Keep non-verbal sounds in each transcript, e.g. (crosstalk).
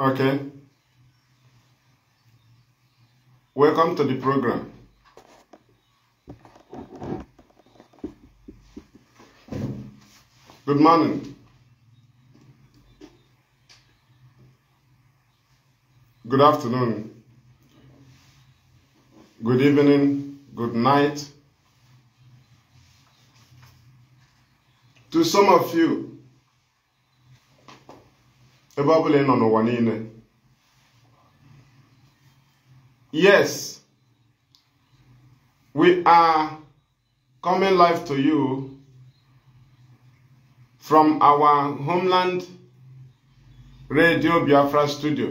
Okay. Welcome to the program. Good morning. Good afternoon. Good evening. Good night. To some of you, ebe ọ bụla ị nọ n'ụwa niile yes we are coming live to you from our homeland radio biafra studio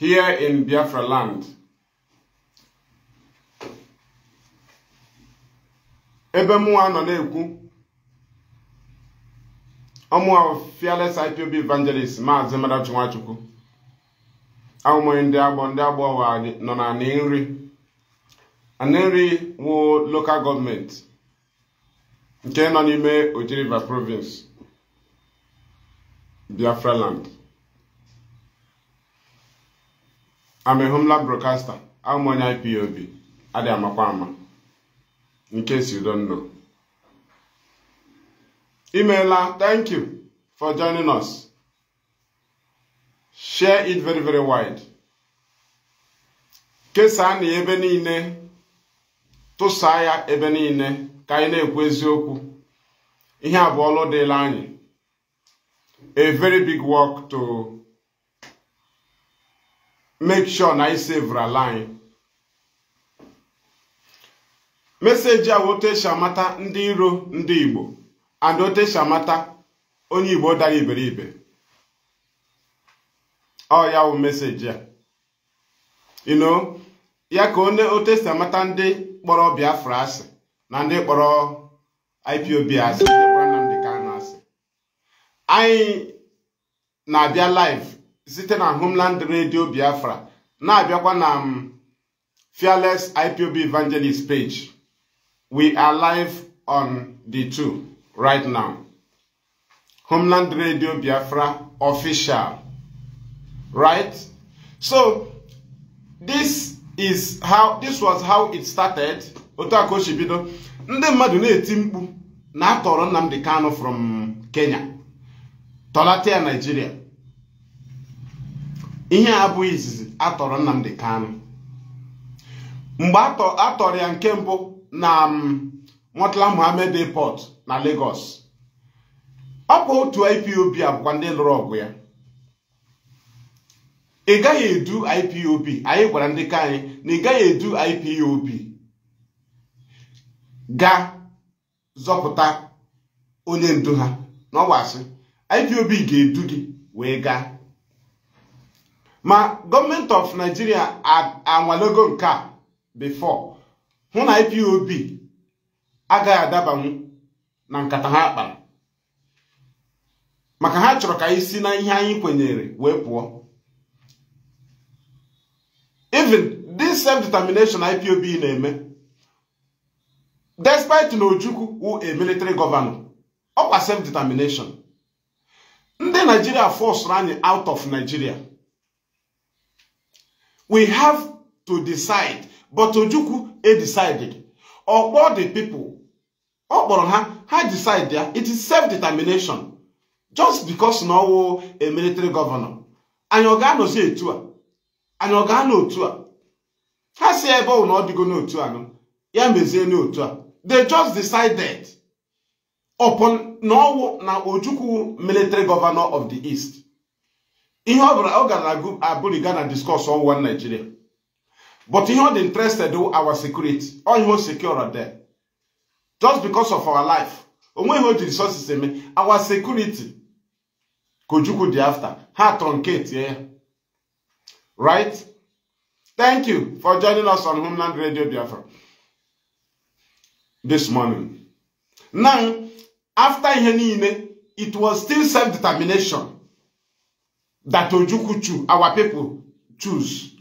here in biafra land ebe mụnwa nọ na-ekwu ọmụ fearless IPOB evangelist maazị Madachi Nwachukwu ahụmọye ndị agbọ ndị agbọ nọ na nri nri wụ local gọọmenti nke nọ n'ime Oji River province Biafra land amehumla broadcaster ahụmọnye IPOB adị amakwa ama nke si don know Imela, thank you for joining us. Share it very, very wide. kesaa na ebe niile tụsaa ya ebe niile ka anyị na-ekwu eziokwu ihe a bụ ọlụ dịla anyị a very big work to make sure na I sevra ala anyị meseji a e esi amata ndị iro ndị Igbo and otu esi amata onye Igbo dara iberibe ọ ya wụ meseji a ino ya ka onye otu esi amata ndị kpọrọ Biafra asị na ndị kpọrọ IPOB asị ndị Nnamdi asị anyị na-abịa live site na Homeland Radio Biafra na-abịakwa na um, Fearless IPOB Evangelist page we are live on the two right now. Homeland Radio Biafra official. Right? So, this is how, this was how it started. Otu aka o si bido. Ndị mmadụ na-eti mkpu na atọrọ Nnamdi Kanu from Kenya. Tọlata ya Nigeria. Ihe a izizi atọrọ Nnamdi Kanu. Mgbe atọrọ ya nke mbụ na um, Murtala Mohammed Airport na Lagos ọ bụ otu IPOB bụkwa ndị lụrụ ọgụ ya ị gaghị edu IPOB anyị gwara ndị ka anyị na ị gaghị edu IPOB ga zọpụta onye ndu ha na IPOB ga-edu gị wee gaa ma gọọmenti of Nigeria anwalego nke a before hụ na IPOB agaghị adabanwu na nkata ha kpara maka ha chọrọ ka anyị si na ihe anyị kwenyere wee pụọ even this self-determination IPOB na-eme despite na Ojukwu wụ a military governor ọkwa self-determination ndị Nigeria forced anyị out of Nigeria we have to decide but Ojukwu e decided ọkpọ the people ọ kpọrọ ha I decide there. It is self-determination. Just because now a military governor. Anyị ọ ga-anọzi etu a? Anyị ọ ga-anọ otu a? Ha si ebe ọ na ọ dịgo n'otu a nọ. Ya mezie n'otu a. They just decided upon na ọwụ na Ojukwu military governor of the East. Ihe ọ bụla ọ gara abụrịga na discuss on one Nigeria. But ihe ọ dị interested our security. All ihe o secure there just because of our life onweghị o ji resources eme our security ka Ojukwu after ha truncatie yeah, right thank you for joining us on Homeland Radio Biafra this morning now after ihe niile it was still self-determination that Ojukwu choose our people choose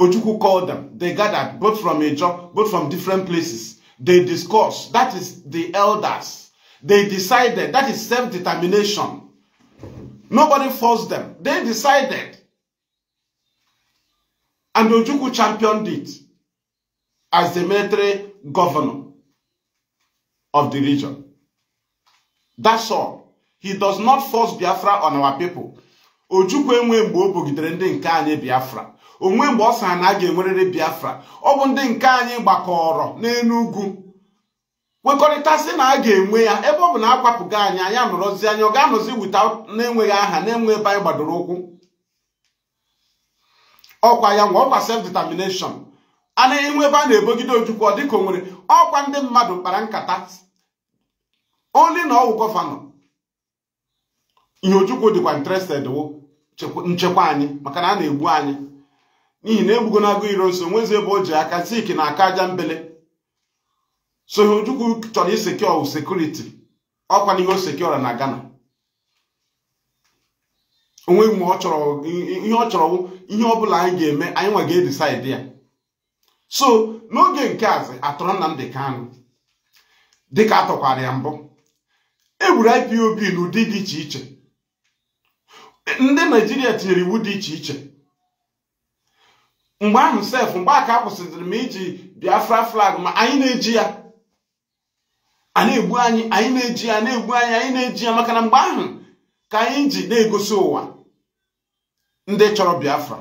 Ojukwu called them they gathered both from Ijaw both from different places They discuss. That is the elders. They decided. That is self-determination. Nobody forced them. They decided. And Ojukwu championed it as the military governor of the region. That's all. He does not force Biafra on our people. Ojukwu enwe mgbe o bogidere ndị nke anyị Biafra. onwe mgbe ọ sara na a ga enwerere biafra ọ bụ ndị nke anyị gbakọrọ n'elu ugwu sị na a ga-enwe ya ebe ọ bụ na akwapụga anyị anyị nọrọzi anya ọ ga-anọzi wita na-enweghị aha na-enwe ebe anyị gbadoro ụkwụ ọkwa ya nwa ọkwa self determination a na-enwe ebe a na-ebogide ojukwu ọ dịka onwere ọkwa ndị mmadụ kpara nkata oli na ọwụ gọvanọ ihe ojukwu dịkwa interested nchekwa anyị maka na a na-egbu anyị n'ihi na egbugo na agụ iro so nwezi ebe o ji aka siki na aka aja mbele so chọrọ isekio sekuriti ọkwa n'ihe o sekiora na Ghana onweghị mgbe ihe ọ chọrọ ihe ọ bụla anyị ga-eme anyị nwa ga-edisaidi ya so n'oge nke azi atọrọ Nnamdi Kanu dịka atụkwara ya mbụ egburu IPOB n'ụdị dị iche iche ndị Naijiria tinyere iwu dị iche iche mgbe ahụ sef mgbe aka kwụsịrị m iji biafra flag ma anyị na-eji ya a na-egbu anyị anyị na-eji ya na-egbu anyị anyị na-eji ya maka na mgbe ahụ ka anyị ji na-egosi ụwa ndị chọrọ biafra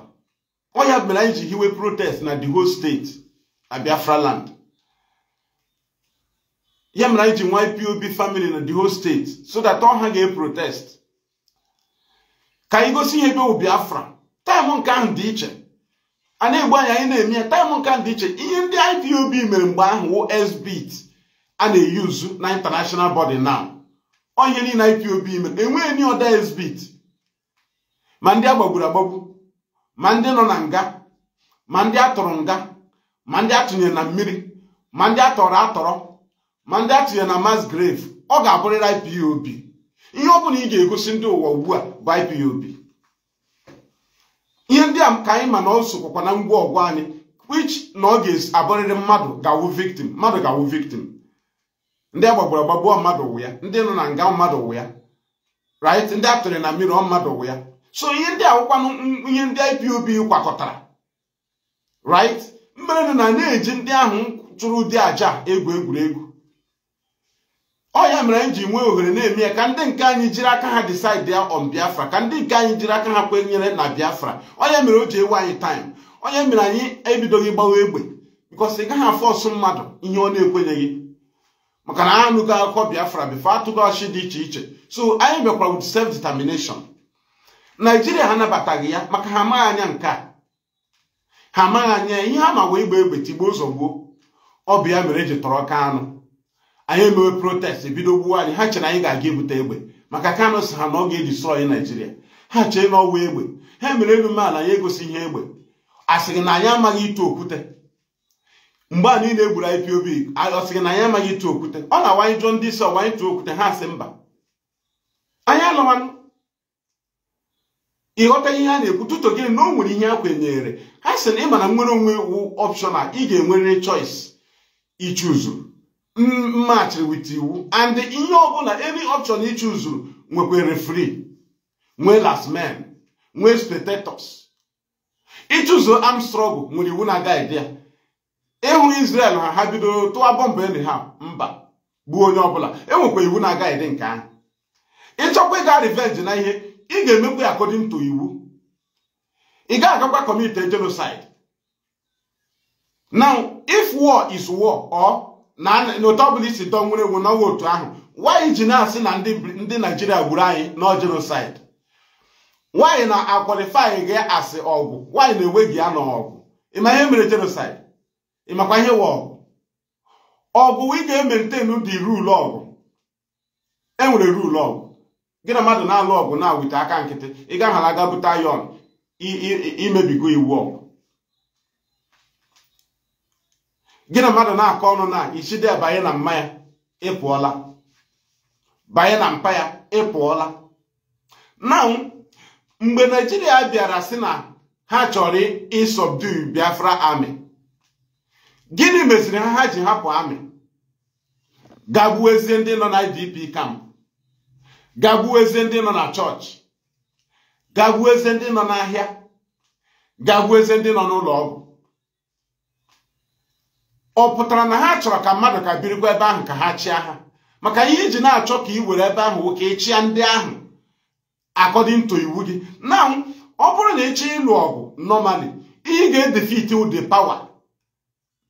ọ ya mere anyị ji hiwe protest na the whole steeti na biafra land ya mere anyị ji nwa family na the whole state so that ọ ha ga-eprotest ka anyị gosi ihe ebe biafra taịmụ nke ahụ dị iche a na-egbu anya anyị na-eme ya taịm nka dị iche ihe ndị IPOB mere mgbe ahụ wụ SBIT a na-eyuzu na international body now ọ ihe niile IPOB mere enweghị ni ọda SBIT ma ndị agbagburu agbagbu ma ndị nọ na nga ma ndị atụrụ nga ma ndị atụnyere na mmiri ma ndị atọrọ atọrọ ma ndị atụnyere na mass grave ọ ga-abụrịrị IPOB ihe ọ bụla ị ga-egosi ndị ụwa ugbu a bụ IPOB ihe ndị a ka anyị ma na ọ sokwakwa na ngwa ọgwụ anyị which na ọ ga-abụrịrị mmadụ ga-awụ victim mmadụ ga-awụ victim ndị agbagburu agbagbuo mmadụ wụ ya ndị nọ na nga mmadụ wụ ya right ndị atụrụ na mmiri mmadụ wụ ya so ihe ndị awụkwanụ ihe ndị IPOB kwakọtara right mmerenụ na na-eji ndị ahụ chụrụ ụdị aja egwu egwuregwu ọ ya mere m ji nwee ohere na-eme ya ka ndị nke anyị jiri aka ha decide ya on biafra ka ndị nke anyị jiri aka ha kwenyere na biafra ọ ya mere o ji ewe anyị taim onye mere anyị ebidoghị gbawa egbe because ị gaghị afọsụ mmadụ ihe ọ na-ekwenyeghị maka na anụgo akụkọ biafra bifo atụgo ọchị dị iche iche so anyị bịakwara with self determination naijiria ha nabataghị ya maka ha amaghị anya nke a ha amaghị anya ihe ha ma wee igba egbe tigbuo ụzọ gbuo ọ bụ ya mere eji tọrọ ka anụ anyị emewe protest bido gbuwa anyị ha chere anyị ga-aga ebute egbe maka Kanu ha na ọ ga-edistrọyị Naijiria ha chee na ọwa egbe ha mere elu a na ya egosi ihe egbe asị gị na anyị amaghị ịtụ okwute mgbe a niile egburu IPOB ọ sị na anyị amaghị ịtụ okwute ọ na-awanye jụọ ndị isi ọwanye tụọ okwute ha asị mba anyị anọwanụ ịghọta ihe a na-ekwu tụtụ gịnị na o nwere ihe a kwenyere ha sị na ị ma na nwere onwe wu a ị ga-enwerịrị choice ichuzu match wit iwu and ihe ọbụla any option ichuzuru chụzuru nwekwa referee nwee last man nwee spectators ịchụzụ arm struggle nwere iwu na guide ya ịhụ Israel ha ha bidoro tụwa bọmbụ enyi ha mba bụ onye ọbụla enwekwa iwu na guide nke ahụ ịchọkwa ịga revenge na ihe ị ga-emekwa ya according to iwu ị ga-agakwa commit genocide now if war is war or n'otu ọ bụla isi dọ nwere ewu n'ọnwa otu ahụ nwaanyị ji na-asị na ndị naijiria gburu anyị n jenosid nwaanyị na akwalifi gị asị ọgwụ nwaanyị na-enwe gị ya n'ọgwụ ịma ihe mere jenosaịd ịmakwa ihe wa ọgwụ ọgwụ ị ga-emeriten dị ruulu ọgwụ enwere ruulu ọgwụ gị na mmadụ na-alụ ọgwụ na-awite aka nkịtị ị gaghara aga bute ayọn imebigo iwu ọgwụ gị na mmadụ na-akọ ọnụ na ichide banye na ịpụọla banye na mpa ya ịpụọla na mgbe naijiria bịara si na ha chọrọ ịsọbdu biafra amị gịnị meziri ha ha ji hapụ amị gagbuwezie ndị nọ na idp kam gagbuwezie ndị nọ na chọọchị gagbuwezie ndị nọ n'ahịa gagbuwezie ndị nọ n'ụlọ ọgwụ ọ pụtara na ha chọrọ ka mmadụ ka birikwa ebe ahụ ka ha chịa ha maka ihe iji na-achọ ka ị were ebe ahụ nwoke ịchịa ndị ahụ akọdịntụ iwu gị na ọ bụrụ na ịchịa ịlụ ọgụ normally ihe ga-edefit ụdị power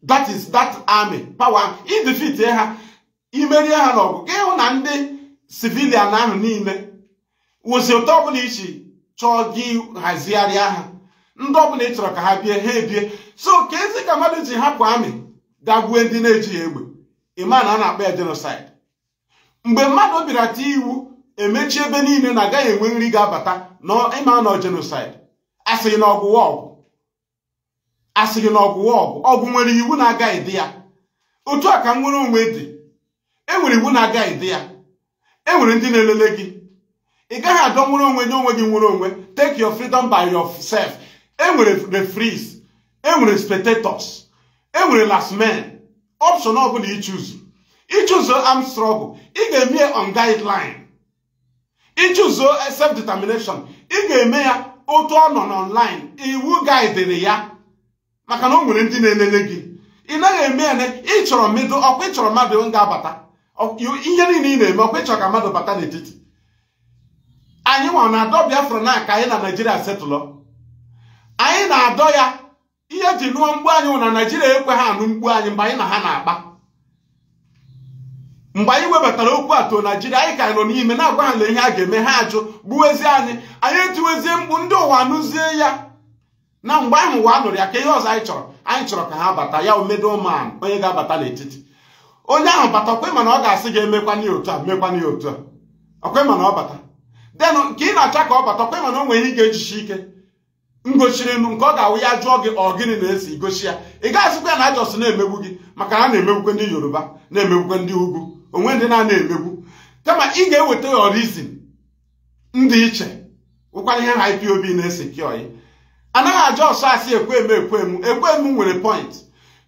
that is that army power idefit ha imerie ha n'ọgụ gị hụ na ndị sivilian ahụ niile wụsị ụtọ ọbụla ichi chọọ gị hazigharịa ha ndị ọbụla ị chọrọ ka ha bie ha ebie so ka ezi ka mmadụ ji hapụ amị gagwue ndị na-ejighị egbe ịma na a na-akpa ya jenosaid mgbe mmadụ bịara iwu emechi ebe niile na agaghị enwe nri ga-abata ịma nọ jenosaid asịghị na ọgwụwa ọgwụ asịghị na ọgwụwa ọgwụ ọgwụ nwere iwu na-agaghị dị ya otu a ka nwere onwe dị enwere iwu na-agaghị dị ya enwere ndị na-elele gị ị gaghị adọ nwere onwe nye onwe gị nwere onwe take your freedom by yourself enwere referees enwere spectators enwere last man option ọ ọbụla ichuzu ichuzo am struggle ị ga-eme on guideline ichuzo self determination ị ga-eme ya otu ọ nọ n'online iwu guidere ya maka na o nwere ndị na-elele gị ị naghị eme ya na ịchọrọ chọrọ mmedo ọkwa ịchọrọ mmadụ ga-abata ihe niile ị na-eme ọkwa ịchọrọ ka mmadụ bata n'etiti anyị nwa na-adọ Biafra na aka anyị na Naịjirịa setụlọ anyị na-adọ ya ihe eji nụọ mgbu anyị nwụ na naijiria ekwe ha anụ mgbu anyị mgbe anyị na ha na-akpa mgbe anyị webatara okwu atụ naijiria anyị ka nọ n'ime na-agwa ha na ihe a ga-eme ha ajụ gbuwezie anyị anyị etiwezie mkpu ndị ụwa anụzie ya na mgbe ahụ ụwa nụrụ ya ka ihe ọzọ anyị chọrọ anyị chọrọ ka ha bata ya omedoma onye ga-abata n'etiti onye ahụ bata okwe mana ọ ga-asị gị emekwana ya otu a mekwana ya otu a okwe mana ọ bata denụ ka ị na-acha ka ọ bata okwe mana o nwere ihe ga-ejichi ike m nu nke ọ ga-awụ ya jụọ gị ọ gịnị na-esi gochi ya ị gaghịzikwa ya na ajọs na-emegbu gị maka na na-emegbukwe ndị yoruba na-emegbukwe ndị ugwu onwe ndị na-ana emegbu kama ị ga-eweta ya orizin ndị iche ụkwara ihe ha ipob na-ese kiọyị anaghị ajọ ọsọ asị ekwem ekwem ekwem nwere point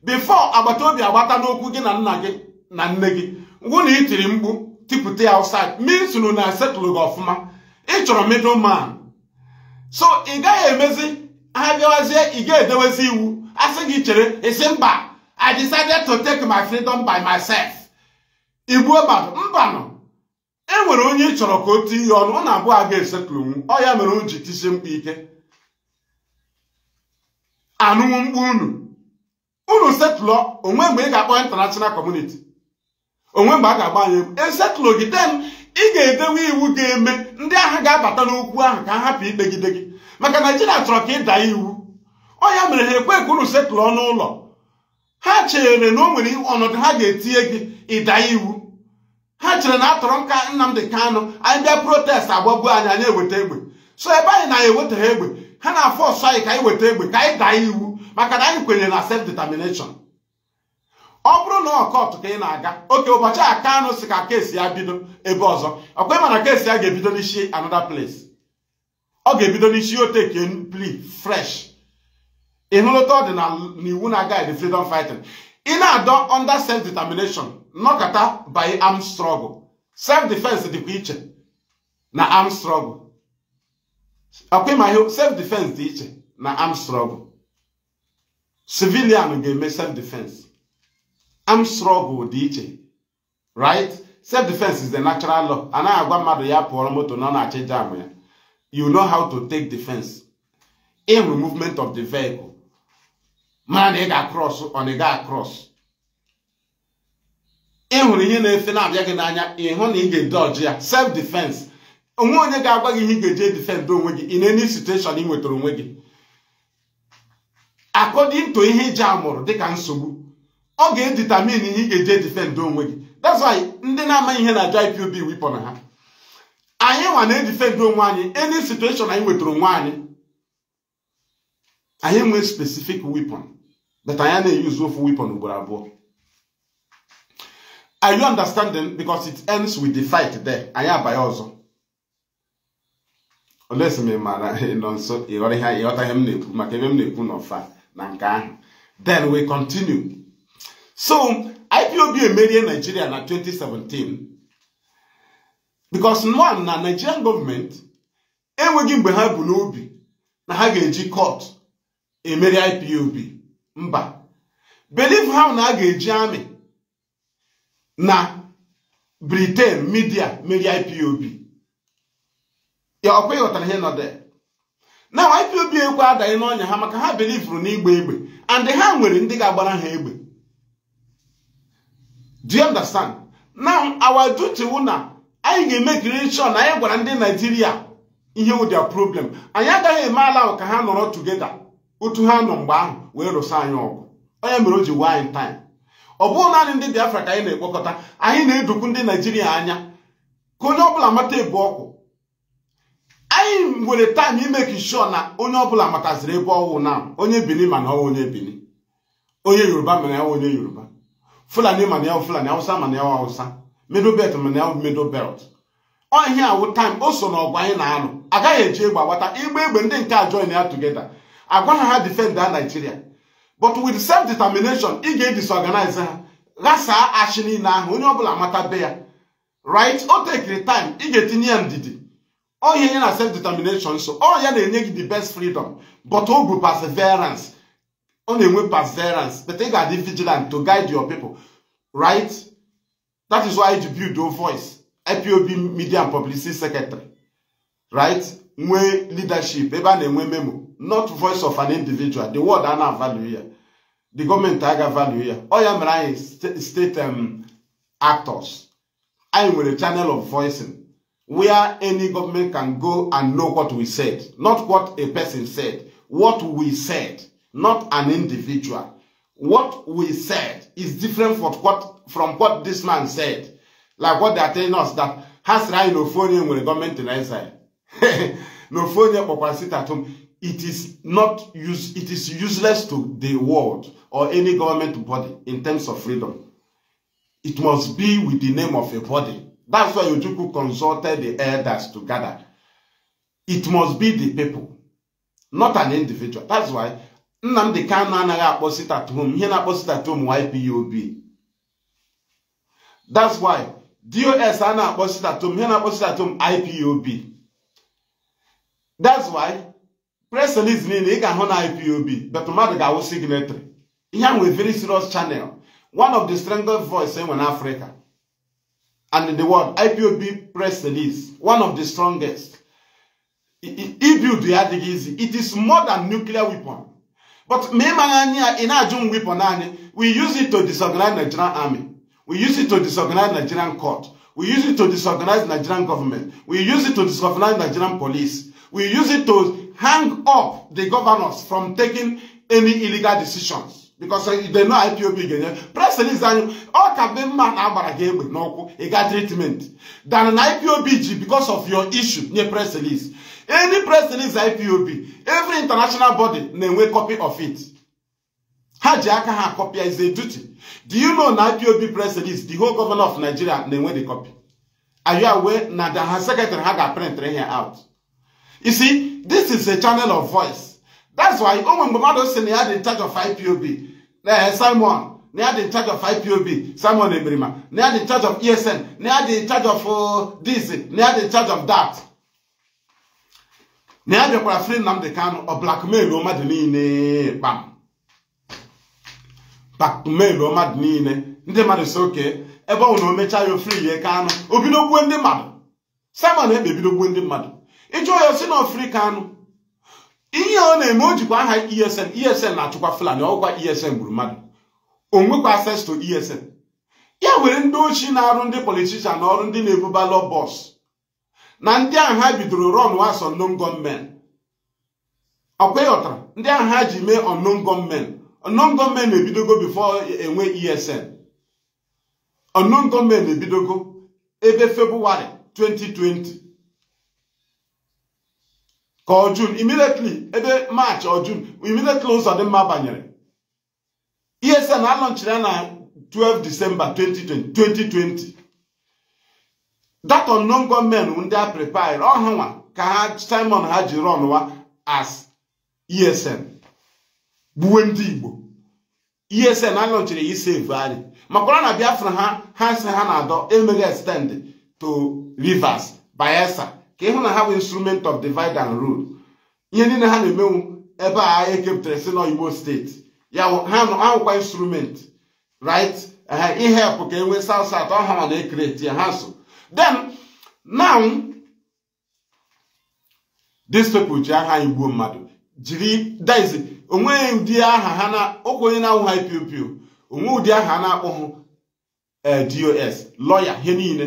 bifo agbata obi agbata n'okwu gị na nna gị na nne gị ngwụ na itiri mkpu tipụta ya outside means na setụlụ gị ọfụma ị chọrọ middle man so ị gaghị emezi ha abịawazie ị ga-edewezi iwu asị gị chere isi mba I decided to take my freedom by myself igbuo mmadụ mbanụ e nwere onye ị chọrọ ka o tie ihe ọnụ ọ na-abụ aga esetụlonwu ọ ya mere o ji tisie mkpa ike anụnwụ mkpu unu unu setụlọ onwe mgbe ị ga-akpọ international community onwe mgbe a ga-agba anyị egwu esetụlụ gị den ị ga-edewe iwu ga-eme ndị agha ga-abata n'okwu ahụ ka hapụ ikpegide gị maka naijiria chọrọ ka ịda iwu ọ ya mere ha ekwe ka unu setụrụ ọnụ ụlọ ha chere na o nwere ọnọdụ ha ga-etinye gị ịda iwu ha chere na atọrọ nka Nnamdi kanụ anyị bịa protest agbagbuo anyị anyị eweta egbe so ebe anyị na eweta ewetaghị egbe ha na-afọ ọsọ anyị ka anyị weta egbe ka anyị daa iwu maka na anyị kwenyere na self determination ọ bụrụ na ọkọtụ ka ị na-aga oke ụbọchị aka Kanu si ka kesi ya bido ebe ọzọ ọkwa ị mana kesi ya ga-ebido n'isi anoda place ọ ga-ebido n'isi oteke pli fresh ịhụlụta ọdịnala na iwu na guide freedom fighting ị na-adọ under self determination nọkọta by arm struggle self defense dịkwa iche na arm struggle ọkwa ịma ihe self defense dị iche na arm struggle civilian ga-eme self defense arm struggle dị iche right self defense is the natural law anaghị agwa mmadụ ya pụọrọ moto na ọ na-achị jam ya you know how to take defense in movement of the vehicle mara na ị ga-across ọ na ị ga-across ị hụrụ ihe na-efe na-abịa gị n'anya ị hụ na ị ga-ede ya self defense onwe onye ga-agwa gị ihe ị ga-eji edifend onwe gị in any situation ị nwetara onwe gị according to ihe iji amụrụ dịka nsogbu ọ ga-editamin ihe ị ga eje edifendị onwe gị that's why ndị na-amaghị ihe na-aja IPOB wipọ na ha anyị nwa na-edifendị onwe anyị any situation anyị wetara onwe anyị anyị nwee specific wepon but anyị na-eyuzu ofu wepon ugboro abụọ Are you understanding? Because it ends with the fight there. Anyị abanye ọzọ. Olesi m mara nọ nso ịghọta ihe m na-ekwu maka ebe m na-ekwu n'ọfa na nke ahụ. Then we continue. so ipob emerie nigeria na 2017 because nwa na nigerian government enweghị mgbe ha bụ n'obi na ha ga-eji kọt emeri ipob mba believe ha na a ga-eji amị na britain midia merie ipob ya ọkwa ịghọtara ihe nọde na ipob ekwe adaghị n'ọnya ha maka ha belivuru n'igba egbe and ha nwere ndị ga-agbara ha egbe do you understand now our duty na anyị ga-emekiri sure na anyị gwara ndị naijiria ihe wụ their problem anyị agaghị eme ala ahụ ka ha nọrọ tugeda otu ha nọ mgbe ahụ wee rụsa anyị ọgụ onye mere o ji wine time ọ bụghị naanị ndị biafra ka anyị na-ekpokọta anyị na-edukwu ndị naijiria anya ka onye ọbụla mata ebe ọkụ anyị nwere taịm imeki sure na onye ọbụla mataziri ebe ọwụ na onye bini mana ọwụ onye bini onye yoruba mana ọwụ onye yoruba fulani ma na fulani awụsa ma na awụsa middle belt ma na middle belt ọ awụ time o so ọgwa anyị na-anụ agaghị eji egbe agbata igba egbe ndị nke a join ya together agwa ha ha da Nigeria but with self determination ị ga-edisorganize ha ghasaa achị niile ahụ onye ọbụla amata be ya right o tekiri time ị ga-etinye ya ndidi ọ ya na self determination so ọ ya na-enye gị the best freedom but o bụ perseverance Only with perseverance but ị vigilant to guide your people right that is why you build your voice IPOB media and publicity secretary right We leadership memo not voice of an individual the word I na value. the government I value. here. All ọ ya right, state state um, actors with a channel of voicing where any government can go and know what we said not what a person said what we said not an individual. What we said is different from what, from what this man said. Like what they are telling us that has right no phone when the government in exile. no phone sit at home. It is not use, it is useless to the world or any government body in terms of freedom. It must be with the name of a body. That's why Ojuku consulted the elders to gather. It must be the people, not an individual. That's why nnamdị kanu anaghị akpọsi tatom ihe na-akpọsi tatom YPOB that's why dos a na-akpọsi tatom ihe na-akpọsi tatom IPOB that's why press release niile ị ga-ahụ na IPOB but mmadụ ga-awụ signatory ihe a nwere very serious channel one of the strongest voice enwe n'Africa and in the world IPOB press release one of the strongest ibuild ya adịghị easy it is more than nuclear weapon But ina ajun weapon anyị, we use it to disorganize Nigerian army. We use it to disorganize Nigerian court. We use it to disorganize Nigerian government. We use it to disorganize Nigerian police. We use it to hang up the governors from taking any illegal decisions. Because uh, they know IPOB again. President is saying, all can be man agbara ga egbe n'ọkụ, ị ga treatment. Than an IPOB ji because of your issue, nye press release any press release ipob every international body na-enwe copy of it ha ji aka ha copy is a duty do you know na ipob president? release the whole governor of nigeria na-enwe the copy are you aware na the her secretary ha ga-print here out you see this is a channel of voice that's why onwe mgbe mmadụ si na in charge of ipob na simon na had in charge of ipob eh, simon emerima na had in charge of esn na had in charge of e oh, this na had in charge of that na ya bịakwara free Nnamdi Kanu ọ blackmail mmadụ niile kpam blackmail mmadụ niile ndị mmadụ si oke ebe ọ na o mechaa ya ofri ya Kanu o bido ndị mmadụ Simon Ekpa ebido gbuo ndị mmadụ ịjụọ ya si na ofri Kanu ihe ọ na-eme o jikwa aha ESN ESN na-achụkwa Fulani ọgwa ESN gburu mmadụ o nwekwa access to ESN ya were ndị ochie na-arụ ndị politishan na ọrụ ndị na-ebuba lọ bọs na ndị ahụ ha bidoro run as unknown gunmen ọkwa ịghọtara ndị ahụ ha ji mee unknown gunmen unknown na ebidogo before enwe esn unknown na ebidogo ebe february 2020 ka ọ jun ebe march ọ jun ụzọ dị mma banyere esn alọnchiri na 12 december 2020 that unknown gọọmenti ndị a prepare oh, ọhụnwa ka ha simon ha ji rọnwa as esn gbuwe ndị igbo esn anọchiri ya save anyị makwara na biafra ha ha si ha na-adọ emeghị extend to rivers bayelsa ka ịhụ na ha bụ instrument of divide and rule ihe niile ha na-emenwu ebe a ekepụtara si n'oyibo steeti ya ahụkwa instrument right ihe help ka e nwee south south ọhụrụ na ekreti ya ha so then now these people ji aha igbo mmadụ jiri daizi onweghị ụdị aha ha na ọkwa onye na ha onwe ụdị aha a na-akpọ hụ eh, dos lọya ihe niile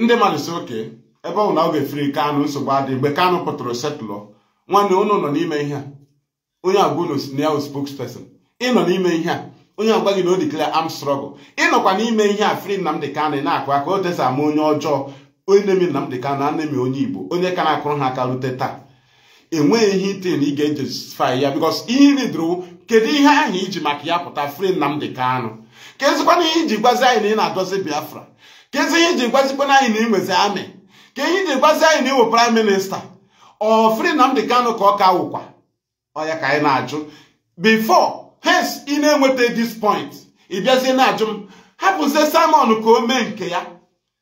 ndị mmadụ si oke ebe ọ na ọ ga-efere kanụ nsogbu adị mgbe kanụ pụtara setlọ nwanne ụnụ nọ n'ime ihe a onye agwa unu na ya spokesperson ị nọ n'ime ihe a onye ọgwa gị na o dikla am strọgụl ịnọkwa n'ime ihe a fri Nnamdi Kanu na-akụ aka o tesa ama onye ọjọọ onye na-emi Nnamdi Kanu na na onye Igbo onye ka na-akụrụ ha aka rute taa enweghị ihe ite na ị ga-ejusifai ya bikos ihe ridoro kedu ihe ahụ iji maka ya pụta fri Nnamdi Kanu kezikwana ihe iji gwazi anyị na ị na-adọzi Biafra ka kezi ihe iji gwazikwana anyị na inwezi amị ka ihe iji gwazi anyị na iwo praịm minista ọ fri Nnamdi Kanu ka ọ ka wụkwa ọ ya ka anyị na-ajụ bifọ. hence ị na-enweta this point ị bịazie na-ajụ m hapụzie Simon ka o mee nke ya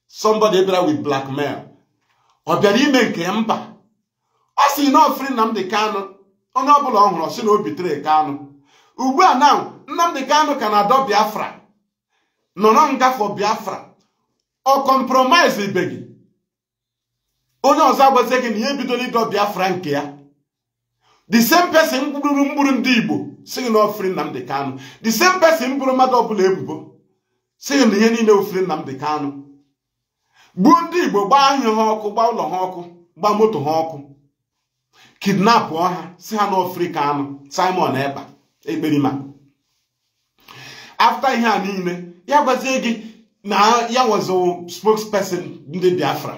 somebody bịara with blackmail ọ bịara ime nke ya mba ọ si na ọfri Nnamdi onye ọbụla ọ hụrụ ọ sị na o bitere Kanu ugbu a na Nnamdi Kanu ka na-adọ Biafra nọrọ ngafọ Biafra ọ compromise ibe onye ọzọ agwazie gị na ihe ebidola ịdọ Biafra nke ya the same person mkpụrụ mkpụrụ ndị Igbo si gị na ofri Nnamdi the same person bụrụ mmadụ ọbụla ebubo si na ihe niile ofri Nnamdi Kanu gbuo ndị Igbo gbaa ahịa ha ọkụ gbaa ụlọ ha ọkụ gbaa moto ha ọkụ kidnap ọha si ha na ofri Kanu Simon Ekpa Ekperima afta ihe a niile ya gwazie gị na ya wazụ spokesperson ndị Biafra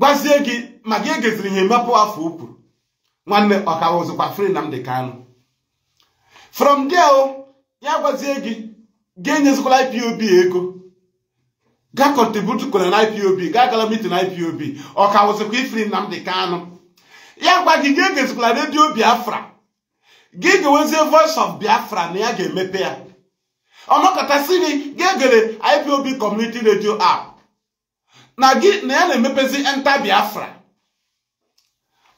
gwazie gị ma gị egeziri ihe mepụ afọ o kwuru nwanne ọka wụzụkwa Free Nnamdi Kanu from there o oh, ya gwazie gị ga-enyezikwala ipob ego ga kọntributu kwere na ipob ga agala mitin ipob ọ ka wụzikwa ifri Nnamdi Kanu ya gwa gị ga-egezikwala redio biafra gị ga voice of biafra na ya ga-emepe ya ọnọkọtasị gị ga-egere ipob community radio app na gị na ya na-emepezi enta biafra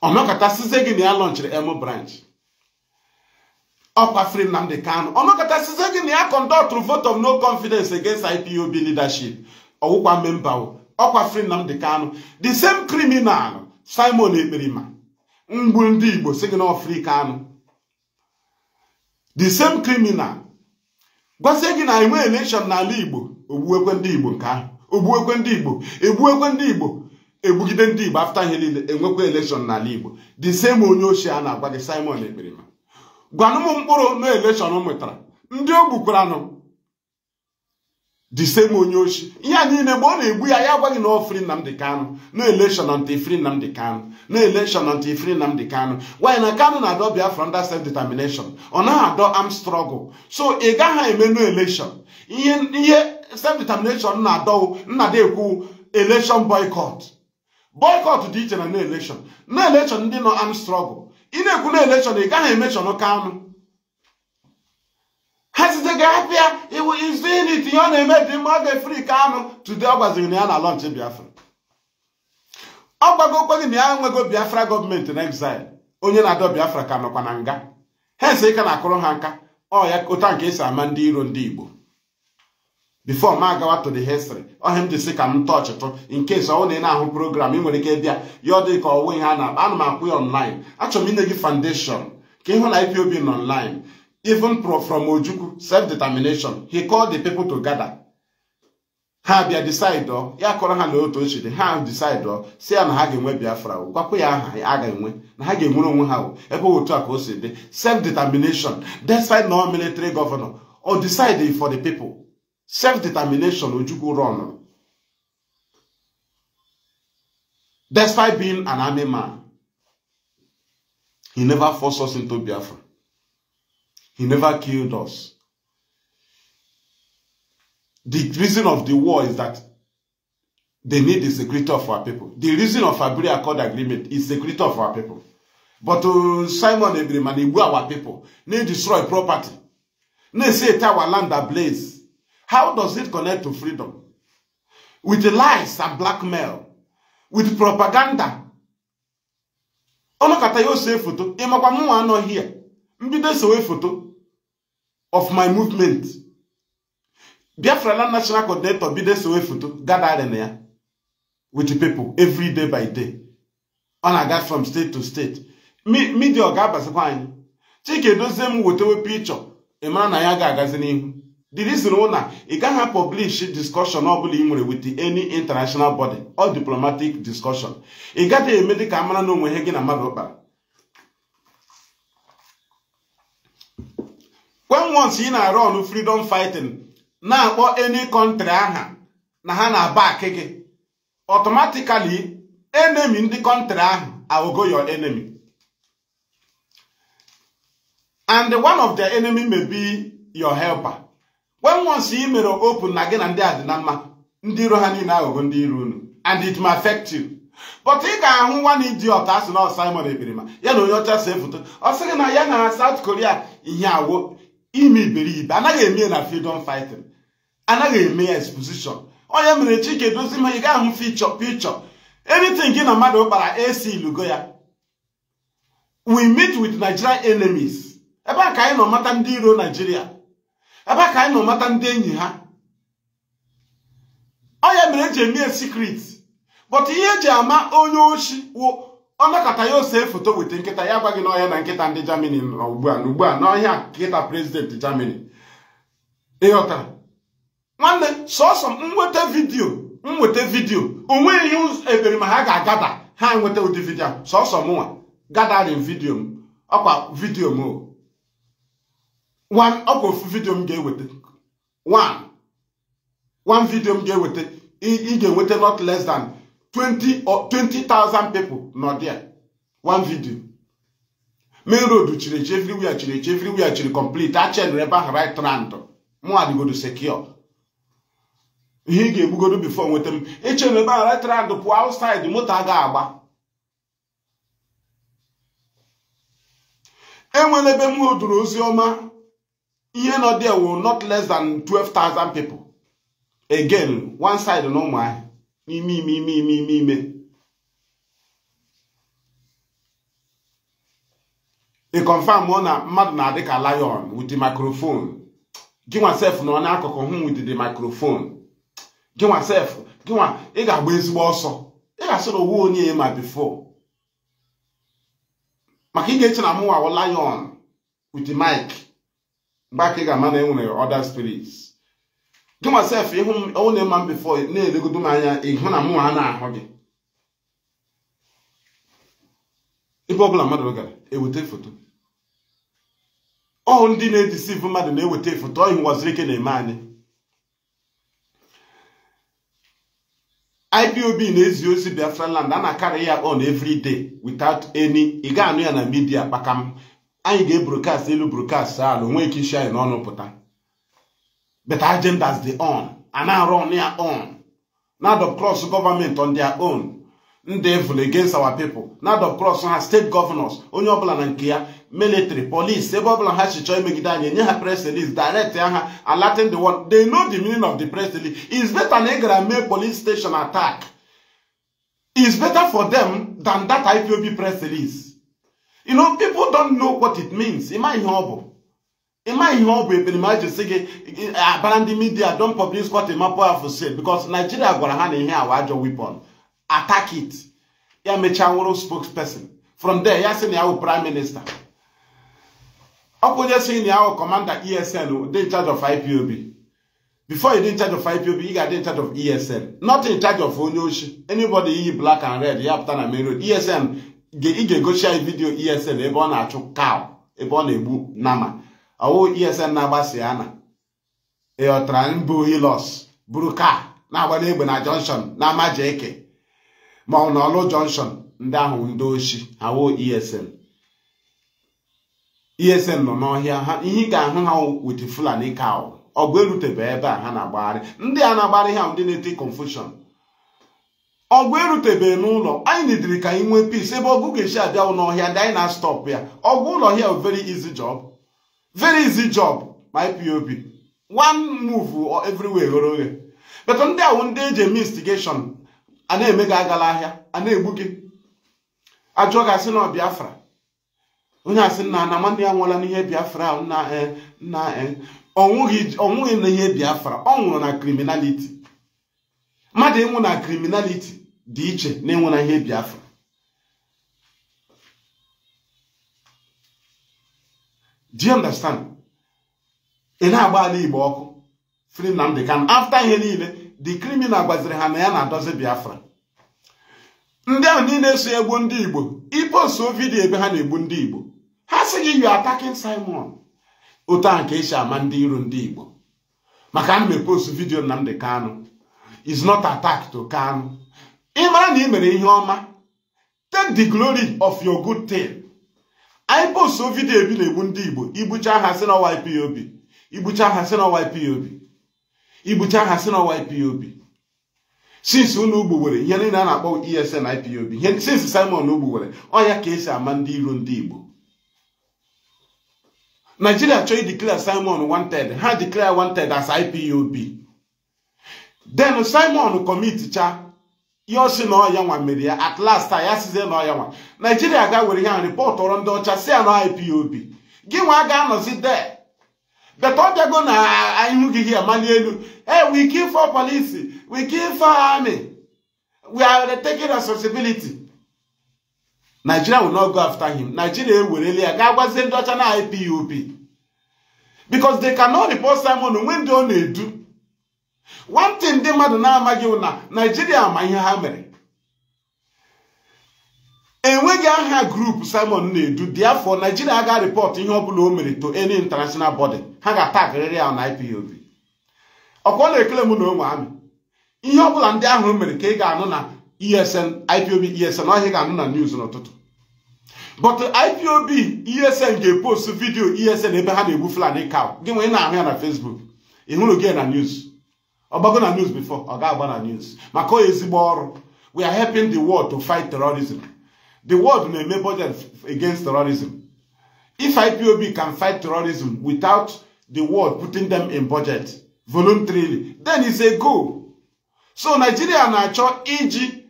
ọnọkọtasịzie gị na ya lọnchiri emu branch ọkwa Free Nnamdi Kanu ọnọkọtasize gị na ya kọndọtụrụ vote of no confidence against IPOB leadership ọwụkwa memba ọkwa Free Nnamdi Kanu the same criminal Simon Ekperima mgbu ndị Igbo si gị na Free Kanu the same criminal gwazie gị na enwe election n'ala Igbo ogbuekwe ndị Igbo nke ahụ ogbuekwe ndị Igbo egbuekwe ndị Igbo egbugide ndị Igbo afta ihe niile enwekwa election n'ala Igbo the same onye ochie a na-agwa gị Simon Ekperima gwanụ m mkpụrụ na eleshọn mụtara ndị o gbukwaranụ disem onye ochi ihe a niile mgbe ọ na-egbu ya ya agwaghị na ofri Nnamdi Kanu na eleshọn ant ifri Nnamdi Kanu na eleshọn ant ifri Nnamdi Kanu nwanyị na Kanu na-adọ Biafra under self determination ọ naghị adọ am strọgụl so ị gaghị eme no eleshọn ihe self determination na adọ nnada ekwu eleshọn boycott boycott dị iche na na eleshọn na eleshọn ndị nọ am strọgụl. ị na-ekwu na elekshọn ị gaghị ka anụ ha site ga abịa iwu izu ihe ọ na-eme dị mma dị fri anụ tude ọ gwaziri na ya na lọnchị biafra ọ gbago okpegị na ya enwego biafra gọọmenti na exile onye na-adọ biafra ka nọkwa na nga ha ese ịka na-akụrụ ha nka ọ ya ụta nke esi ama ndị iro ndị igbo before m agawa to the history ọhịa m ji sị ka m tọchịtụ in case ọ na ị na-ahụ program ị nwere ike bịa ya ọ dị ka ọwụ ihe a na-akpa ana m akwụ ya online achọ m ine gị foundation ka ịhụ na IPOB n online even from Ojukwu self-determination he called the people to gather ha bịa decide ya kọrọ ha na otu ochi dị ha decide si ya na ha ga-enwe biafra gwakwa ya aha a ga-enwe na ha ga-enwere onwe ha ebe otu a ka o si dị self-determination despite no military governor or decide for the people self-determination Ojukwu run despite being an army man he never forced us into Biafra he never killed us the reason of the war is that they need the security of our people the reason of Abiri Accord agreement is security of our people but uh, Simon Ebiri na-egbu our people na-destroy property na-esi ete our land ablaze How does it connect to freedom? With lies and blackmail, with propaganda. ọnọkọta ya ose foto ịmakwa mụnwa anọghị ya mbido esowe foto of my movement Biafra Land National Coordinator bido esowe foto gathering ya with people every day by day ọ na-aga from state to state media ọ ga-abazikwa anyị Chike Edozie m wetewe pichọ ị mara na ya ga-agazi n'ihu the reason na ị gaghị publish discussion ọbụla ị nwere with any international body or diplomatic discussion ị gaghị eme dị ka mara na onwe ihe gị na mmadụ kpara when once ị na-arụ ọnụ freedom fighting na-akpọ any country aha na ha na-aba gị automatically enemy ndị country ahụ aghọgo your enemy and one of the enemy may be your helper when once ị mere open na gị na ndị adị na mma ndị iro ha niile aghụghọ ndị iro unu and it may affect you but ị ga-ahụ nwa na iji ọta asị na Simon ebirima ya na onye ọcha see foto ọ sịghị na ya na South Korea ihe awo ime iberibe anaghị eme na freedom fighting anaghị eme ya exposition onye mere Chike Edozim ị ga-ahụ fichọ pichọ anything gị na mmadụ kpara esi ilugo ya we meet with Nigerian enemies ebe a ka anyị nọ mata ndị iro Nigeria ebe ka anyị nọ mata ndị enyi ha ọ ya mere eji eme sikret but ihe eji ama onye oshi wụ ọnakọta ya ose foto weta nkịta ya gwa gị n'ọhịa na nkịta ndị Germany nọ ugbu a n'ugbu a n'ọhịa nkịta prezident Germany ịghọtara nwanne sọsọ m nweta vidiyo m nweta vidiyo onweghị ihe ebere ma ha ga-agada ha nweta ụdị vidiyo sọsọ mụnwa gadarin vidiyo m ọkwa vidiyo m o ọkwa ofu vidio m ga-eweta one vidio m ga-eweta ị ga-enweta not less than or 20,000 people nọ one video main road chiri echi everywhere chiri echi everywhere chiri complete a chenere ebe ahụ right rand mụ secure ihe ị ga-egbugodo before nweta m echere ebe ahụ right rand pụọ outside moto a ga-agba enwere ebe m oduru ozi ọma ihe nọ there will not less than 12,000 people again one side na ụmụahịa n'ime ime ime ime ime ime ị confirm na mmadụ na-adị ka lion with the microphone gịnwa sef na nọ akụkụ hụ with the microphone gịnwa sef gịnwa ị ga-agba ezigbo ọsọ ị ga-asị na owu onye ma before maka ị ga-eche na mụnwa lion with the mic mgbe aka ị ga-ama na enwere ọda spirits gị masef ịhụ m onye ma m bifo na-elegodo m anya ịhụ na mụnwa a na-ahụ gị ebe ọbụla mmadụ gara eweta foto ọhụ ndị na-edisivu mmadụ na-eweta foto ọhị nwaziri ike na-eme anyị IPOB na-ezi ozi Biafra land a na-akarị ya on every day eny ị ga-anụ ya na midia kpakam anyị ga-ebrokast elu brokast ala onwe ike isi anyị n'ọnụ pụta beta agendas dị on a na-arụ on ya on na dop cross gọọmenti on their own ndị evil against our people na dop cross ha steeti gọvanọs onye ọbụla na nke ya military police ebe ọbụla ha chọọ imegide anyị enye ha press release direct ya ha alatin the world they know the meaning of the press release is better na ị gara mee police station attack is better for them than that IPOB press release You know, people don't know what it means. Am I humble? Am I humble? Even imagine saying, eh, "Abandon the media. Don't publish what a map of said because Nigeria gonna hand in here our weapon. Attack it." Yeah, Mechanworo spokesperson. From there, yeah, saying our prime minister. Okunye saying our commander ESN, they in charge of IPOB. Before you in charge of IPOB, you got in charge of ESN. Not in charge of Onyoshi. Anybody black and red, you have to ESN ị ga-egochi anyị esn e ebe ọ na-achụ kaw ebe ọ na-egbu nama ọwụ esn na-agbasa ya na ịghọtara mbụ hilos buru ka na-agba n'egbe na jọnshọn na amaja eke ma ọ n'ọlụ jọnshọn ndị ahụ ndị ha awụ esn esn nọ n'ọhịa ha ihe ị ga-ahụ ha wit fulani kaw ọgụ erutebe ebe a ha na-agbagharị ndị a na-agbagharị ha ndị na-eti confushon ọgụ erutebeghị n'ụlọ anyị nidiri ka anyị nwee peace ebe ọgụ ga-esi abịawụ n'ọhịa ndị anyị na-astọpụ ya ọgụ ụlọ hia very easy job very easy job my pop one move everywhere ghere oghe beta ndị awụ ndị eji eme instigation a na-eme gị agala ahịa a na-egbu gị ajụọ gị asị na Biafra onye asị nna na nwanne ya nwụọla n'ihe Biafra na eh, eh. ọnwụghị ihe Biafra ọ nwụrụ na criminality mmadụ ịnwụ na kriminaliti dị iche na ịnwụ na ihe biafra do you understand ị na-agba ala igbo ọkụ free Nnamdi afta ihe niile the criminal gbaziri ha na ya na-adozi biafra ndị ahụ niile eso egbu ndị igbo iposo vidiyo ebe ha na-egbu ndị igbo ha si gị you attacking Simon otu ahụ ka esi ama ndị iro ndị igbo maka ana m vidio vidiyo Nnamdi Kanu is not attack to Kanu. Ị mara na ị mere ihe ọma take the glory of your good thing. anyị post vidio ebi na-egbu ndị Igbo igbucha ha si na YPOB igbucha ha si na YPOB igbucha ha si na YPOB since ụlọ ugbo ihe niile a na-akpọ ESN IPOB ihe since Simon ugbo were ya ka esi ama ndị iro ndị Igbo Nigeria chọọ ideclare Simon wanted ha declare wanted as IPOB den simon komiticha ya osi na ọya nwa mere ya at last ya sizie na ọya nwa naijiria ga were ihe a rịpọtụrụ ndị ọcha si ya na IPOB gị nwa ga-anọzi de ọ bịago na ihu gị hia mali elu e we kill for police we kill for we are taking responsibility Nigeria will not go after him Nigeria ewerele ya ga gwazie ndị ọcha na IPOB because they cannot repot Simon onwe ndị ọ na-edu nwantị ndị mmadụ na-amaghị na naijiria ma ihe ha mere enweghị aha grupu simon na-edu dị afọ naijiria ga rịpọt ihe ọbụla o mere to any international body ha ga-atagịrịrị ya na ipob ọkwa na-ekele m na onwe amị ihe ọbụla ndị ahụ mere ka ị ga-anụ na esn ipob esn ọhịa ga-anụ na news n'ụtụtụ but ipob esn ga-epost vidiyo esn ebe ha na-egbu fulani cow gị ị na-ahụ ya na facebook ị hụrụ gị na news ọgbago na news before ọ ga-agba news maka ọ ezigbo ọrụ we are helping the world to fight terrorism the world na-eme budget against terrorism if ipob can fight terrorism without the world putting them in budget voluntarily then it's a go. so nigeria na-achọ iji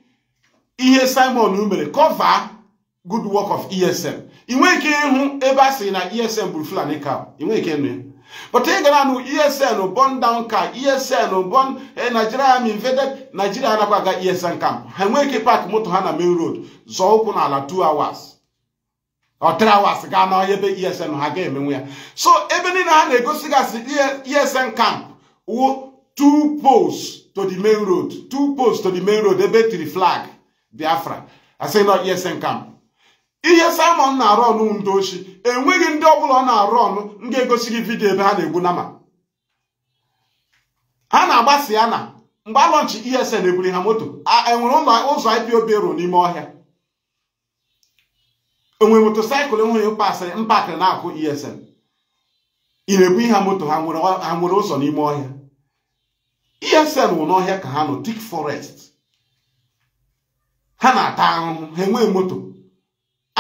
ihe simon mere cover good work of esm ị nwee ike ịhụ ebe a sị na esm bụrụ fulani cow ị nwee ike ịnụ ya But ị gara nụ ESN bond down camp ESN bond eh, Nigeria Army invaded Nigeria anakwa aga ESN camp ha enweghị ike park moto ha na main road zọọ ụkwụ n'ala 2 hours ọ three hours gaa n'ọhịa ebe eh, ESN ha ga-emenwe ya so ebe niile ha na-egosigasị ESN camp wo two poles to the main road two poles to the main road ebe tiri flag Biafra asị nọ ESN camp ihe Simon na-arụ ọnụ ndị ochi enweghị ndị ọbụla ọ na-arụ ọnụ m ga-egosi gị vidio ebe ha na egbu na ma ha na-agbasi ya na mgbe alọnchi ESN eburi ha moto enwere ụlọ ụzọ IPOB ruo n'ime ọhịa moto motosaịkụl enweghị mkpasịrị mpakịrị na-akụ ESN ị na-ebu ihe moto ha nwere ụzọ n'ime ọhịa ESN wụ n'ọhịa ka ha nọ dik forest ha na-ata ahụhụ ha enweghị moto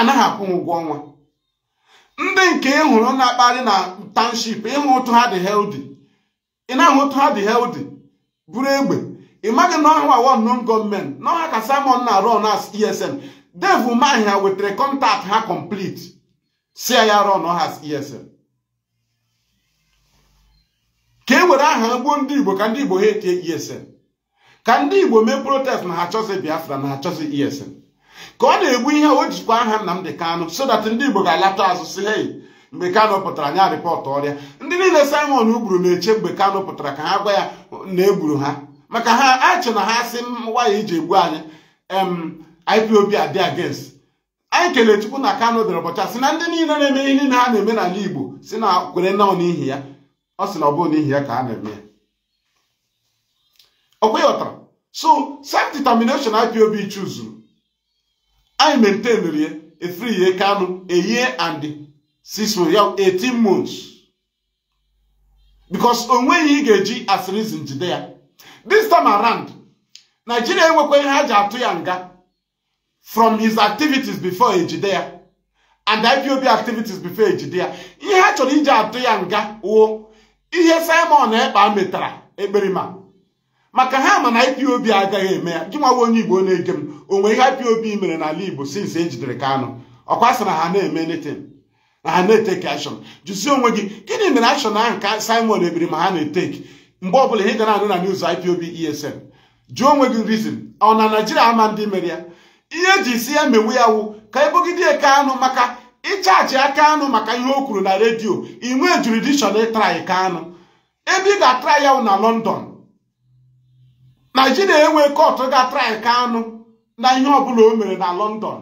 anaghị akwụ m ụgwọ ọnwa ndị nke ịhụrụ e na-akparị na township ịhụ otu ha dị healthy ị na-ahụ otu ha dị healthy buru egbe ị maghị na ọhụụ awọ non gọọmenti n'ọha ka Simon na-arụ ọna esm devu mahia wetara kọntakt ha complete si ya rụọ n'ọha esm ka e were aha gbuo ndị Igbo ka ndị Igbo ha etie esm ka ndị Igbo mee protest na ha chọzi Biafra na ha chọzi esm. ka ọ na-egbu ihe o jikwa aha Nnamdi Kanu so that ndị Igbo ga-alata azụ si hei mgbe Kano pụtara nya rịpọtụ ọrịa ndị niile Simon gburu na-eche mgbe Kano pụtara ka ha gwa ya na egburu ha maka ha achị na ha sị waya iji egbu anyị em IPOB adị against anyị kelee Chukwu na Kanu dịrị ụbọchị a sị na ndị niile na-eme ihe niile ha na-eme n'ala Igbo si na kwere nọ n'ihi ya ọ sị na ọ bụrụ n'ihi ya ka ha na-eme ya ọ kweghị ọtara so self-determination IPOB chuzuru anyị maintainri ya efri ya Kanu a year and six 18 months because onweghị ị ga-eji asiri reason jide ya this time around Nigeria enwekwa ihe ha ji atụ ya nga from his activities before ejide ya and IPOB activities before ejide ya ihe ha chọrọ iji atụ ya nga wo ihe Simon Ekpa metara ekperima maka ha ma na IPOB agaghị eme ya gị nwawa onye Igbo na-ege m onwe ihe IPOB mere n'ala Igbo since ejidere Kanu ọkwa sị na ha na-eme anything na ha na-eteki action jụzie onwe gị gịnị mere action ahụ ka Simon ebiri ma ha na-eteki mgbe ọbụla ị gana na-anụ na news IPOB ESN jụọ onwe gị reason ọ na Naijiria ama ndị mere ya ihe eji si ya mewu ya wụ ka eke anụ maka ịchaachị aka anụ maka ihe o kwuru na redio inwe jurisdiction ịtrai Kanu ebe ị ga-atra ya wụ na London na enwe kọtụ ga-atrai Kanu na ihe ọbụla o mere na lọndọn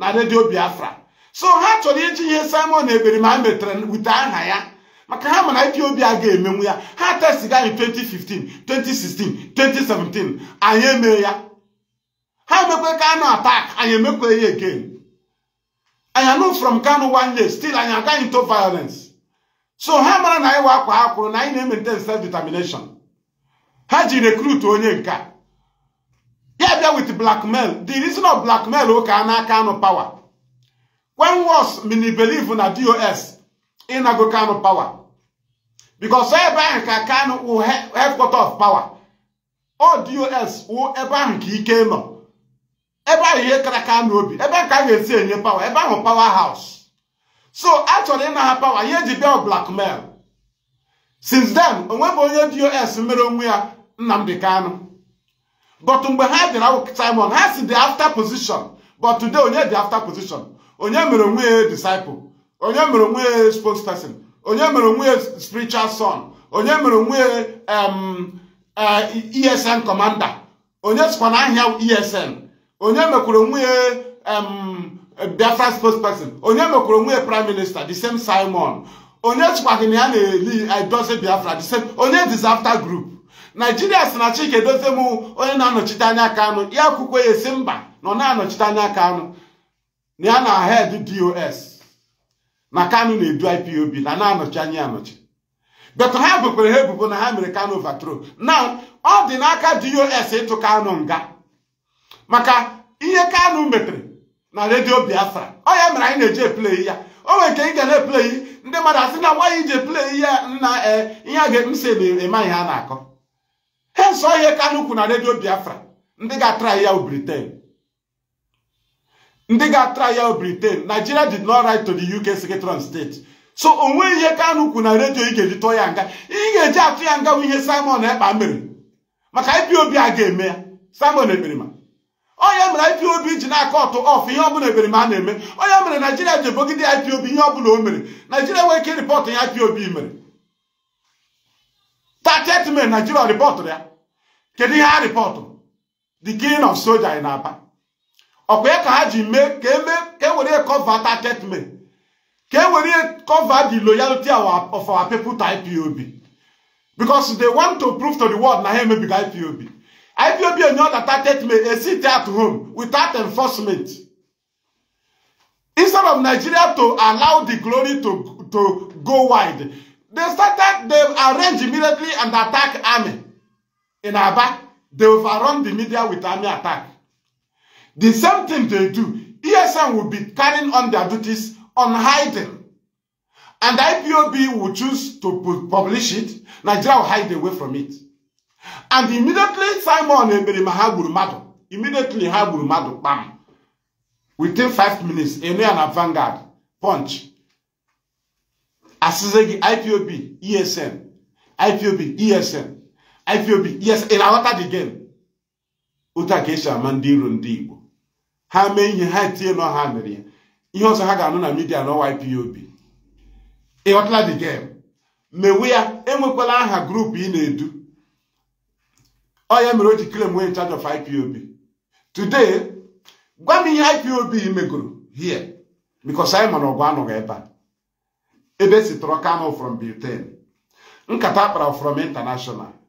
na redio Biafra so ha chọrọ iji ihe Simon Ekperima metere wute aha ya maka ha mana Ethiopia ga-emenwu ya ha testiga anyị 2015 2016 2017 anyị eme ya ha emekwe kano attack anyị emekwe ya again anyị anụ from Kanu one day still anyị agaghị to violence so ha mara na anyị wa akwa ha kwuru na anyị na-emente self determination ha ji rekrut onye nke a ya bịa with blackmail the reason of blackmail ụka a n'aka anụ power when was mini believe na dos ịnago kanụ power because ebe ahụ ka kanụ wụ headquarter of power o dos wụ ebe ahụ ka ike nọ ebe ahụ ihe kara kanụ obi ebe ahụ ka a ga-esi enye power ebe ahụ power house so a chọrọ ịna ha power ihe ji bịa blackmail since then onwebụ onye dos mere onwe ya Nnamdi Kanu but mgbe ha dịrị awụ Simon ha si the after position but today onye dị after position onye mere onwe ya disciple onye mere onwe ya spokesperson onye mere onwe ya spiritual son onye mere onwe ya ESN eh, e commander onye sikwa na ahịa ESN onye mekwara onwe ya Biafra spokesperson onye mekwara onwe ya prime minister the same Simon onye sikwa gị na ya na-eli idozi eh, Biafra the same onye disaster group naijiria si na Chika Edoziem onye na-anọchite anya Kanu ya kwukwe ya esi mba nọ na-anọchite anya Kanu na ya na head dos na kanụ na-edu IPOB na na-anọchi anya anọchi but ha bụkwara ha ebubo na ha mere Kanu overthrow na ọ dị n'aka dos ịtụ kanụ nga maka ihe kanụ metere na redio Biafra ọ ya mere anyị na-eji eplei ya o nwere nke ị ga na-eplei ndị mmadụ asị na nwaanyị iji eplei ya nna ee eh, ihe a ga-ekpesi eme ihe a na-akọ nso ihe Kanu kwu na redio Biafra ndị ga atra ya Britain ndị ga-atry ya Britain Nigeria did not write to the UK Secretary of State so onwe ihe Kanu kwu na redio ị ga-eji tụọ ya nga ị ga-eji atụ ya nga bụ ihe Simon Ekpa mere maka IPOB a ga-eme ya Simon Ekperima onye mere IPOB ji na-akọ ọtụ ọf ihe ọbụla Ekperima a na-eme onye mere Naijiria ji ebogide IPOB ihe ọbụla o mere Naijiria nwee ike rịpọtụ ya IPOB mere 30 May Naijiria rịpọtụrụ ya kedu ihe ha rịpọtụ the king of soja in Aba ọkwa ya ka ha ji mee ka eme ka ewere kọvata statement ka ewere cover the loyalty of our people to IPOB because they want to prove to the world na ha emebiga IPOB IPOB enye ọdata statement a e sit at home without enforcement instead of Nigeria to allow the glory to to go wide they started they arrange immediately and attack army in Aba, they overrun the media with army attack. The same thing they do, ESM will be carrying on their duties on hiding. And IPOB will choose to publish it, Nigeria will hide away from it. And immediately Simon Eberima ha gburu mmadụ, immediately ha gburu mmadụ Within five minutes, Enea na Vanguard, Punch, asịzị gị IPOB, ESM, IPOB, ESM. IPOB yes ị na-aghọta the game otu a ka esi ama ndị iro ndị Igbo ha mee ihe ha etinye nọ ha mere ya ihe ọzọ ha ga-anụ na midia n'ọwa IPOB ịghọtala the game mewe ya enwekwala aha grupu ị na-edu ọ ya mere o ji claim we in charge of IPOB today gwa m ihe IPOB megoro here because anyị mana ọgụ anọghị ebe a ebe esi tọrọ Kanu from Britain nkata akpara from international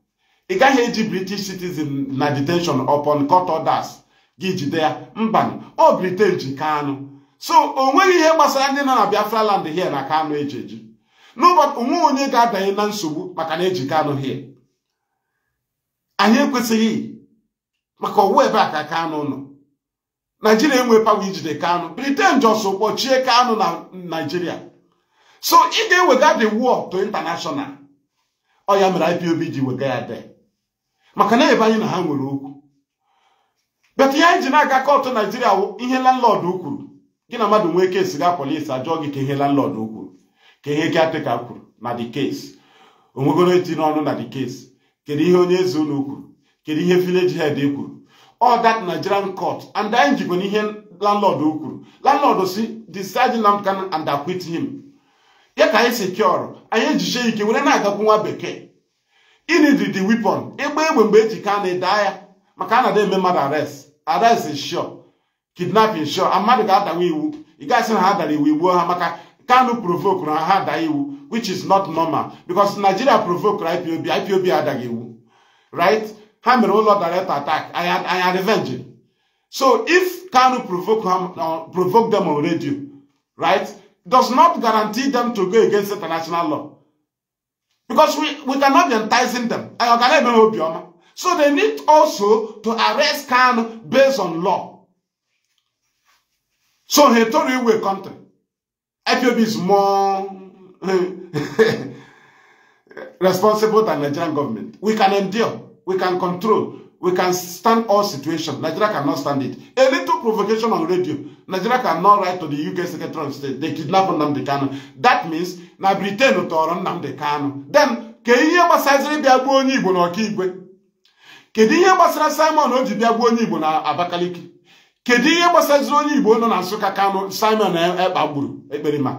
ị gaghị eji british citizen na detention upon court orders gị jide ya mbanụ ọ britain ji kanụ so o nweghị ihe gbasara ndị nọ na biafra land hie na kanụ eji eji n'ụbọchị onwe onye ga-adanye na nsogbu maka na eji kanụ hie anyị ekwesịghị maka ọwụ ebe a ka kanụ nọ naijiria enwee pawa ijide kanụ britain jọsọ kpọchie kanụ na naijiria so ị ga-ewega the war to international ọ ya mere ipob ji wega ya dee maka na ebe anyị na ha nwere okwu bet ihe anyị ji na-aga kọtụ naijiria wụ ihe landlọdụ kwuru gị na mmadụ nwee kesi ga polisi ajụọ gị ka ihe landlọdụ kwuru ka ihe atịka kwuru na dị kesi onwegoro eti n'ọnụ na dị kesi kedu ihe onye eze ụlọ kwuru kedu ihe vileji hed kwuru all that nigerian court and anyị jikwa na ihe landlọdụ kwuru landlọd si decide Nnamdi Kanu and acquit him ya ka anyị sekiọrọ anyị ejiche ike were na-agakwu nwa bekee inidi di weapon ịgba egbe mgbe eji ka na daa ya maka a na eme mmadụ arrest arrest is sure is sure mmadụ ga-adawa iwu ị na ha dara iwu igbuo ha maka Kanu provoke na ha daa iwu which is not normal because Nigeria provoke IPOB IPOB adaghị iwu right ha mere ụlọ direct attack anya revenge so if Kanu provoke uh, provoke them on radio right does not guarantee them to go against international law Because we, we cannot be enticing them. So they need also to arrest Khan based on law. So he told you we country. FOB is more (laughs) responsible than Nigerian government. We can endure, we can control, we can stand all situations. Nigeria cannot stand it. A little provocation on radio. Nigeria cannot write to the UK Secretary of State. They kidnap Nnamdi Kanu. That means na briten tọrọ nnamdị kanụ den ka ihe gbasaziri bịa gbuo onye igbo na ọkaigwe kedu ihe gbasara simon o ji bịa gbuo onye igbo na abakaliki kedu ihe gbasaziri onye igbo nọ na nsụka kanụ simon ekpagburu e ekperima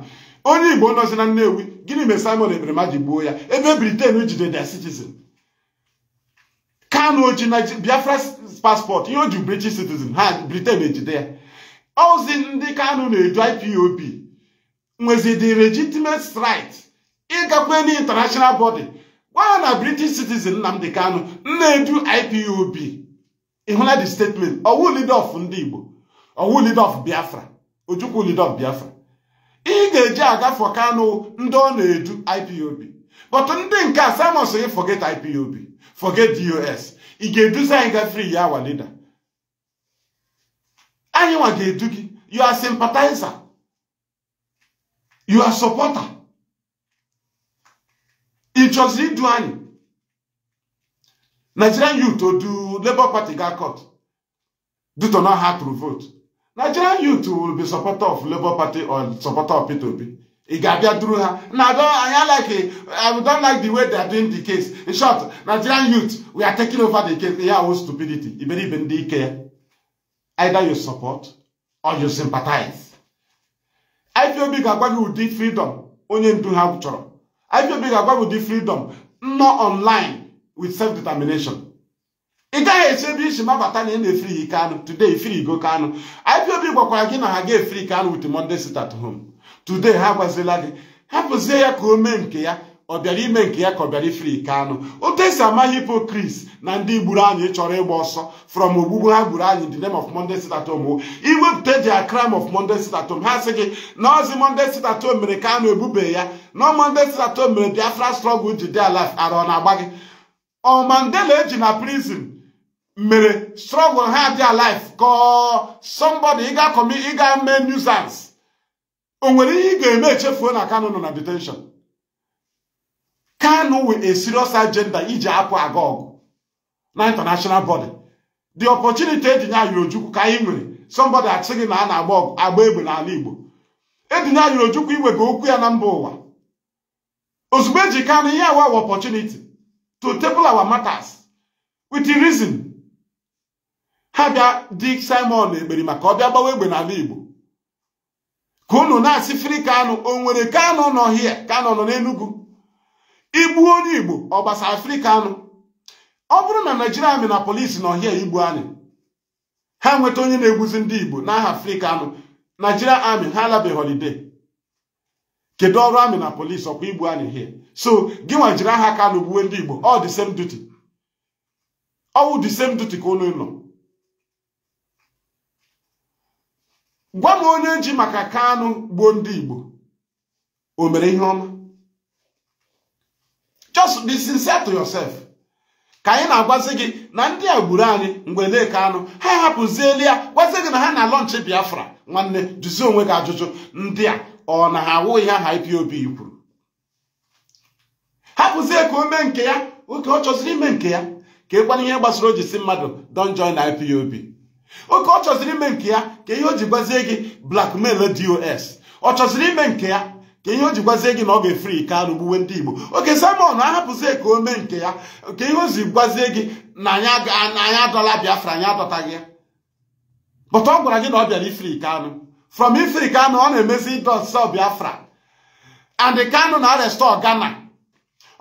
onye igbo nọzi na nnewi gịnị mere simon ekperima ji gbuo ya ebe briten jide the citizen kanụ oji na biafra paspọtụ ihe o ji british citizen ha briten ejide ya ozi ndị kanụ na-eju ipob nwezi the legitimate right ịgakwe na international body gwa ya na british citizen Nnamdi Kanu nna-edu IPOB ịhụla the statement ọwụ leader of ndị Igbo ọwụ leader of Biafra Ojukwu leader of Biafra ị ga-eji for Kanu ndị ọ na-edu IPOB but ndị nke a samus gị forget IPOB forget DOS ị ga-eduzi anyị gafere ya leader anyị nwa ga-edu gị you are You are supporter. It Ichozi Duani. Nigerian youth to do Labour Party got caught due to not how to vote. Nigerian youth will be supporter of Labour Party or supporter of P2P. Ị ga-abịa Now I don't I like I don't like the way they are doing the case. In short, Nigerian youth we are taking over the case. Yeah, oh stupidity. Iberibe ndị ike care. Either you support or you sympathize. IPOB ga-agwa gị ụdị freedom onye ndu ha chọrọ IPOB ga-agwa gị ụdị freedom nọ online with self determination ị gaghị esi ebe isi mabata na ị na ike anụ today ifirigo anụ IPOB gwakwara gị na ha ga-efri Kanu with Monday sit at home today ha agwazila gị hapụzie ya ka o mee nke ya ọ bịara ime nke ya ka ọ bịara ifiri ike anụ otu esi ama hipokris na ndị gburu anyị chọrọ ịgba ọsọ from ogbugbu ha gburu anyị the name of Monday sit at home iwepụta the crime of Monday sit at ha sị gị na ozi Monday sit mere ka anụ ebube ya na Monday sit mere Biafra struggle ji dia alife ara ọ na-agba gị ọ Mandela eji na prizin mere struggle ha dia alife ka somebody ịga kọmi ịga mee nuisance o nwere ihe ị ga-eme echefuo na Kano nọ na detenshon Kanu with a serious agenda iji apụ aga ọgụ na international body the opportunity edinye anyị ojukwu ka anyị nwere somebody asị gị na a na-agba ọgụ agba egbe n'ala Igbo edinye anyị ojukwu iwega okwu ya na mba ụwa ozugbo eji Kanu ihe awa opportunity to table our matters with the reason ha bịa di Simon ekperi maka ọ bịa gbawa egbe n'ala Igbo ka unu na-asị fri Kanu o nwere Kanu nọ hie Kanu nọ n'Enugu igbu onye igbo ọgbasa afrịka anụ ọ bụrụ na naijiria ami na polisi na hịa igbu anyị ha nweta onye na-egbuzi ndị igbo n'aha afrịka anụ naijiria amị ha alabeghị holide kedu ọrụ amị na polisi ọkwa igbu anyị hie so gị nwa jiri aha kano gbuwe ndị igbo ọ dị same ọwụ dị ka ụlọ gwa m onye ji maka kanụ gbuo ndị igbo o mere ihe ọma just be sincere to yourself ka anyị na-agwazi gị na ndị a gburu anyị mgbe leke anụ ha hapụziela ya gwazi gị na ha na lọnchị biafra nwanne jụzie onwe gị ajụjụ ndị a ọ na ha awụ ihe aha IPOB kwuru hapụzie ka o mee nke ya oke ọ chọziri ime nke ya ka ịkwana e ihe gbasara o ji si mmadụ don join IPOB oke ọ chọziri ime nke ya ka ihe o ji gwazie gị blackmail dos ọ chọziri ime nke ya ka ihe o jikwazie gị na ọ ga-efri Kanu gbuwe ndị Igbo oke Simon ahapụzie ka o mee nke ya nke ihe o gwazie gị na anya adọla Biafra anya adọtaghị gị but ọ gwara gị na ọ bịara ifri Kanu from ifri Kanu ọ na-emezi ịdọsa Biafra and Kanu na arestọ Ghana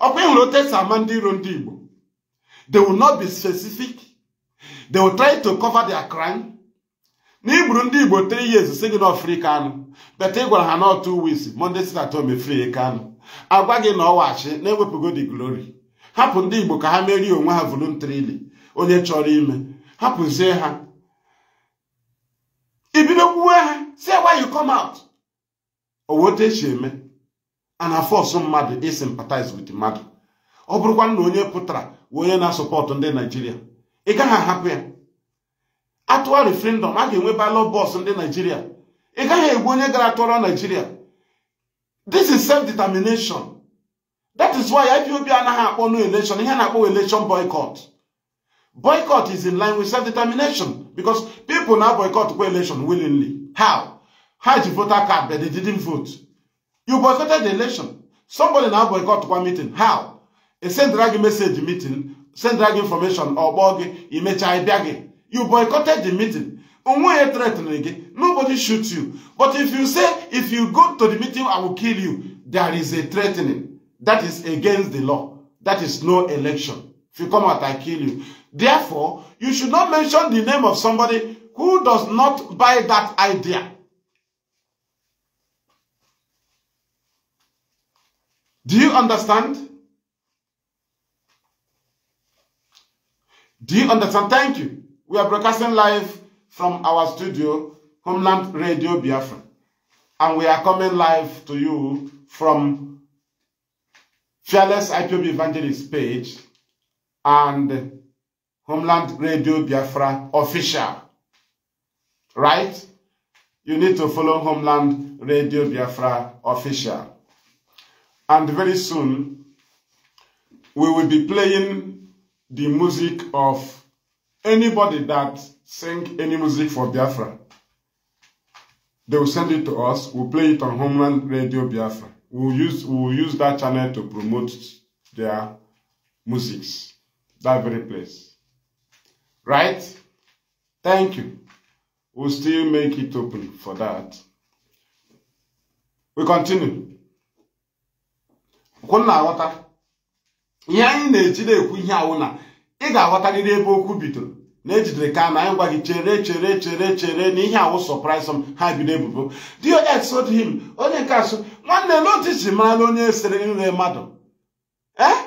ọkwa ịhụrụ otesi ama ndị iro ndị Igbo they will not be specific they will try to cover their crime na igburu ndị igbo tiri years si gị na anụ beta ị gwara ha na otu weeks monday si na tome free anụ agwa gị na ọwachi na-ewepụgo the glory hapụ ndị igbo ka ha merie onwe ha voluntarily onye chọrọ ime hapụzie ha ibido kwuwe ha si why you come out owe otu esi eme ana fọsụ mmadụ i sympathize with mmadụ ọ bụrụkwa na onye pụtara onye na-asọpọtụ ndị naijiria ị gaghị ahapụ ya atụwa referendum, a ga-enwe ballot box ndị naijiria ị gaghị egbu onye gara tọrọ naijiria this is self-determination that is why ipob anaghị akpọ no election ihe na-akpọ election boycott boycott is in line with self-determination because people na boycott kwa election willingly how ha ji voter card but they didn't vote you boycotted the election somebody na boycott kwa meeting how e sendra gị message meeting Send gị information ọ kpọọ gị imecha ịbịa gị You boycotted the meeting. Umuye threatened again. Nobody shoots you. But if you say, if you go to the meeting, I will kill you, there is a threatening. That is against the law. That is no election. If you come out, I kill you. Therefore, you should not mention the name of somebody who does not buy that idea. Do you understand? Do you understand? Thank you. We are broadcasting live from our studio, Homeland Radio Biafra. And we are coming live to you from Fearless IPOB Evangelist page and Homeland Radio Biafra official. Right? You need to follow Homeland Radio Biafra official. And very soon, we will be playing the music of Anybody that sing any music for Biafra, they will send it to us. We'll play it on Homeland Radio Biafra. We'll use, we'll use that channel to promote their musics. That very place. Right? Thank you. We'll still make it open for that. We continue. Kwụnna aghọta. Ihe anyị na-ejide ekwu ihe awụ ị ga aghọtagide ebe okwu bidoro na ejidere ka na anyị gwa gị chere chere chere chere na ihe awụ ha bi ha bido ebubo dos told him onye nke asụ nwanne n'otu ji mara onye sere nre mmadụ ee eh?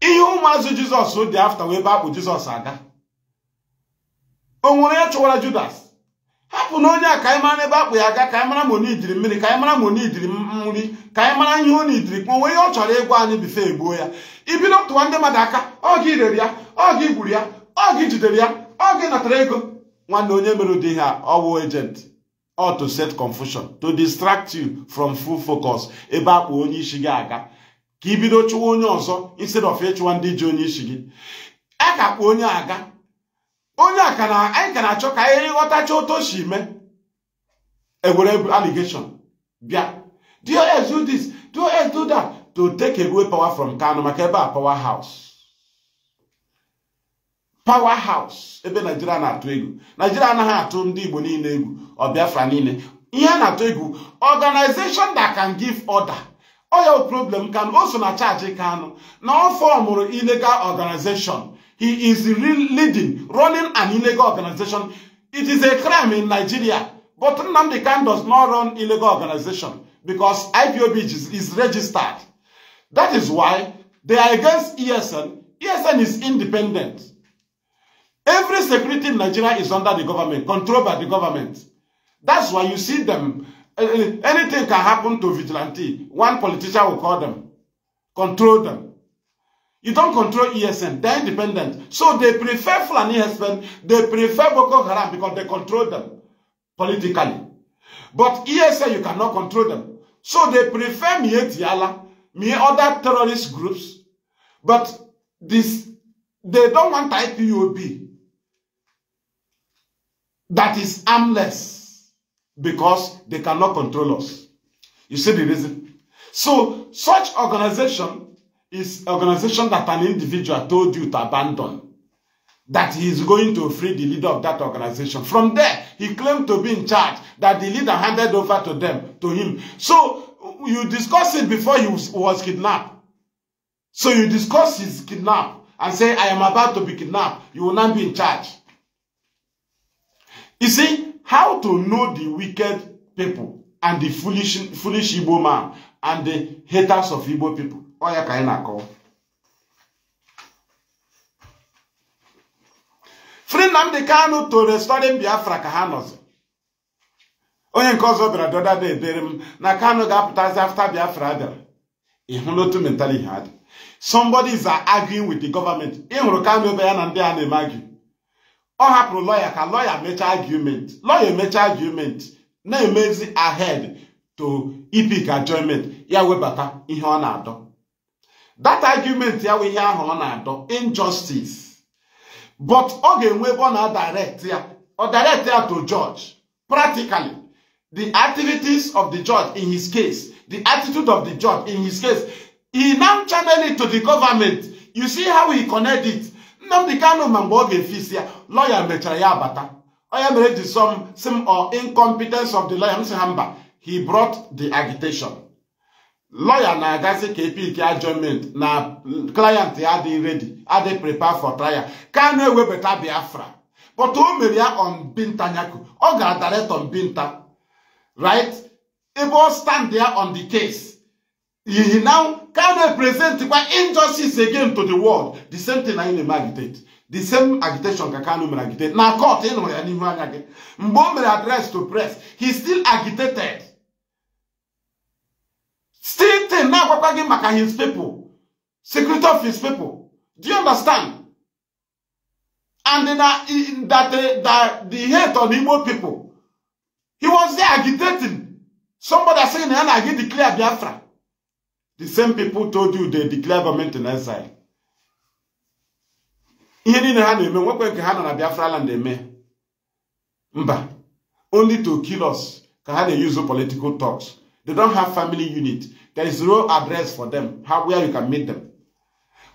ihe ụmụazụ jizọs dị afta wee be akpụ jizọs aga o nwere ya chụwara judas hapụ na onye a ka anyị mara ebe akpụ ya aga ka anyị mara ma onye jiri mmiri ka anyị mara ma onye jiri ka anyị mara ihe onye jiri kpọnwe ihe ọ chọrọ ịgwa anyị bife egbuo ya ibido tụwa ndị mmadụ aka ọ gị rere ya ọ gị ya ọ gị jidere ya ọ gị natara ego nwanne onye mere ụdị ihe a ọwụ agent set confusion to distract you from full focus ebe akpụ onye isi gị aga ka ibido chụwa onye ọzọ instead of ịchụwa ndị ji onye isi gị a ka kpụ onye aga onye a ka na-achọ ka anyị otu o si mee ewere allegation bịa do do this do do that to take away power from Kano maka ebe a power house power house ebe Naijiria na-atụ egwu Naijiria anaghị atụ ndị Igbo niile egwu ọ Biafra niile ihe a na-atụ egwu organization that can give order oya problem Kanu o so na charge kano na ọ fọmụrụ illegal organization he is leading running an illegal organization it is a crime in Nigeria but Nnamdi Kanu does not run illegal organization because IPOB is, is registered That is why they are against ESN. ESN is independent. Every security in Nigeria is under the government, controlled by the government. That's why you see them. Eh, anything can happen to vigilante. One politician will call them, control them. You don't control ESN. They're independent. So they prefer Fulani husband. They prefer Boko Haram because they control them politically. But ESN, you cannot control them. So they prefer Mietiala mere other terrorist groups, but this they don't want IPOB that is armless because they cannot control us. You see the reason? So such organization is organization that an individual told you to abandon that he is going to free the leader of that organization. From there, he claimed to be in charge, that the leader handed over to them, to him. So you discuss it before you was kidnapped. So you discuss his kidnap and say, I am about to be kidnapped. You will not be in charge. You see, how to know the wicked people and the foolish, foolish Igbo man and the haters of Igbo people. Oya Friend, i Free the kind to restore Biafra ka onye nke ọzọ bịara dọda da ebere m na Kanu ga-apụtazi afta Biafra bịara ị hụla otu mentality ha adị. somebody is arguing with the government ị hụrụ Kanu ebe ya na ndị a na-eme argue ọ hapụrụ lọya ka lọya mechaa argument lọya emechaa argument na-emezi ahead to ipik enjoyment ya webata ihe ọ na-adọ that argument ya wụ ihe ahụ ọ na-adọ injustice but ọ ga-enwe ebe ọ na-direct ya ọ direct ya to judge practically the activities of the judge in his case, the attitude of the judge in his case, he now channel it to the government. You see how he connected. it. Nnamdi Kanu ma mgbe ọ ga-efisi lawyer mechara ya abata onye mere ji some sim or uh, incompetence of the lawyer m si he brought the agitation lawyer na agasi kp ki adjournment na client they are ready Are they prepare for trial Can we better be afra? but who mere ya on Binta Nyako ọ gara direct on Binta right? Igbo stand there on the case. He, he now can represent injustice again to the world. The same thing I na-eme agitate. The same agitation ka Kanu mere agitate. Na court ịnụrụ ya n'ihu anya gị. Mgbe o mere address to press, he still agitated. Still thing na-agwakwa gị maka his people. Secret of his people. Do you understand? And na, that, eh, that the hate on Igbo people He was there agitating. Somebody saying, na agi declare Biafra. The same people told you they declare government in exile. ihe niile ha na-eme nwekwe nke ha na Biafra land eme mba only to kill us ka ha na-use political talks they don't have family unit there is no address for them how where you can meet them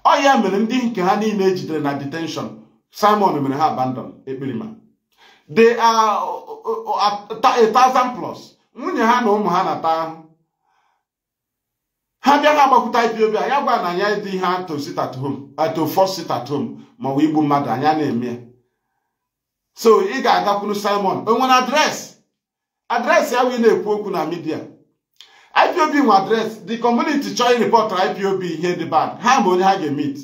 ọ ya mere ndị nke ha niile jidere na detention Simon mere ha abandon ekpirima. they are uh, uh, uh, a thousand plus nwunye ha na ụmụ ha na-ata ahụ ha bịa ha agbakwuta ipob a ya gwa na anya dị ihe ato sit at home ato four sit at home maọbụ igbu mmadụ anya na-eme so ị ga-agakwuru simon o nwere adreesị adreesị ya wee na-ekwu okwu na midia ipob nwe adreesị the community chọọ ịrịpọtara ipob ihe dị bad ha ma onye ha ga-emit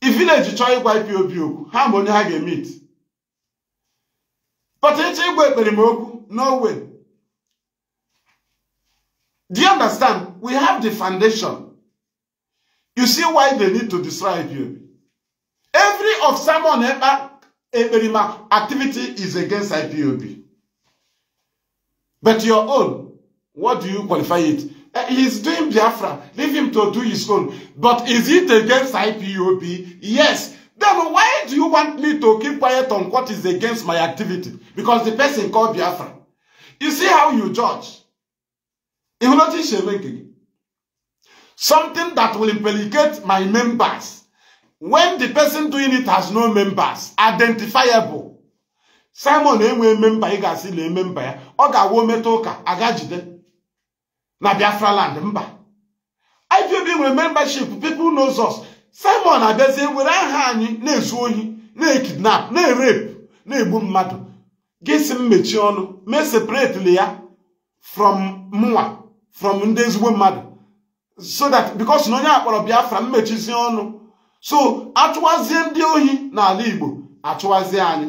i village chọọ ịgwa ipob okwu ha ma onye ha ga-emit But it's Igwe Berimogu, no way. Do you understand? We have the foundation. You see why they need to destroy IPOB. Every of Simon Eberima activity is against IPOB. But your own, what do you qualify it? Eh, he's doing Biafra. Leave him to do his own. But is it against IPOB? Yes. Then why do you want me to keep quiet on what is against my activity? Because the person called Biafra. You see how you judge. not Something that will implicate my members. When the person doing it has no members, identifiable. Simon enwe member ị ga-asị na e member ya, ọ ga-awụ meta ụka aga jide na Biafra land mba. IPOB nwere membership, people knows us. simon abịazie were aha anyị na-ezu ohi na-ekidnap na-erep na-egbu mmadụ gị si m ọnụ mee separately ya from mụnwa from ndị ezigbo mmadụ so that because na onye akpọrọ biafra mmechizie ọnụ so achụwazie ndị ohi n'ala igbo achụwazie anyị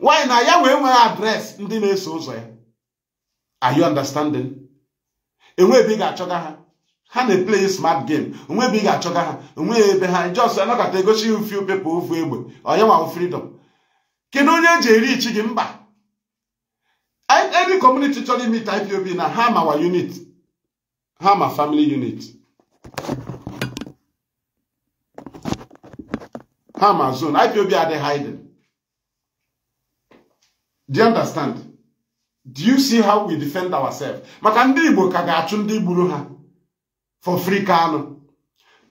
nwanyị na ya wee nwee adreesị ndị na-eso ụzọ ya are you understanding enweghị ebe ị ga-achọga ha ha na a smart game onwe ebe ị ga-achọga ha onwe ebe ha just anọkọta egosi mfe pepa ofu egbe onyewa nwa freedom kedu onye eji eri ichi gị mba any community chọrọ imit IPOB na ha ma unit ha ma family unit ha ma zone IPOB adị hiding do you understand do you see how we defend ourselves maka ndị Igbo ka ga-achụ ndị gburu ha for free Kanu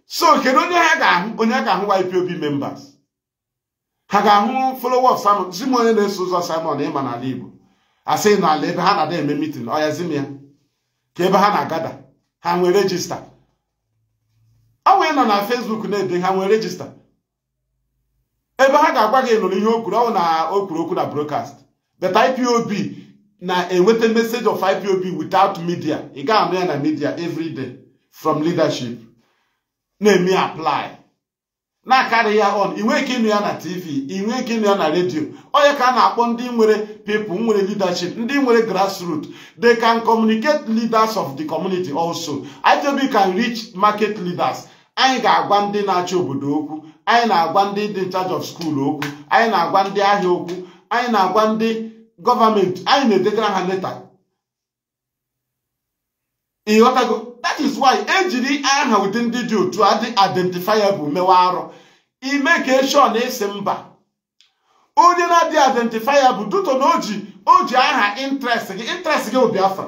so kedu onye ha ga-ahụ onye ga-ahụ YPOB members ha ga-ahụ followers Simon zi m onye na-eso ụzọ Simon ịma n'ala Igbo asị n'ala ebe ha na-ada eme meeting ọ ya zi ya ka ebe ha na-agada ha nwee rejista ọ nwee nọ na Facebook na-ede ha nwee rejista ebe ha ga-agwa gị nụrụ ihe okwuru ọ na o kwuru okwu na broadcast but IPOB na-enweta message of IPOB without media ị ga-anụ ya na media every from leadership na-eme apply na-akarị ya on inwe ike ya na tv inwe ike ịnụ ya na redio onye ka a na-akpọ ndị nwere people nwere leadership ndị nwere grassroots they can communicate leaders of the community also IPOB can reach market leaders anyị ga-agwa ndị na-achị obodo okwu anyị na-agwa ndị dị charge of school okwu anyị na-agwa ndị ahịa okwu anyị na-agwa ndị gọọmenti anyị na-edegara ha leta that is why ejiri aha ụdị ndị dị otu adị identifiable mewe arụ ime ka na esi mba onye na-adị identifiable duto na o ji aha interest gị interest gị Biafra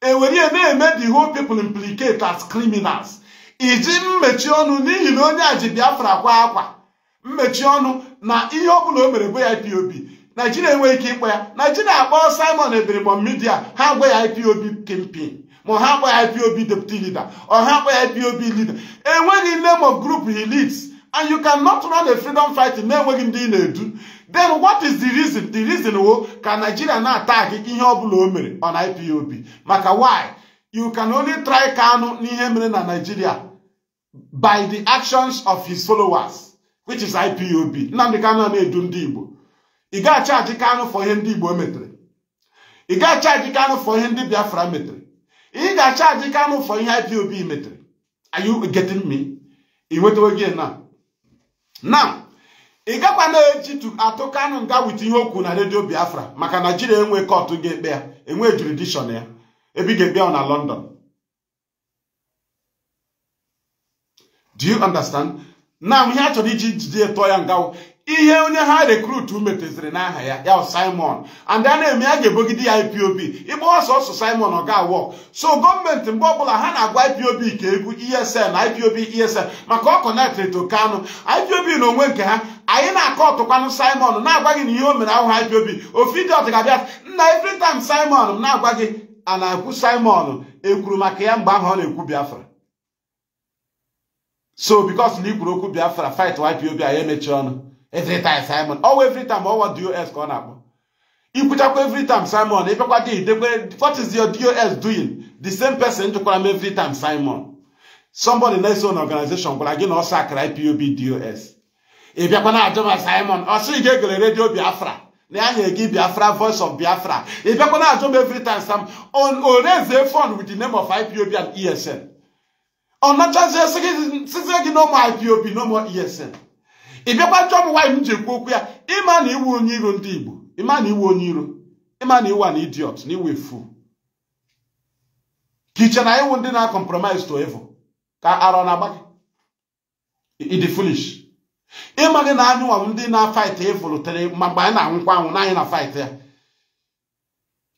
ewere ihe na-eme the whole people implicate as criminals iji mmechi ọnụ n'ihi na onye a ji Biafra kwa akwa mmechi ọnụ na ihe ọbụla o mere bụ ya IPOB Naijiria enweghị ike ịkpọ ya Naijiria akpọ Simon Ebiribom Midia ha gwa ya IPOB campaign ma ọ ha ya POB deputy leader ọ ha ya POB leader enweghị name of group he leads and you cannot run a freedom fighting na-enweghị ndị ị na-edu then what is the reason the reason wo ka Nigeria na attack ihe ọbụla o mere on IPOB maka why you can only try Kanu n'ihe mere na Nigeria by the actions of his followers which is IPOB Nnamdi Kanu na-edu ndị Igbo ị achaji Kanu for ihe ndị Igbo e metere ị achaji Kanu for ihe ndị Biafra metere ị ga-achaji Kanu for ihe IPOB metere are you getting me ị nwetawo gị na now ị gakwa na-eji atụ Kanu nga wit ihe okwu na redio Biafra maka Naijiria enwe kọtụ ga-ekpe ya enwe jurisdiction ya ebe ị ga-ekpe ya na London do you understand now ihe a chọrọ iji jide tụọ ya ngawo. ihe onye ha rekrutu metụziri n'aha ya ya simon and a na-eme ya ga-ebogide ya ipob ịgba ọsọ ọsọ simon ọ ga-awọ so gọọmenti mgbe ọbụla ha na-agwa ipob ka egwu na e ipob esl maka ọ kọnektịrị to ipob na onwe nke ha anyị na-akọ ọtụkwanụ simon na-agwa gị na ihe o mere ahụ ipob ofe dị abịa nna every simon m na-agwa gị ana na simon ekwuru maka ya mgbe ahụ ọ na-ekwu biafra so because na ikwuru okwu biafra fight ipob anyị emechi ọnụ every time Simon ọwa every time ọwa dos ka ọ na-akpọ ikwuchakwa every Simon ịbịakwa dị idekwe what is your dos doing the same person jụkwara m every time Simon somebody na-eso na organization gwara gị na ọsọ akara ipob dos ịbịakwa na ajụ Simon ọ sị gị egere redio Biafra na ya nyere gị Biafra voice of Biafra ịbịakwa na ajụ m every time Sam on oreze with the name of ipob and esn ọ nachazie sizie gị no more ipob no more esn ị bịakwa chọọ m nwaanyị m ji ekwu okwu ya ịma na iwu onye iro ndị Igbo ịma na iwu onye iro ịma na iwu a na idiot na iwe fu ka iche na iwu ndị na-compromise to evo ka arọ na-agba gị ịdị foolish ịma gị na anyịnwa ndị na-fight evil tere ma mgbe anyị na-anwụkwa anwụ na anyị na fight ya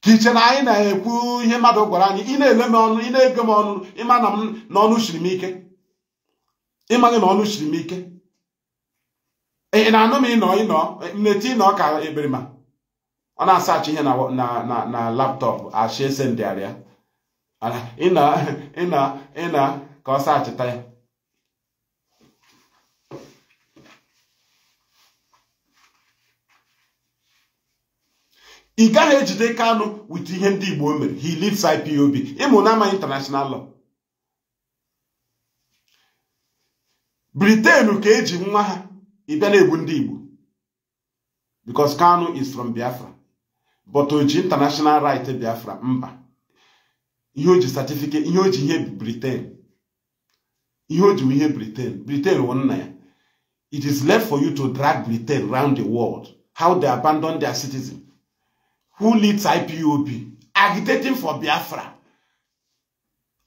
kiche na anyị na-ekwu ihe mmadụ gwara anyị ị na-ele m ọnụ ị na-ege m ọnụ ịma na m na ọnụ siri m ike ịma gị na ọnụ siri m ike ị na-anụ m ịnọ ịnọ mneti ịnọ ka eberima ọ na-asachi ihe na laptọpụ ashi ese ndịarịa ịna ịna ka ọ sachịta ya ị gaghị ejide Kanu wit ihe ndị Igbo mere he lives IPOB ịmụ na ama international law Britain ka eji nwa ha ị bịa na-ebu ndị Igbo because Kanu is from Biafra but o international right Biafra mba ihe o ji certificate ihe o ji ihe Britain ihe o ji ihe Britain Britain wụ nna ya it is left for you to drag Britain round the world how they abandon their citizen who leads IPOB agitating for Biafra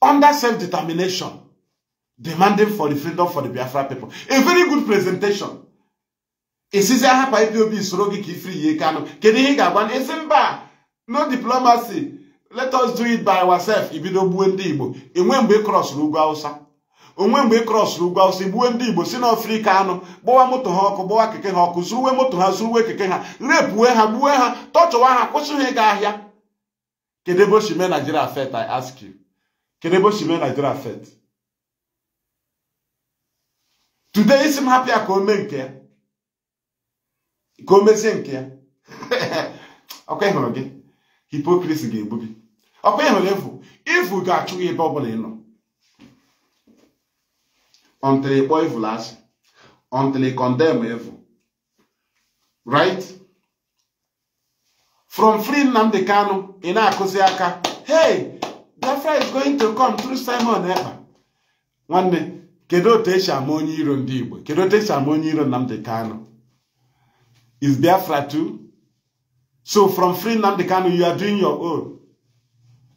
under self-determination demanding for the freedom for the Biafra people a very good presentation esizi ahapụ obi soro gị ka ifiri ya Kanu kedu ihe ị ga-agwa isi mba no diplomacy let us do it by ourselves ibido gbuo ndị Igbo enwe mgbe ị krọsụrụ ugwu Awụsa onwe mgbe ị ugwu Awụsa gbuo ndị Igbo si n'Afrika anụ gbawa moto ha ọkụ gbawa keke ha ọkụ zuruwe moto ha zuruwe keke ha repue ha gbuwe ha tọchụwa ha kwụsị ha ịga ahịa kedu ebe o si Nigeria I ask you kedu ebe o si Nigeria today isi m hapịa ka o mee nke ya ka o mezie nke ya (laughs) ọkwa ịhụrụ gị hipokrisi ga ebubi ọkwa ịhụrụ efu ivu ga-achụ gị ebe ọbụla ị nọ until ịkpọ evil asị ọntịrị kọndem evu. right from free Nnamdi Kanu ị na-akụzi aka hey Biafra is going to come through Simon Ekpa nwanne kedu otu esi ama onye iro ndị Igbo kedu otu esi ama onye iro Nnamdi Kanu is Biafra too. So from free Nnamdi Kanu, you are doing your own.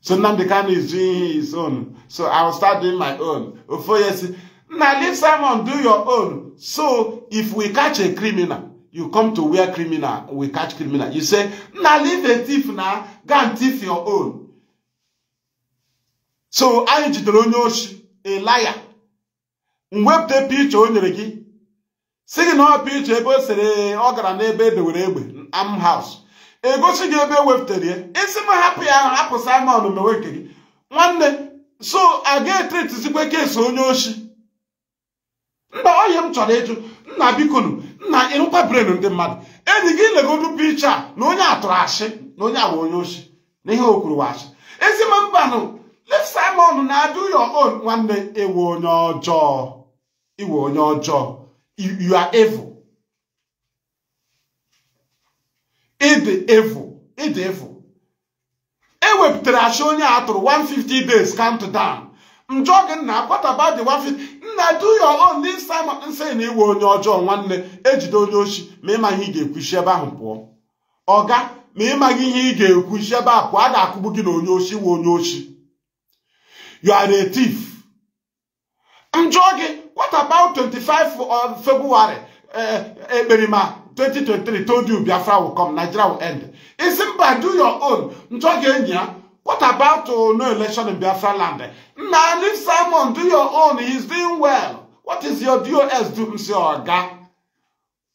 So Nnamdi Kanu is doing his own. So I will start doing my own. Ofoye now leave someone do your own. So if we catch a criminal, you come to where criminal, we catch criminal. You say, now leave a thief now, go and thief your own. So I jidere onye a liar. Mwepte picha o nyere gị si gị na ọpụ iche ebe o sere ọ gara n'ebe edewere egbe am haus egosi gị ebe e wepụtara ya isi m hapụ ya hapụ simon mewe nke gị nwanne so a ga-etretizikwa onye osi mba oyi m chọrọ ịjụ nna bikonu nna ịrụkwa bren ndị mmadụ enyi gị legodu picha na onye tụrụ achị na onye awa onye oshi na ihe o kwuru washi mbanụ simon na-adụ your own nwanne iwe onye ọjọọ iwe onye ọjọọ you, are evil. Ịdị evil. Ịdị evil. Ewepụtara achị onye atụrụ 150 days count down. njọ gị nna kwataba dị 150 nna do your own this time nsị na iwe onye ọjọọ nwanne ejide onye ochi ma ịma ihe ị ga-ekwuchi ebe ahụ pụọ ọga ma ịmaghị ihe ị ga-ekwuchi ebe a pụọ a ga-akụgbu gị na onye ochi we onye ochi you are njọ gị about 25 of uh, February, uh, uh, Eberima, 2023 told you Biafra will come, Nigeria will end. Isimba, do your own. Njogenya, what about uh, no election in Biafra land? Now leave Simon, do your own, he's doing well. What is your DOS do, Mr. Oga?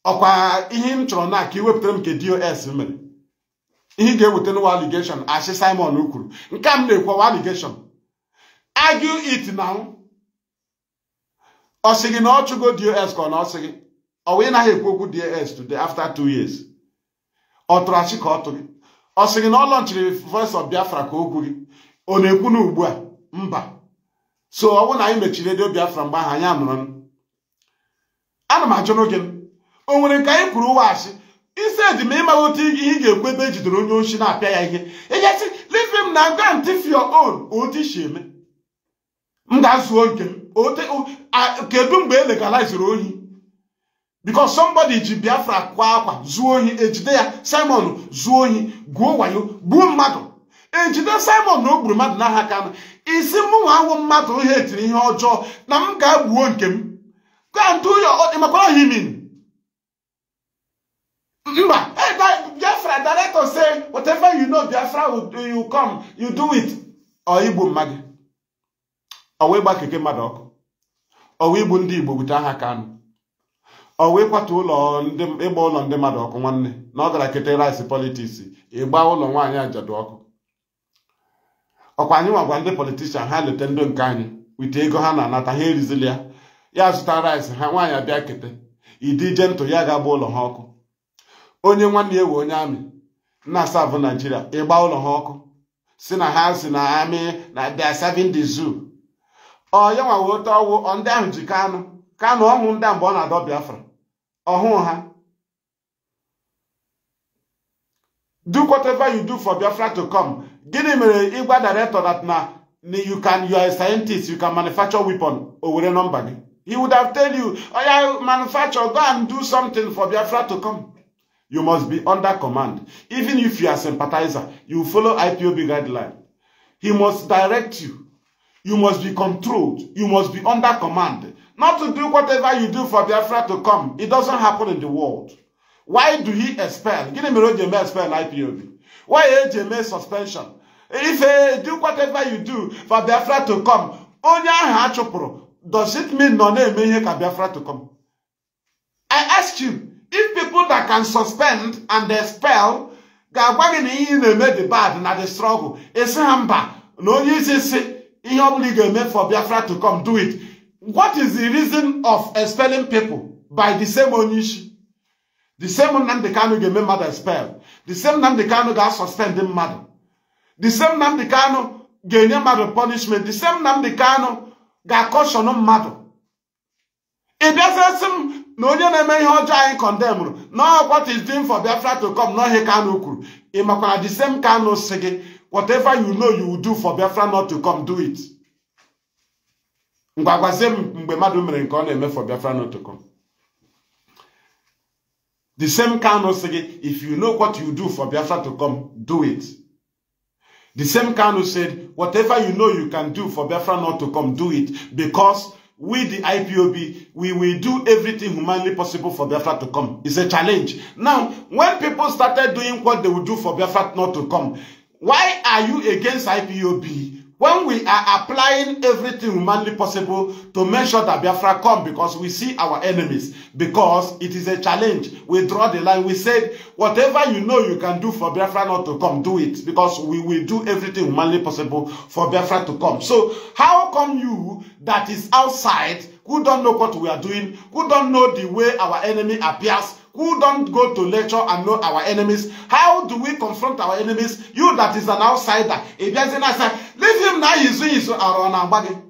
Ọkwa ihe m chọrọ na ka iwepụtara m nke DOS mere. Ihe ga-eweta n'ụwa allegation, ashe Simon kwuru. Nke m na-ekwewa allegation. Argue it now. ọ sị gị na ọ chụgo dos ka ọ na ọ sị gị ọ wee naghị ekwu okwu ds today after two years ọ tụrụ achị ka ọ tụ gị ọ sị gị na ọ lọnchiri prọfesọ of biafra ka okwu gị ọ na-ekwu na ugbu a mba so ọ bụrụ na anyị mechiri redio biafra mgbe ahụ anyị anụrụ ana m ajụ n'oge o nwere nke anyị kwuru ụwa asị isi eji ma ịmaghị otu ihe ị ga-ekwu ebe ejidere onye osi na-apịa ya ihe ị gasị leave na go and thief your otu isi eme m ga-azuo nke kedu mgbe e legaliziri ohi because somebody ji biafra kwa akwa zuo ohi ejide ya simon zuo ohi gwuo wayo gbuo mmadụ ejide simon na o gburu mmadụ n'aha aka isi mụnwa ahụ mmadụ ihe etiri ihe ọjọọ na m ga-egbuo nke m gaa ntụ ụyọ ịmakwara ha imin mba biafra director say whatever you know biafra you come you do it ọ igbu mmadụ ọwa ịgba keke mmadụ ọkụ ọwa igbu ndị Igbo bute aha Kanu ọwa ịkwatu ụlọ ịgba ụlọ ndị mmadụ ọkụ nwanne na ọ gara kete rice politiks ịgba ụlọ nwaanyị ajadu ọkụ ọkwa anyị nwagwa ndị politishan ha leta ndụ nke anyị wite ego ha na-anata ha erizili ya ya zụta rice ha nwaanyị abịa kete ịdị ije ntụ ya ga-agba ụlọ ha ọkụ onye nwanne ya ewe onye amị na savụ Naijiria ịgba ụlọ ha ọkụ si na ha si na amị na they are ọya nwa wee tọọ wụ ndị ahụ ji kanụ kanụ a mgbe ọ do whatever you do for biafra to come gịnị mere ịgwa director that now? you can you are a scientist you can manufacture weapon o were nọmba he would have tell you yeah, manufacture go and do something for biafra to come you must be under command even if you are sympathizer you follow ipob guideline he must direct you You must be controlled. You must be under command. Not to do whatever you do for Biafra to come. It doesn't happen in the world. Why do he expel? Give me a Jeme expel IPOB. Why a e suspension? If uh, do whatever you do for Biafra to come, onye ahụ does it mean nọ na-eme ihe ka Biafra to come? I ask you, if people that can suspend and expel ga-agwa gị na ihe na-eme the bad na the struggle, esi ha mba na onye isi si ihe ọbụla ị ga-eme for Biafra to come do it what is the reason of expelling people by the same onye isi the same Nnamdi Kanu ga-eme mmadụ expel the same Nnamdi Kanu ga-asuspend mmadụ the same Nnamdi Kanu ga-enye mmadụ punishment the same Nnamdi Kanu ga-akọshọn mmadụ ị bịazesi m na onye na-eme ihe ọjọọ anyị kọndemrụ na what is doing for Biafra to come n'ọhịa Kanu kwuru ị makwara the same Kanu si gị Whatever you know you will do for Biafra not to come, do it. Mgbagwazie mgbe madu mere nke ọ na-eme for Biafra not to come. The same Kanu sị gị, if you know what you do for Biafra to come, do it. The same Kanu said, whatever you know you can do for Biafra not to come, do it. Because we, the IPOB, we will do everything humanly possible for Biafra to come. It's a challenge. Now, when people started doing what they would do for Biafra not to come, Why are you against IPOB? when we are applying everything humanly possible to make sure that Biafra come because we see our enemies, because it is a challenge. We draw the line. We said, whatever you know you can do for Biafra not to come, do it. Because we will do everything humanly possible for Biafra to come. So how come you that is outside, who don't know what we are doing, who don't know the way our enemy appears, who don't go to lecture and know our enemies. How do we confront our enemies? You that is an outsider. If there's an outsider, leave him now. He's doing his own.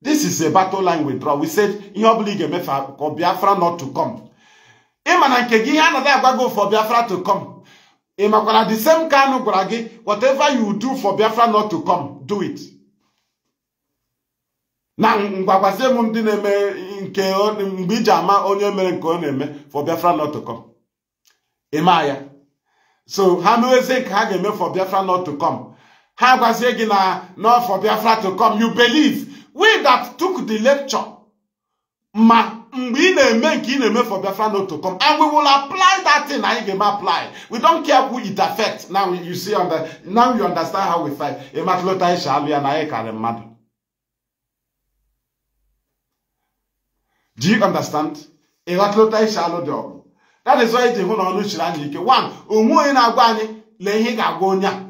This is a battle line withdrawal. We said, in your league, Biafra not to come. Imana nke gị ihe anaghị agbago for Biafra to come. Ị makwara the same Kanu gwara gị, whatever you do for Biafra not to come, do it na ngwakwasị m ndị na-eme nke mgbe iji ama onye mere nke ọ na-eme for biafra not to come ịma ya so ha mewezie nke ha ga-eme for biafra not to come ha gwazie gị na not for biafra to come you believe we that took the lecture ma mgbe ị na-eme nke ị na-eme for biafra not to come and we will apply that thing anyị ga-eme apply we don't care who it affect now you see now you understand how we fight ịmatụlụta ịsha alụ ya na anyị karịrị mmadụ Do you understand? ịghọtụlụta isi alụ dị ọgụ that is why iji hụ na ọnụ chiri anyị ike one onwe onye na-agwa anyị lee ihe ga-agwa onye a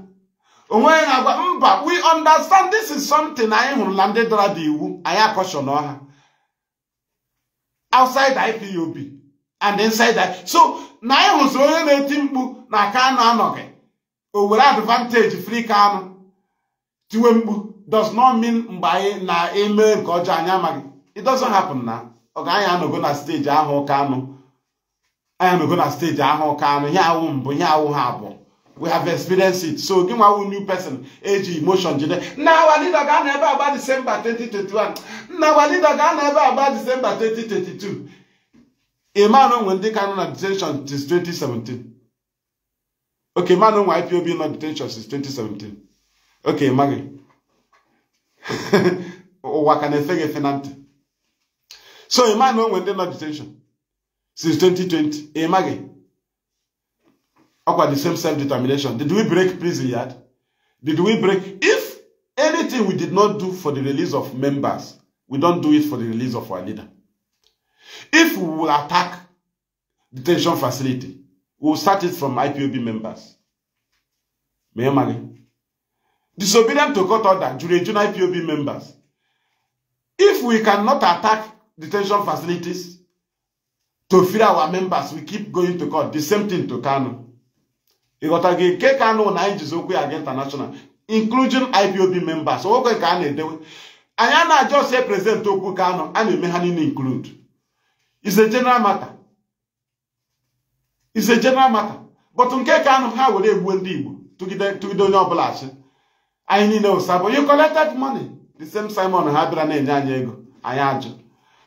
onwe onye na-agwa mba we understand this is something anyị hụrụ na ndị dọrọ dị iwu anyị akọshọ n'ọha outside IPOB and inside i. so na anyị hụziri onye na-eti mkpu na aka anụ anọghị o were advantage free ka anụ tiwe mkpu does not mean mgbe anyị na-eme nke ọjọọ anyị amaghị it doesn't happen na anyị anọgo na steji ahụ ụka anụ anyị anọgo na steji ahụ ụka anụ ihe awụ mbụ ihe awụ ha abụọ we have experienced it so gị nwawu new person eji emotion jide nna awa leader ga na ebe agba disemba 2021 nna awa leader ga na ebe agba disemba 2022 iman onwe ndị ka nọ na detention since 2017 ok manụ onwe ipob nọ detention since 2017 okay gị (laughs) ụwa ka na-efe gị efe na ntị So a man went into detention since 2020. A mage. Eh? About the same self-determination. Did we break prison yet? Did we break? If anything we did not do for the release of members, we don't do it for the release of our leader. If we will attack detention facility, we will start it from IPOB members. Mayor eh, Mali. Eh? Disobedient to court order during IPOB members. If we cannot attack detention facilities to feed our members we keep going to court the same thing to Kanu ịghọta gị nke Kano na anyị jizi okwu ya international including IPOB members okwe ka a na-edewe anyị a na-ajọ sie president okwu Kano a na-eme ha niile include is a general matter is a general matter but nke Kano ha were egbuo ndị Igbo tụgide onye ọbụla achị anyị niile ụsabụ you collected money the same Simon ha bịara na-enye anyị ego anyị ajụ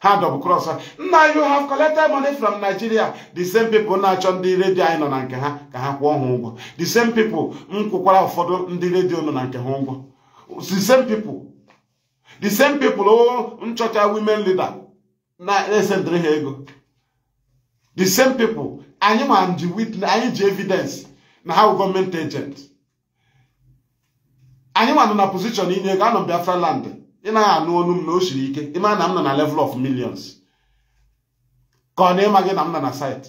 ha double cross nna you have collected money from Nigeria the same people na-achọ ndị redio anyị nọ na nke ha ka ha kwụọ ha ụgwọ the same people m kwụkwara ụfọdụ ndị redio nọ na nke ha ụgwọ the same people the same people o oh, nchọcha women leader na-esendịrị ha ego the same people anyị ma ji witness anyị ji evidence na ha bụ gọọmenti agent anyị nọ na pozishọn inye ego anọ Biafra land ị naghị anụ olu m na o siri ike ịma na m nọ na level of millions ka ọ na ịma gị na m nọ na site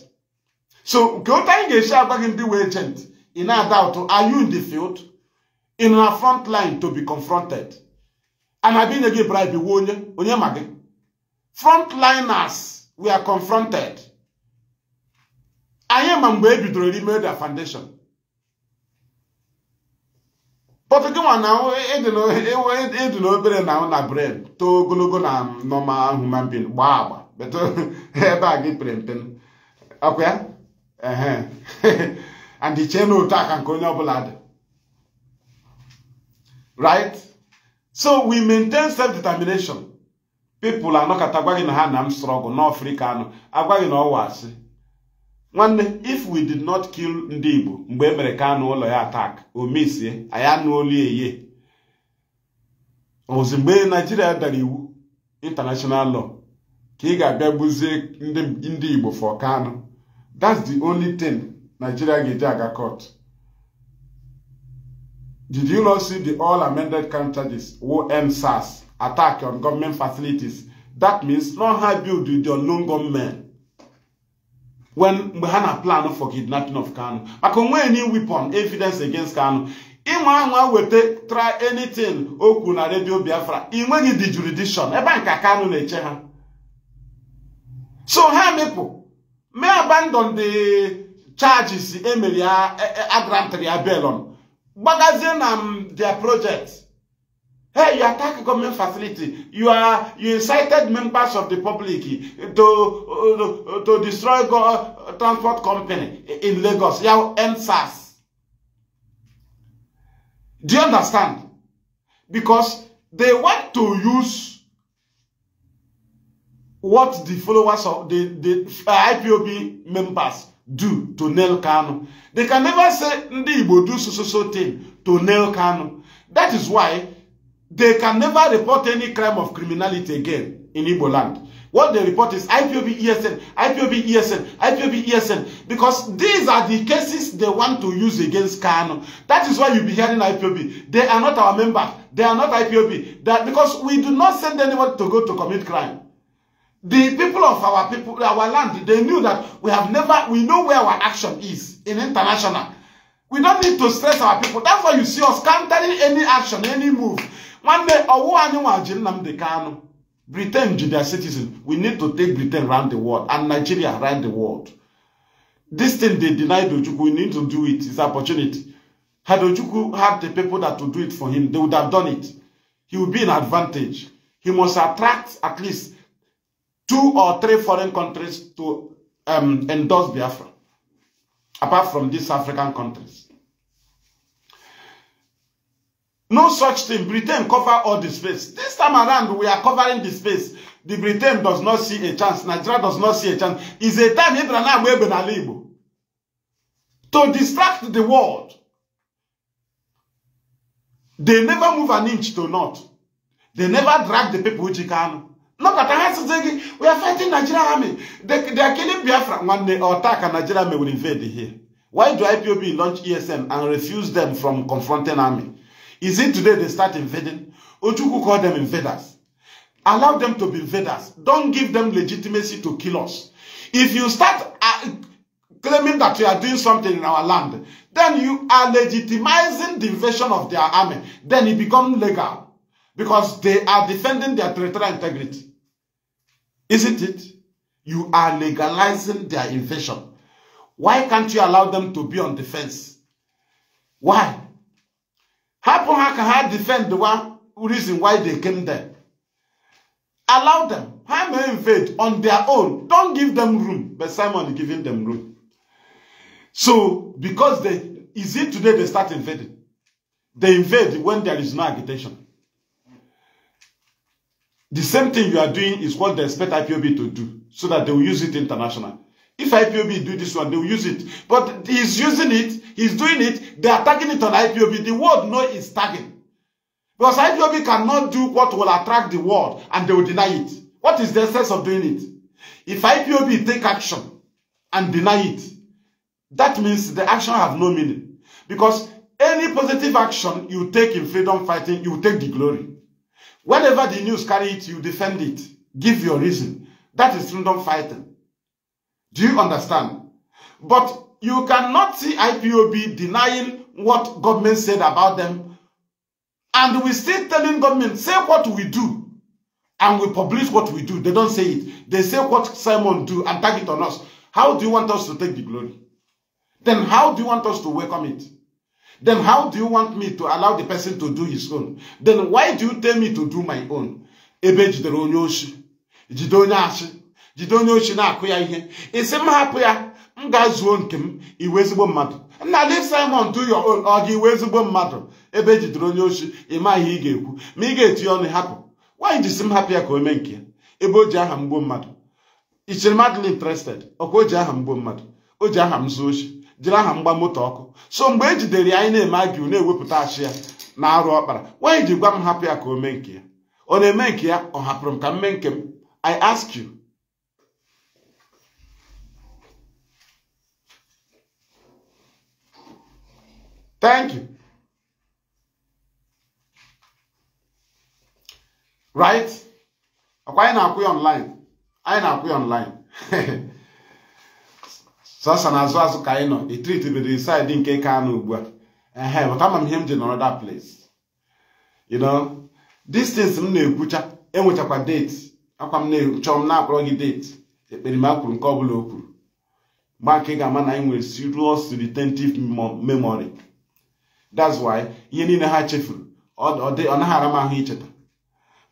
so nke otu anyị ga-esi agwa gị ndị wee gent ị na-ada ụtụ are you in the field in a front line to be confronted a na-abịa inye gị bribe wuo onye onye ma gị frontliners we are confronted anyị ma mgbe e bidoro Imedia Foundation but gị nwa na ịdị na-obere na na bred too ogologo na normal human being gbaa agba ebe a gị pere mpe ọkwa ya and ichee na otu aka nke onye ọbụla dị right so we maintain self-determination people anọkọta gwa gị na ha na m strọgụ n'ọfrika anọ agwa gị na ọwa asị nwanne if we did not kill ndị igbo mgbe emere mere Kanu ụlọ ya atak o mesie anyị eye ozi mgbe naijiria dara iwu international law ka ị ga-abịa gbuzie ndị igbo for Kanu that's the only thing nigeria ga-eji aga court did you not see the all amended crime charges wo end SARS attack on government facilities that means no ha build with your loan government when mgbe ha na plan for kidnapping of Kanu maka onwe any on evidence against Kanu ịnwa anwa weta try anything o kwuru na redio Biafra ị nweghị the jurisdiction ebe nka Kanu na-eche ha so ha mepụ me abandon the charges emere ya e, e, agrantry ya belon gbagazie na their project Hey, you attack government facility. You are you incited members of the public to uh, to destroy go uh, transport company in Lagos. You end SARS. Do you understand? Because they want to use what the followers of the, the uh, IPOB members do to nail Kanu. They can never say Ndi Igbo do so so so thing to nail Kanu. That is why They can never report any crime of criminality again in Igbo land. What they report is IPOB ESN, IPOB ESN, IPOB ESN. Because these are the cases they want to use against Kano. That is why you'll be hearing IPOB. They are not our members. They are not IPOB. That because we do not send anyone to go to commit crime. The people of our people, our land, they knew that we have never, we know where our action is in international. We don't need to stress our people. That's why you see us countering any action, any move nwanne ọwụwa anyị nwaji Nnamdi Kanu Britain ji citizen we need to take Britain round the world and Nigeria round the world this thing they denied Ojukwu we need to do it it's opportunity had Ojukwu had the people that to do it for him they would have done it he would be in advantage he must attract at least two or three foreign countries to um, endorse Biafra apart from these African countries No such thing. Britain cover all the space. This time around, we are covering the space. The Britain does not see a chance. Nigeria does not see a chance. It's a time Ibrahim able to distract the world. They never move an inch to not. They never drag the people which can. Look at us saying, we are fighting Nigeria army. They, they are killing Biafra. When they attack and Nigeria army will invade here. Why do IPOB launch ESM and refuse them from confronting army? Is it today they start invading? Ojuku call them invaders. Allow them to be invaders. Don't give them legitimacy to kill us. If you start uh, claiming that you are doing something in our land, then you are legitimizing the invasion of their army. Then it becomes legal because they are defending their territorial integrity. Isn't it? You are legalizing their invasion. Why can't you allow them to be on defense? Why? Happen how ka defend the reason why they came there allow them ha may invade on their own don't give them room but simon giving them room so because they is it today they start invading they invade when there is no agitation the same thing you are doing is what they expect ipob to do so that they will use it international if ipob do this one they will use it but he's using it He's doing it, they are tagging it on IPOB. The world know it's tagging. Because IPOB cannot do what will attract the world and they will deny it. What is the sense of doing it? If IPOB take action and deny it, that means the action have no meaning. Because any positive action you take in freedom fighting, you take the glory. Whatever the news carry it, you defend it. Give your reason. That is freedom fighting. Do you understand? But you cannot see IPOB denying what government said about them. And we still telling government, say what we do. And we publish what we do. They don't say it. They say what Simon do and tag it on us. How do you want us to take the glory? Then how do you want us to welcome it? Then how do you want me to allow the person to do his own? Then why do you tell me to do my own? na ihe. ya m ga-azuo nke m iwe ezigbo mmadụ nna leave Simon to your iwe ezigbo mmadụ ebe ejidere onye osi ịma ihe ị ga-ekwu ma ị ga-etinye ọnụ hapụ nwaanyị si m hapụ ya ka o mee nke ya ebe o ji aha mgbuo mmadụ ichere madly interested ọkwa o ji aha mgbo mmadụ o ji aha m zuo oshi jiri aha mgba moto ọkụ so mgbe e jidere ya anyị na-eme agiu na-ewepụta achị ya na arụ ọkpara nwaanyị ji gwa m hapụ ya ka o mee nke ya ọ na-eme nke ya ọ hapụrụ m ka m mee nke m I ask you Thank you. Right? Ọkwa anyị na-akwụ ya online. Anyị na-akwụ ya online. (laughs) na azụ azụ ka anyị nọ. Etrit nke Kano ugbu a. Ehe, m ihe m ji nọrọ that place. You know, distance m na-ekwucha enwechakwa date. Akwa m na ekwucha m na-akpọrọ gị date. Ekpere nke ọ bụla o kwuru. nke ga-ama na anyị nwere memory. that's ihe niile ha chefuru ọ naghị ara m ahụ icheta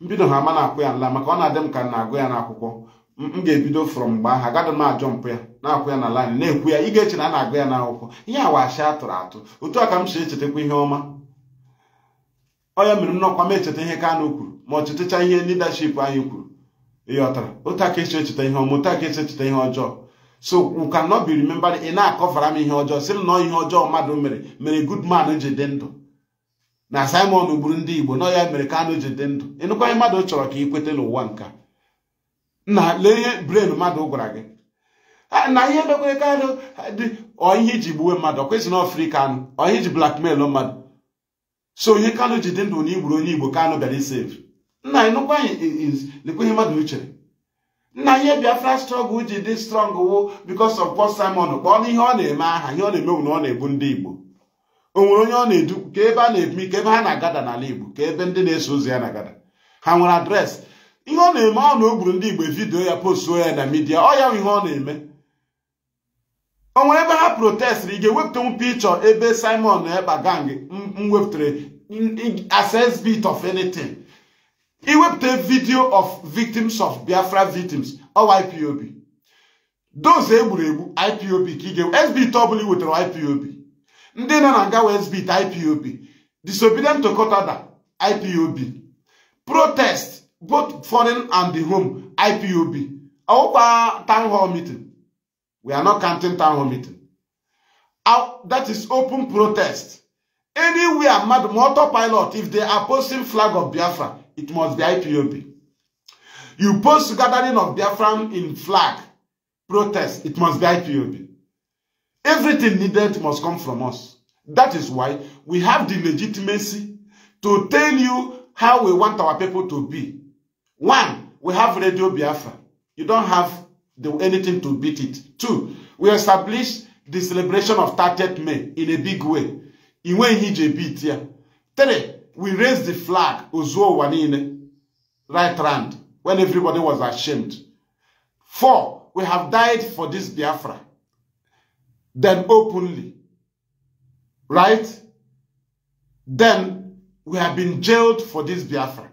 mbido ha ama na-akpụ ya nla maka ọ na-adị m ka m na-agụ ya n'akwụkwọ m ga-ebido fọrọ mgbe ahụ agada m ajọ mpụ ya na-akwụ ya na laịn na-ekwu ya ịga ga-eche na a na-agụ ya n'akwụkwọ ihe wachi atụrụ atụ otu a ka m si echetakwa ihe ọma onye mere m n'ọkwa m echeta ihe Kanu kwuru ma ọ chetacha ihe leadership anyị kwuru ihe ọtara otu aka esi echeta ihe ọma otu aka esi echeta ihe ọjọọ so we cannot be ị na-akọfara m ihe ọjọọ sị nọ ihe ọjọọ mmadụ mere mere good man ji dị ndụ na Simon gburu ndị Igbo nọ ya mere Kanu ji dị ndụ ịnụkwaghị mmadụ chọrọ ka ị kweta n'ụwa nka na lee ihe brain mmadụ gwara gị na ihe dokwere Kanu dị ihe iji gbuwe mmadụ ọkwesị na ọfrị Kanu ọihe iji blackmail mmadụ so onye kanụ ji dị ndụ na igburu onye Igbo Kanu bịara isev nna ịnụkwaghị ihe mmadụ nna ihe biafra strọgụl ji dị strọng wụ bikos ọf pọt simon kpọọ na ihe ọ na-eme aha ihe ọ na-eme bụ na ọ na-ebu ndị igbo o nwere onye ọ na-edu ka ebe a na-ebi ka ebe ha na-agada n'ala igbo ka ebe ndị na-eso ozi ya na-agada ha nwere adresị ihe ọ na-eme ọ na o gburu ndị igbo vidiyo ya postuo ya na midia ọ ya ihe ọ na-eme o nwere ebe ha protestịrị ị ga-ewepụtanwu pikchọ ebe simon na ekpa gang m wepụtara access bit of anything He a video of victims of Biafra victims or IPOB. Those egburu egbu IPOB ka ị ga SBT ọbụla wetara IPOB. Ndị nọ na ngawa SBT IPOB. Disobedient to court order IPOB. Protest both foreign and the home IPOB. Ọwụkwa town hall meeting. We are not counting town hall meeting. that is open protest. Anywhere mmadụ motor pilot if they are posting flag of Biafra it must be IPOB. You post gathering of Biafran in flag, protest, it must be IPOB. Everything needed must come from us. That is why we have the legitimacy to tell you how we want our people to be. One, we have Radio Biafra. You don't have the, anything to beat it. Two, we established the celebration of 30th May in a big way. In way he beat here. Three, we raised the flag, Uzuo Wanine, right round, when everybody was ashamed. Four, we have died for this Biafra. Then openly. Right? Then we have been jailed for this Biafra.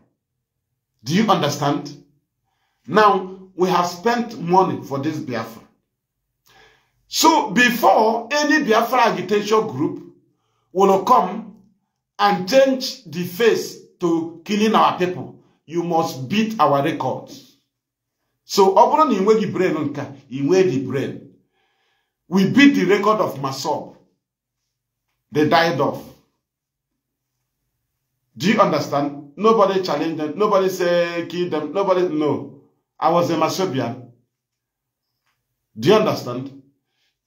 Do you understand? Now, we have spent money for this Biafra. So before any Biafra agitation group will come and change the face to killing our people you must beat our records so ọ bụrụ na ị nweghị brain nke ị nweghị brain we beat the record of masob they died off do you understand nobody challenge them nobody say kill them nobody no i was a masobian do you understand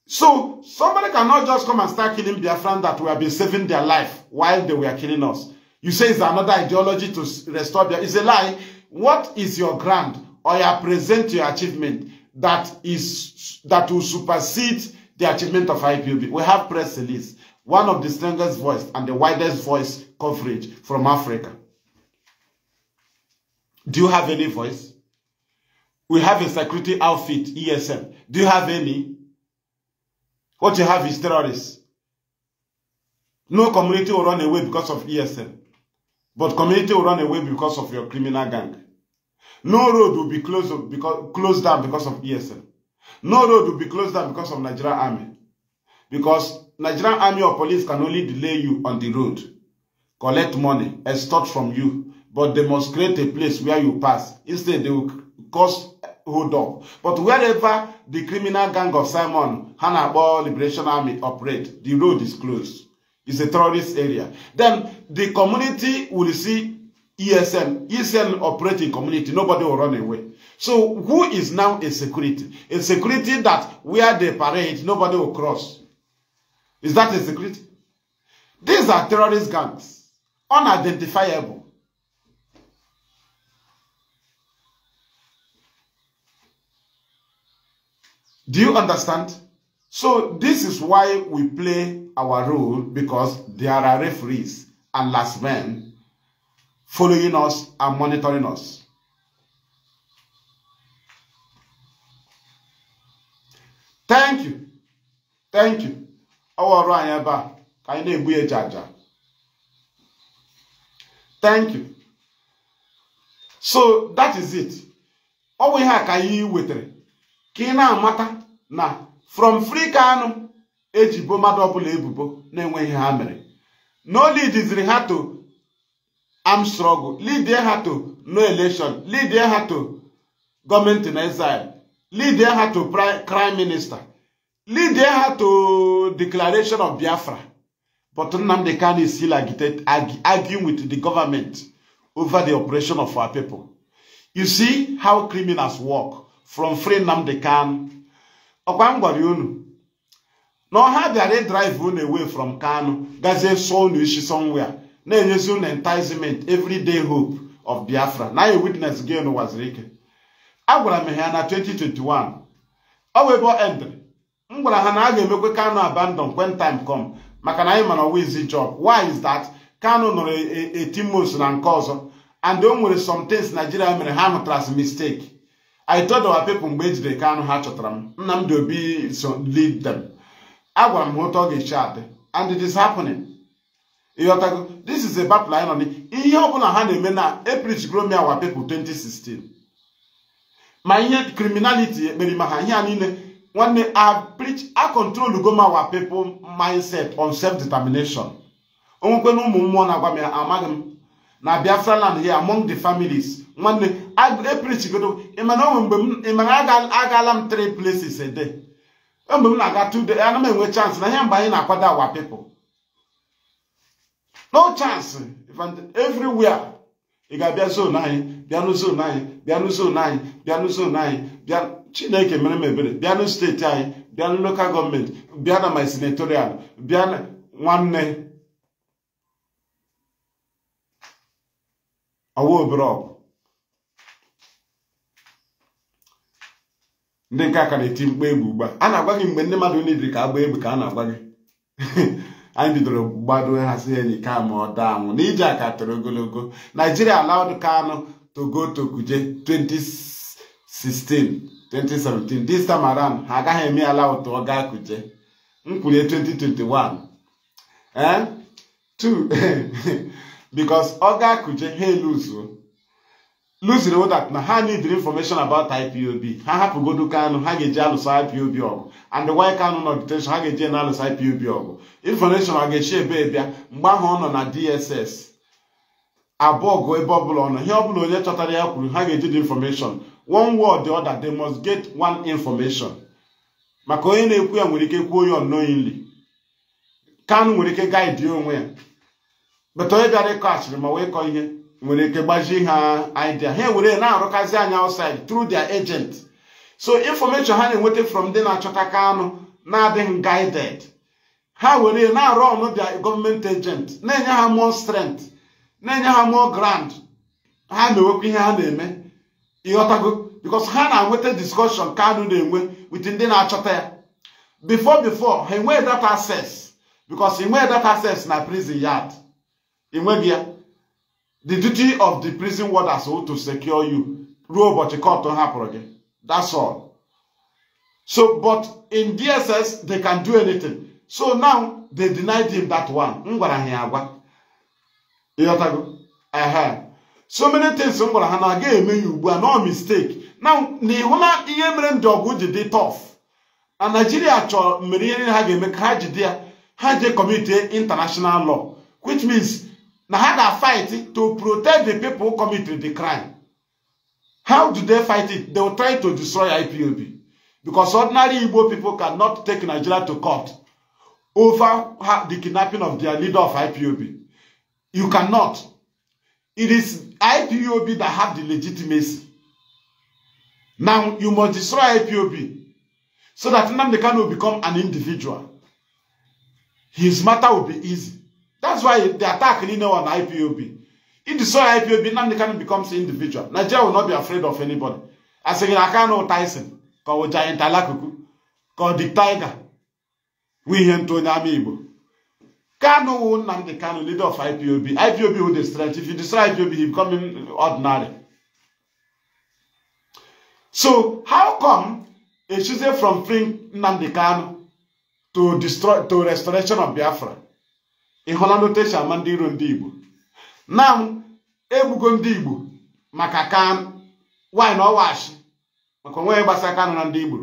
So somebody cannot just come and start killing their Biafran that we have been saving their life while they were killing us. You say it's another ideology to restore their. It's a lie. What is your grant or your present your achievement that is that will supersede the achievement of IPOB? We have press release, one of the strongest voice and the widest voice coverage from Africa. Do you have any voice? We have a security outfit, ESM. Do you have any? What you have is terrorists. No community will run away because of ESM, But community will run away because of your criminal gang. No road will be closed, because, closed down because of ESM. No road will be closed down because of Nigerian army. Because Nigerian army or police can only delay you on the road, collect money, extort from you, but they must create a place where you pass. Instead, they will cause hold up. But wherever the criminal gang of Simon, Hanabal Liberation Army operate, the road is closed. It's a terrorist area. Then the community will see ESN, ESN operating community, nobody will run away. So who is now a security? A security that where they parade, nobody will cross. Is that a security? These are terrorist gangs, unidentifiable. Do you understand? So this is why we play our role because there are referees and last men following us and monitoring us. Thank you. Thank you. Ọwọ́ ọ̀rọ̀ àyẹ̀ bá ka anyị na-egbu jaja. Thank you. So that is it. Ọ bụ ihe a ka anyị wetara ka ị na na from free ka anụ ejibo mmadụ ọbụla ebubo na-enweghị ha mere no lidiziri ha to am struggle lidie ha to no election lidie ha to gọọmenti in exile lidie ha to prime minister lidie ha to declaration of biafra but nnamdi kanu is still arguing with the government over the operation of our people you see how criminals work from free nnamdi kan ọkwa m gwara unu na ọha bịara ịdraịve unu away from kano gazie sọ unu ishi somewhere na-enyezi unu enticement everyday hope of Biafra na anyị witness gị unu waziri ike agwara m ha na 2021 ọ wee bụ endri m gwara ha na a ga-emekwe kano abandon when time come maka na anyị mara wizi job why is that kano nọrọ etimos e, e, na nke ọzọ and o nwere some things Nigeria mere ha mụtara mistake I told our people mgbe e jidere Kanu ha chọtara m Nnamdi Obi so lead them agwara m ha otu ga-eche adị and it is happening ịghọtago this is a battle anyị nọ n ihe ha na-eme na aprich gromi our people 2016 ma ihe criminality ekpere ma ha ihe a niile nwanne aprich a control goma our people mindset on self determination onwekwe na ụmụ mmụọ na-agwa m ya amaghị m na Biafra land here among the families nwanne eprichigodo ịmana e onwe mgbe ịmana e agaala m three places a day mgbe m na-aga two days ana m enwe chance na ihe mgbe anyị na-akwado awa people no chance everywhere ị ga-abịa zon anyị bịanụ zon anyị bịanụ zon anyị bịanụ zon anyị bịa chineke mere m ebere bịanụ steeti anyị bịanụ lokal gọọmenti bịa na my senatorial bịa nwanne ọwa obere ọgụ ndị nke aka na-eti mkpa egwu ugbu a na-agwa gị mgbe ndị mmadụ niile ka agba egbe ka a na-agwa gị (laughs) anyị bidoro gbado hazi enyi ka ma ọ daa anwụ n'ije aka toro ogologo naijiria allowed kano to go Kuje 2016 2017 this time ha agaghị eme allowed to ọ gaa Kuje 2021 2 eh? (laughs) because ọ gaa Kuje ha eluzuo lụziri wodat na ha need information about IPOB ha hapụgodu Kanu ha ga-eji alụsa IPOB ọgụ and why Kanu nọ detention ha ga-eji na alụsa IPOB ọgụ information a ga-echi ebe bịa mgbe ahụ ọ nọ na DSS abụọ gụ ebe ọbụla ọ nọ ihe ọbụla onye chọtara ya kwuru ha ga-eji the information one word the other they must get one information maka onye na-ekwu ya nwere ike kwuo ya unknowingly Kanu nwere ike gaidi onwe ya bata onye bịara ịkọ asịrị ma wee kọọ ihe nwere ike gbajie ha idea ha ewere na-arụkazi anya outside through their agent so information ha na-enweta from ndị na-achọta ka anụ na-adịghị guided ha were na-arụ ọnụ their gọọmenti agent na-enye ha mụọ strength na-enye ha mụọ grand ha na-enwekwa ihe ha na-eme ịghọtago because ha na-enweta discussion Kanu na-enwe with ndị na-achọta ya before before ha enweghị that access because ị nweghị that access na prison yard ị nweghị ya the duty of the prison warders who to secure you ruo ụbọchị kọtụ hapụrụ gị that's all so but in dss they can do anything so now they denied him that one m gwara ha ya agwa ịghọtago so many things m gwara ha na aga eme ya ugbu a no mistake now na ịhụla ihe mere ndị ọgụ ji dị tough na naijiria chọrọ mere ihe niile ha ga-eme ka ha jide ya ha je committee international law which means Now how they fight to protect the people who commit the crime. How do they fight it? They will try to destroy IPOB. Because ordinary Igbo people cannot take Nigeria to court over the kidnapping of their leader of IPOB. You cannot. It is IPOB that have the legitimacy. Now, you must destroy IPOB so that Nnamdi Kanu will become an individual. His matter will be easy. That's why the attack lean on IPOB. If the soil IPOB, Nnamdi becomes individual. Nigeria will not be afraid of anybody. Aseghi na aka no Tyson ka ọ Giant Alakuku ka ọ Dick Tiger We ihe ntụ onye ama will Kanu leader of IPOB. IPOB will destroy. If you destroy IPOB, he become ordinary. So how come a choosing from freeing Nnamdi to destroy to restoration of Biafra? ị hụla n'otu e ama ndị iro ndị Igbo na egbugo ndị Igbo maka kan, nwaanyị na ọwashi maka onwe ya gbasa aka nụ na ndị Igbo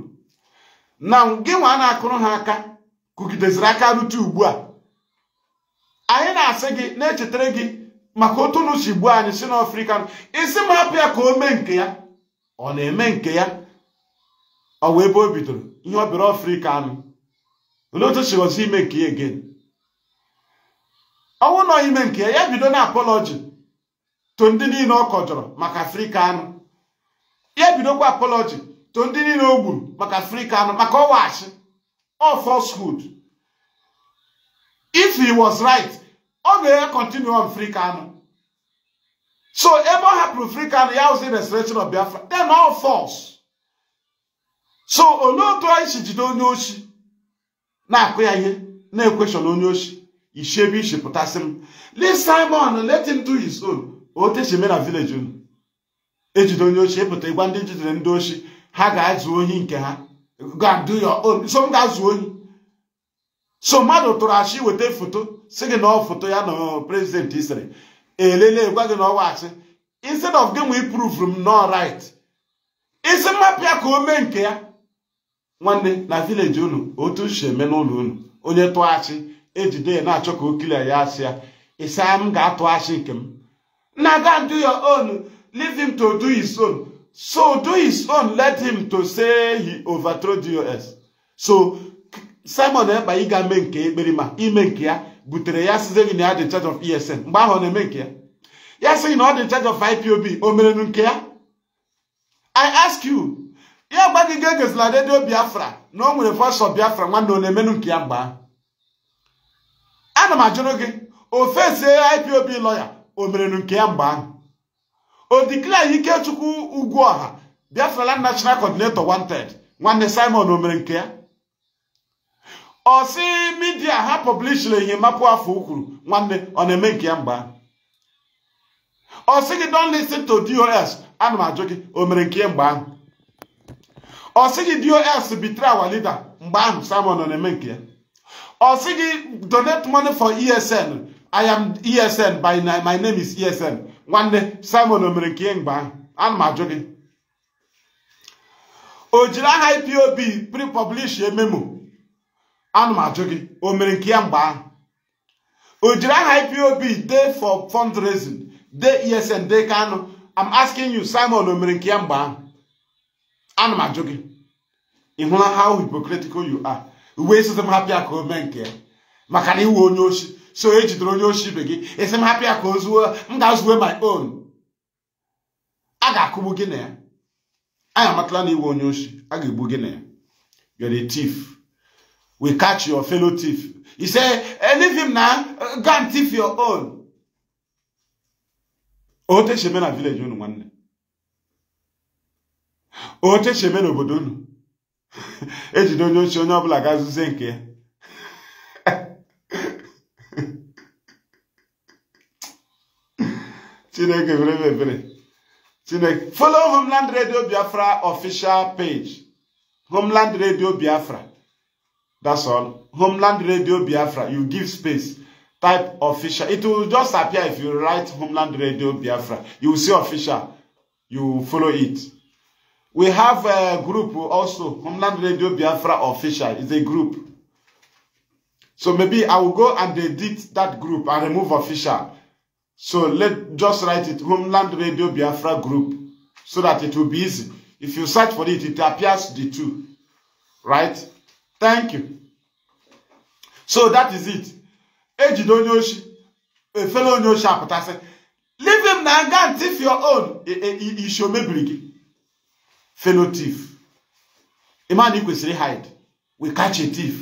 na gị nwa na-akụrụ ha aka kụgideziri aka rute ugbu a anyị na-asị gị na-echetara gị maka otu unu gbuo anyị si na ofrika isi m hapụ ya ka o mee nke ya ọ na-eme nke ya ọ wee ebe o bidoro ihe ọ bịara ofrika anụ olee otu ime nke ya egen ọnwụ nọ ime nke ya bido na apọlọji to ndị niile ọ kọjọrọ maka afrịka anụ ya bidokwa apọlọji to ndị niile o gburu maka afrịka anụ maka ọwachi ọ falsehood if he was right ọ ga-enye continue on frika anụ so ebe ọ hapụrụ frika anụ ya ozi restoration of biafra then all false so olee otu anyị si jide onye oshi na-akụ ya ihe na-ekweshọn onye oshi ishebisi pụtasị m lee simon let him do his own otechime na village unu ejide onye ochie ịpụta ịgwa ndị jidere ndị ochi ha ga-azụ ohi nke ha ga so m ga-azụ ohi so mmadụ tụrụ achị weta foto si gị na ọ foto ya na prezidenti sịrị elele gwa gị na ọwa achị instead of gị nwe prove m no right isi mmapịa ka o mee nke ya nwanne na village unu otu si eme n'ụlọ unu onye tụọ achị ejide ya na-achọ ka o kilia ya asịa ya ịsa m ga-atụ asị nke m na ga do your own leave him to do his own so do his own let him to say he overthrow dos so simon ekpa ịga mee nke ekpere ma ime nke ya butere ya size gị na ya dị charge of esn mgbe ahụ ọ na-eme nke ya ya sị na ọ dị charge of ipob o merenu nke ya i ask you ya gba gị ga egozila redio biafra na o nwere fọsọ biafra nwanne ọ na-emenu nke ya mgbe ahụ ana m ajụrụ gị ofesie IPOB lọya o merelu nke ya mgbe ahụ o diklee Ikechukwu ọha Biafra national coordinator wanted nwanne Simon o mere nke ya ọ sị midia ha pọblishiri enyemapụ afọ ukwuru nwanne ọ na-eme nke ya mgbe ahụ ọ gị don listen to dos ana m ajụ gị o mere nke ya mgbe ahụ ọ gị dos bitere awa lida mgbe ahụ Simon ọ na-eme nke ya ọ sị gị donate money for esn i am esn by my name is esn nwanne simon o mere nke mgbe ahụ ana m ajụ gị o jiri aha ipob pre-publish memo ana m ajụ gị o mere nke ya mgbe ahụ o jiri aha ipob dey for fundraising dey esn dey kano i'm asking you simon o mere nke ya mgbe ahụ ana m ajụ gị ị hụla how hypocritical you are uwe esite m hapịa ka o mee nke ya maka na iwe onye oshi so e jidere onye oshi ibe gị esi m hapịa ka o m ga-azuwe my own a ga-akụgbu gị na ya anyị amatala na iwe onye oshi a ga-egbu gị na ya you're a thief we catch your fellow thief he say eh, leave him na go and thief your own otu esi eme na village unu nwanne otu esi eme n'obodo unu ejide onye ochie onye ọbụla ga-azụzie nke ya chineke ebere chineke follow homeland radio biafra official page homeland radio biafra that's all homeland radio biafra you give space type official it will just appear if you write homeland radio biafra you will see official you follow it We have a group also, Homeland Radio Biafra Official. It's a group. So maybe I will go and edit that group and remove official. So let just write it Homeland Radio Biafra Group so that it will be easy. If you search for it, it appears the two. Right? Thank you. So that is it. Ejide a fellow onyoshi leave him na and thief your own. Ishome biri gị. felo tif ịma ị kwesịrị hide we kachi a thief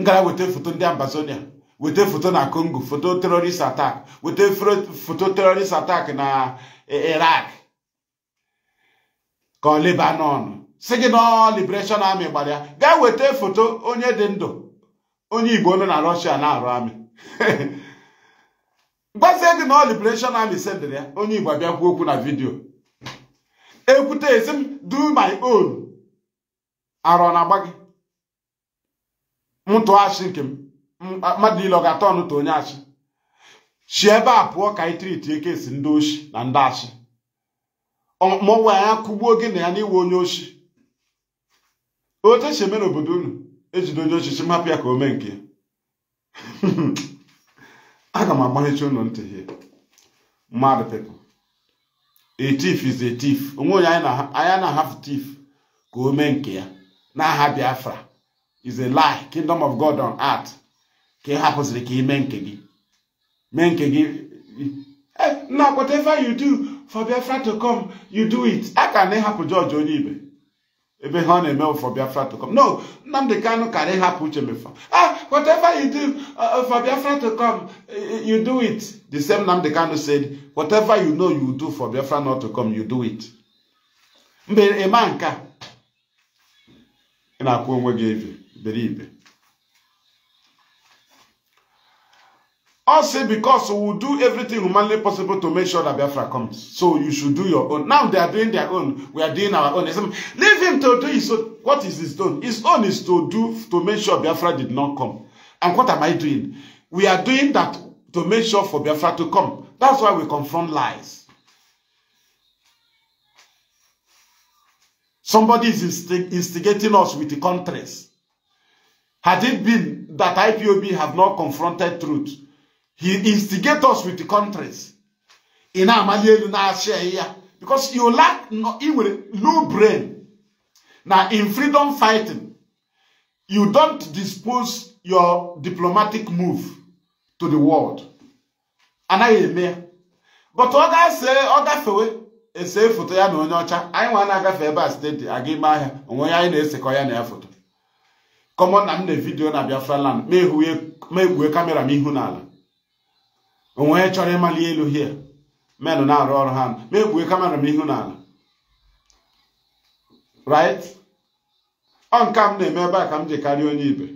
ngara weta foto ndị ambazonia weta foto na congo foto terorist attack weta foto terrorist attack na e, iraq ka ọ lebanon si gị nọ liberation army gbara ya weta foto onye dị ndụ onye igbo nọ na russia na-arụ amị (laughs) gwazie gị nọ liberation army sendịrị ya onye igbo abịakwu okwu na vidio. ekwute esi m do my own arọ na-agba gị m tụọ achị nke m mmadụ niile ọ ga-atọ ọnụ tụ onye achị chi ebe a pụọ ka anyị triti eke esi ndị oshi na ndị achị mụnwe anya kụgbuo gị na ya n'iwe onye ochi Ochechi esi eme n'obodo unu ejide onye ochichi m hapụ ya ka o mee nke (laughs) aga m agbaghechi ụlọ ntị mmadụ pepụ a tif is a thief onwe onye na-ahapụ thief ka o mee nke ya n'aha Biafra is a lie kingdom of God on earth ka ị hapụziri ka ị mee nke gị mee nke gị eh, na whatever you do for Biafra to come you do it a ka na ịhapụ George onye ibe ebe ha ọ na-eme for Biafra to come no Nnamdi Kanu na ịhapụ uche mefa ah Whatever you do uh, uh, for Biafra to come, uh, uh, you do it. The same the Kanu said, whatever you know you do for Biafra not to come, you do it. Mbe eme nka. na na-akwụ onwe beribe. All say because we will do everything humanly possible to make sure that Biafra comes. So you should do your own. Now they are doing their own. We are doing our own. Leave him to do his own. What is his own? His own is to do to make sure Biafra did not come. And what am I doing? We are doing that to make sure for Biafra to come. That's why we confront lies. Somebody is instig instigating us with the contrast. Had it been that IPOB have not confronted truth, he instigate us with the countries ị na-amali elu na-achị ya because you lack ị nwere low brain na in freedom fighting you don't dispose your diplomatic move to the world anaghị eme ya but ọ ga-ese ọ gafewe ese foto ya na onye ọcha anyị nwa na-agafe ebe a steeti aga ime ahịa onwe ya anyị na-esekọ ya na ya foto common na m na vidiyo na Biafra land ma egwue kamera m ihu n'ala onwe onye chọrọ ịmali elu hie menụ na-arụ ọrụ ha ma egbue kamera m ihu n'ala right ọ nke m na-eme ebe a ka m ji karịa onye ibe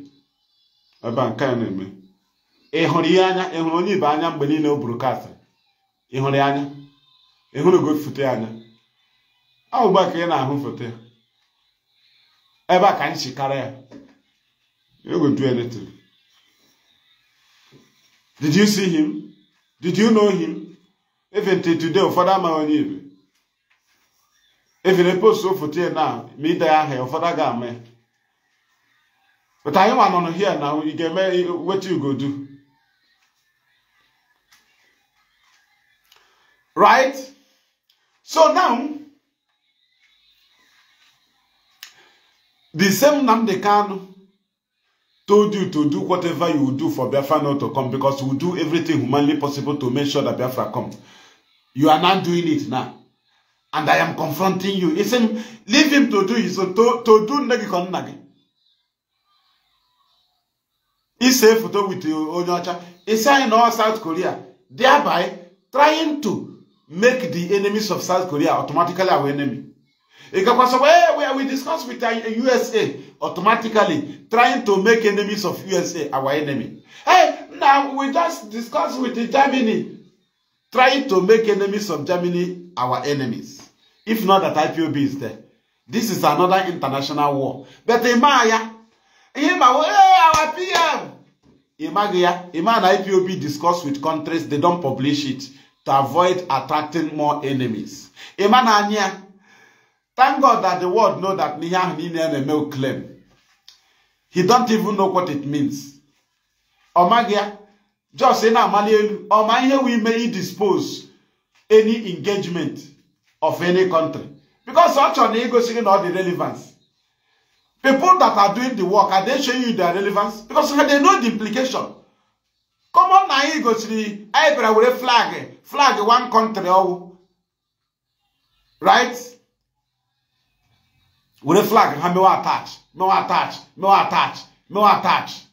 ebe a nke a na-eme ịhụrụ ihe anya ị onye ibe anya mgbe niile o buru kasị ị anya ị hụrụ foto ya anya ọ ka ị na-ahụ foto ya ebe a ka anyị chikara ya you go do anything did you see him Did you know him? Even till today, Father Mahonib. Even a post so for today now, me there, her father got me. But I am on here now, you get me what you go do. Right? So now, the same Namdekano told you to do whatever you will do for Biafra not to come because we will do everything humanly possible to make sure that Biafra comes. You are not doing it now. And I am confronting you. He said, leave him to do his own. To, to do nagi kon nagi. He said, photo with Onyocha. He said, in all South Korea, thereby trying to make the enemies of South Korea automatically our enemy. Because we, we discussed with the USA automatically trying to make enemies of USA our enemy. Hey, now we just discuss with Germany trying to make enemies of Germany our enemies. If not that IPOB is there. This is another international war. But Imaya, Ima, our PM. Imagia, Ima and IPOB discuss with countries, they don't publish it to avoid attracting more enemies. Ima Nanya, Thank God that the world know that ihe ahụ niile a male claim. He don't even know what it means. Ọ maghị ya. Just say now, amali elu ọ ma ihe we may dispose any engagement of any country. Because ọ chọrọ na igosi gị the relevance. People that are doing the work are they showing you their relevance? Because they know the implication. Come on now, you go to the. anyị bịara were flag flag one country ọwụ. Oh. Right? were flag ha mewe atach mewe atach mewe atach mewe atach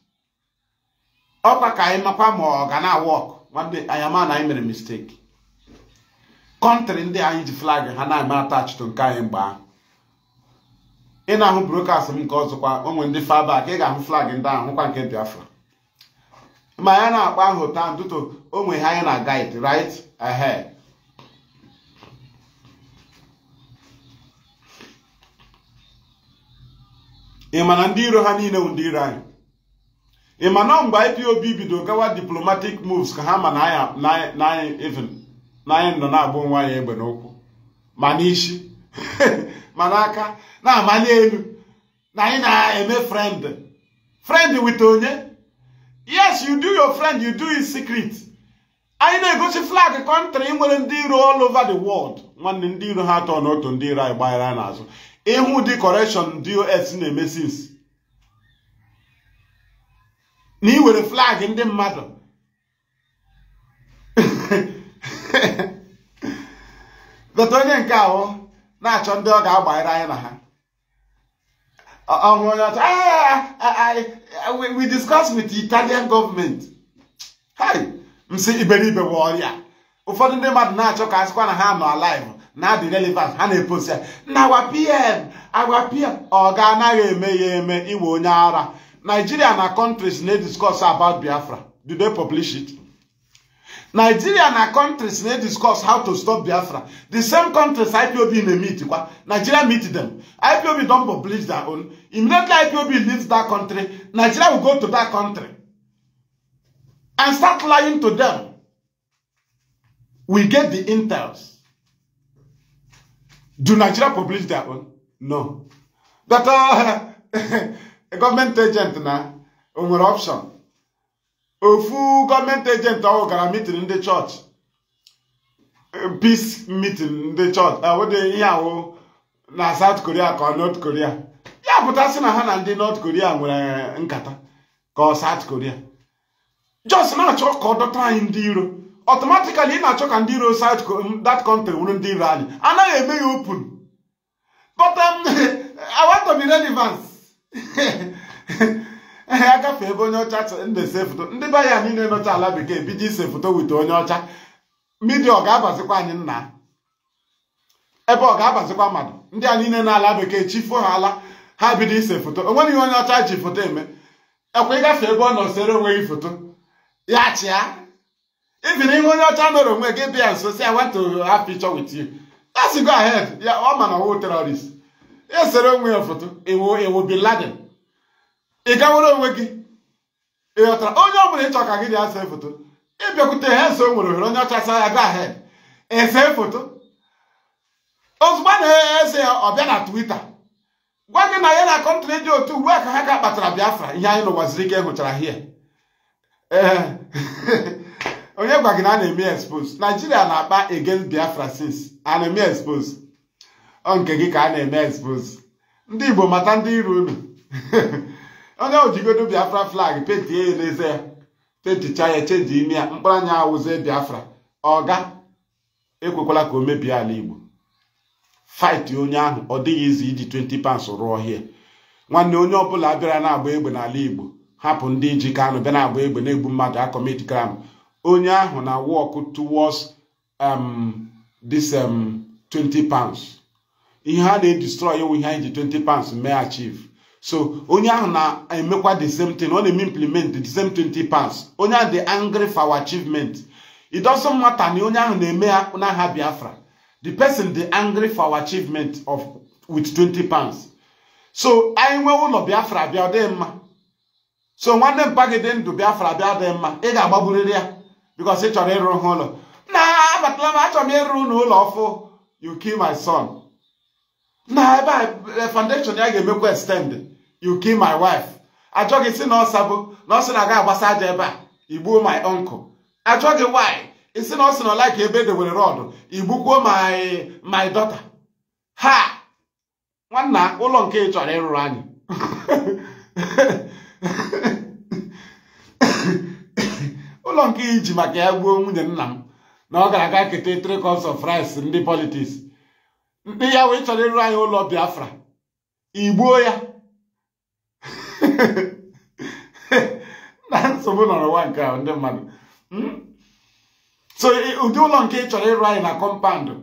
ọkwa ka anyị makwa ma ọ ga na-awọk nwanne anyị ama na anyị mere mistek. kọntrị ndị anyị ji flag ha na-eme atachitụ nke anyị mgbe ahụ ị na-ahụ brokas m nke ọzọkwa onwe ndị fabak ị ga-ahụ flag ndị ahụ hụkwa nke biafra ma ya na-akpa ahụ taa ntụtụ onwe ha anyị na guide right ahed ị ma na ndị iro ha niile bụ ndị iro anyị ị ma na mgbe IPOB bido gawa diplomatic moves ka ha ma na anyị na nọ na-agba nwa anyị egbe n'ụkwụ ma n'isi (laughs) ma n'aka na-amali elu na anyị na-eme friend friend wit onye yes you do your friend you do his secret anyị na-egosi flag kọntrị nwere ndị iro all over the world nwanne ndị iro ha atọ n'otu ndị iro anyị gbaghara n'azụ ịhụ dị correction dos na-eme sins na ị were flag ndị mmadụ dọta onye nke ahụ na-achọ ndị ọ ga-agbanyere anyị na ha ọhụrụ onye ọcha ah, ah, ah, we discuss with the Italian government hi msi iberibe bụ ọrịa ụfọdụ ndị mmadụ na-achọ ka a na ha nọ alive na dị relevant ha na-epost ya na agwa pm agwa pm ọ ga anaghị eme ya eme iwe onye ara nigeria na countries na-ediscuss about biafra do they publish it nigeria na countries na-ediscuss how to stop biafra the same countries ipob na-meet kwa nigeria meet them ipob don publish their own immediately ipob leaves that country nigeria will go to that country and start lying to them we get the intels Do Nigeria publish their own? No. That uh, (laughs) a government agent na nwere option. Ofu government agent ahụ gara meeting ndị church. Peace meeting ndị church. Awụdị ah, ihe ahụ na South Korea kọ North Korea. Ya si na ha na ndị North Korea nwere eh, nkata kọ South Korea. Just na-achọ ka dọta anyị ndị iro. ọtọmatikali ị na-achọ ka ndị iro south that country wụrụ ndị iro anyị anaghị eme ya open but um, (laughs) I want to ehe (laughs) agafe ebe onye ọcha na-ese foto ndị be ya niile nọcha ala bekee bido ise foto wite onye ọcha midia ọ ga-abazikwa anyị nna ebe ọ ga-abazikwa mmadụ ndị a niile ala bekee chifo ha ala ha bido ise foto onweghị ihe onye ọcha ji foto eme ekwe ịgafe ebe ọ nọ sere onwe foto ya chịa even ihe onye ọcha mere onwe gị bịa nso si I want to have picture with go ya ọ ma na ọwụ terrorist esere onwe ya foto ewo ewo ị gawere onwe gị ịghọtara onye ọ bụla ịchọ ka gị dị ase foto ịbịakwute ha nso nwere ohere onye ọcha sa ya go ahead ese foto ozugbo a na-ese ya ọ bịa na twita gwa gị na ya na kọntrị dị otu ugbu a ka ha ka kpatara Biafra ihe anyị n'ụwa ka ike hụchara hie ee onye gwa gị na a na-eme expose naijiria na-akpa against biafra since a na-eme expose ọ nke gị ka a na-eme expose ndị igbo mata ndị iro unu (laughs) onye ojigodo biafra flag penti ya n'eze ya penticha ya chenji ime ya mkpụrụ anya awụzie biafra ọga ekwekwala ka o mebie ala igbo fight onye ahụ ọ dịghị izi iji 20 pounds rụọ hie nwanne onye ọbụla bịara na-agba egbe n'ala igbo hapụ ndị ji kanụ bịa na-agba egbe na-egbu mmadụ akọmit kram onye ahụ na work towards um, this um, 20 pounds ihe a na-edestroy ewu ihe anyị ji 20 pounds mee achieve so onye ahụ na-emekwa the same thing ọ na-eme implement the same 20 pounds onye ahụ dị angry for our achievement it doesn't matter na onye ahụ na-eme n'aha Biafra the person dị angry for our achievement of with 20 pounds so anyị nwee ụlọ Biafra bịa ọ dịghị mma so nwanne mpa dị ndụ Biafra bịa mma ị ga-agbagburịrị ya because ị chọrọ ịrụ ha ụlọ na abatala m achọrọ m ịrụ ụlọ ụlọ ọfụ you kill my son na ebe a eh, foundation ya ga-emekwa extend you kill my wife ajọ gị si na bụ na ọsị na-aga agbasa aja ebe a igbuo my uncle achọ gị why isi na ọsị na ọla ka ebe edewere rọdụ igbukwuo my my daughter ha nwanna ụlọ nke ị chọrọ ịrụrụ anyị (laughs) ụlọ nke iji maka ya gbuo nwunye nna m na ọ ga-aga keta three cups of rice ndị politiks ndị ya wee chọrọ ịrụ anyị ụlọ biafra igbuo ya (laughs) na nsogbu nwa nke ndị mmadụ hmm? so ụdị ụlọ nke ị chọrọ ịrụ anyị na kọmpandụ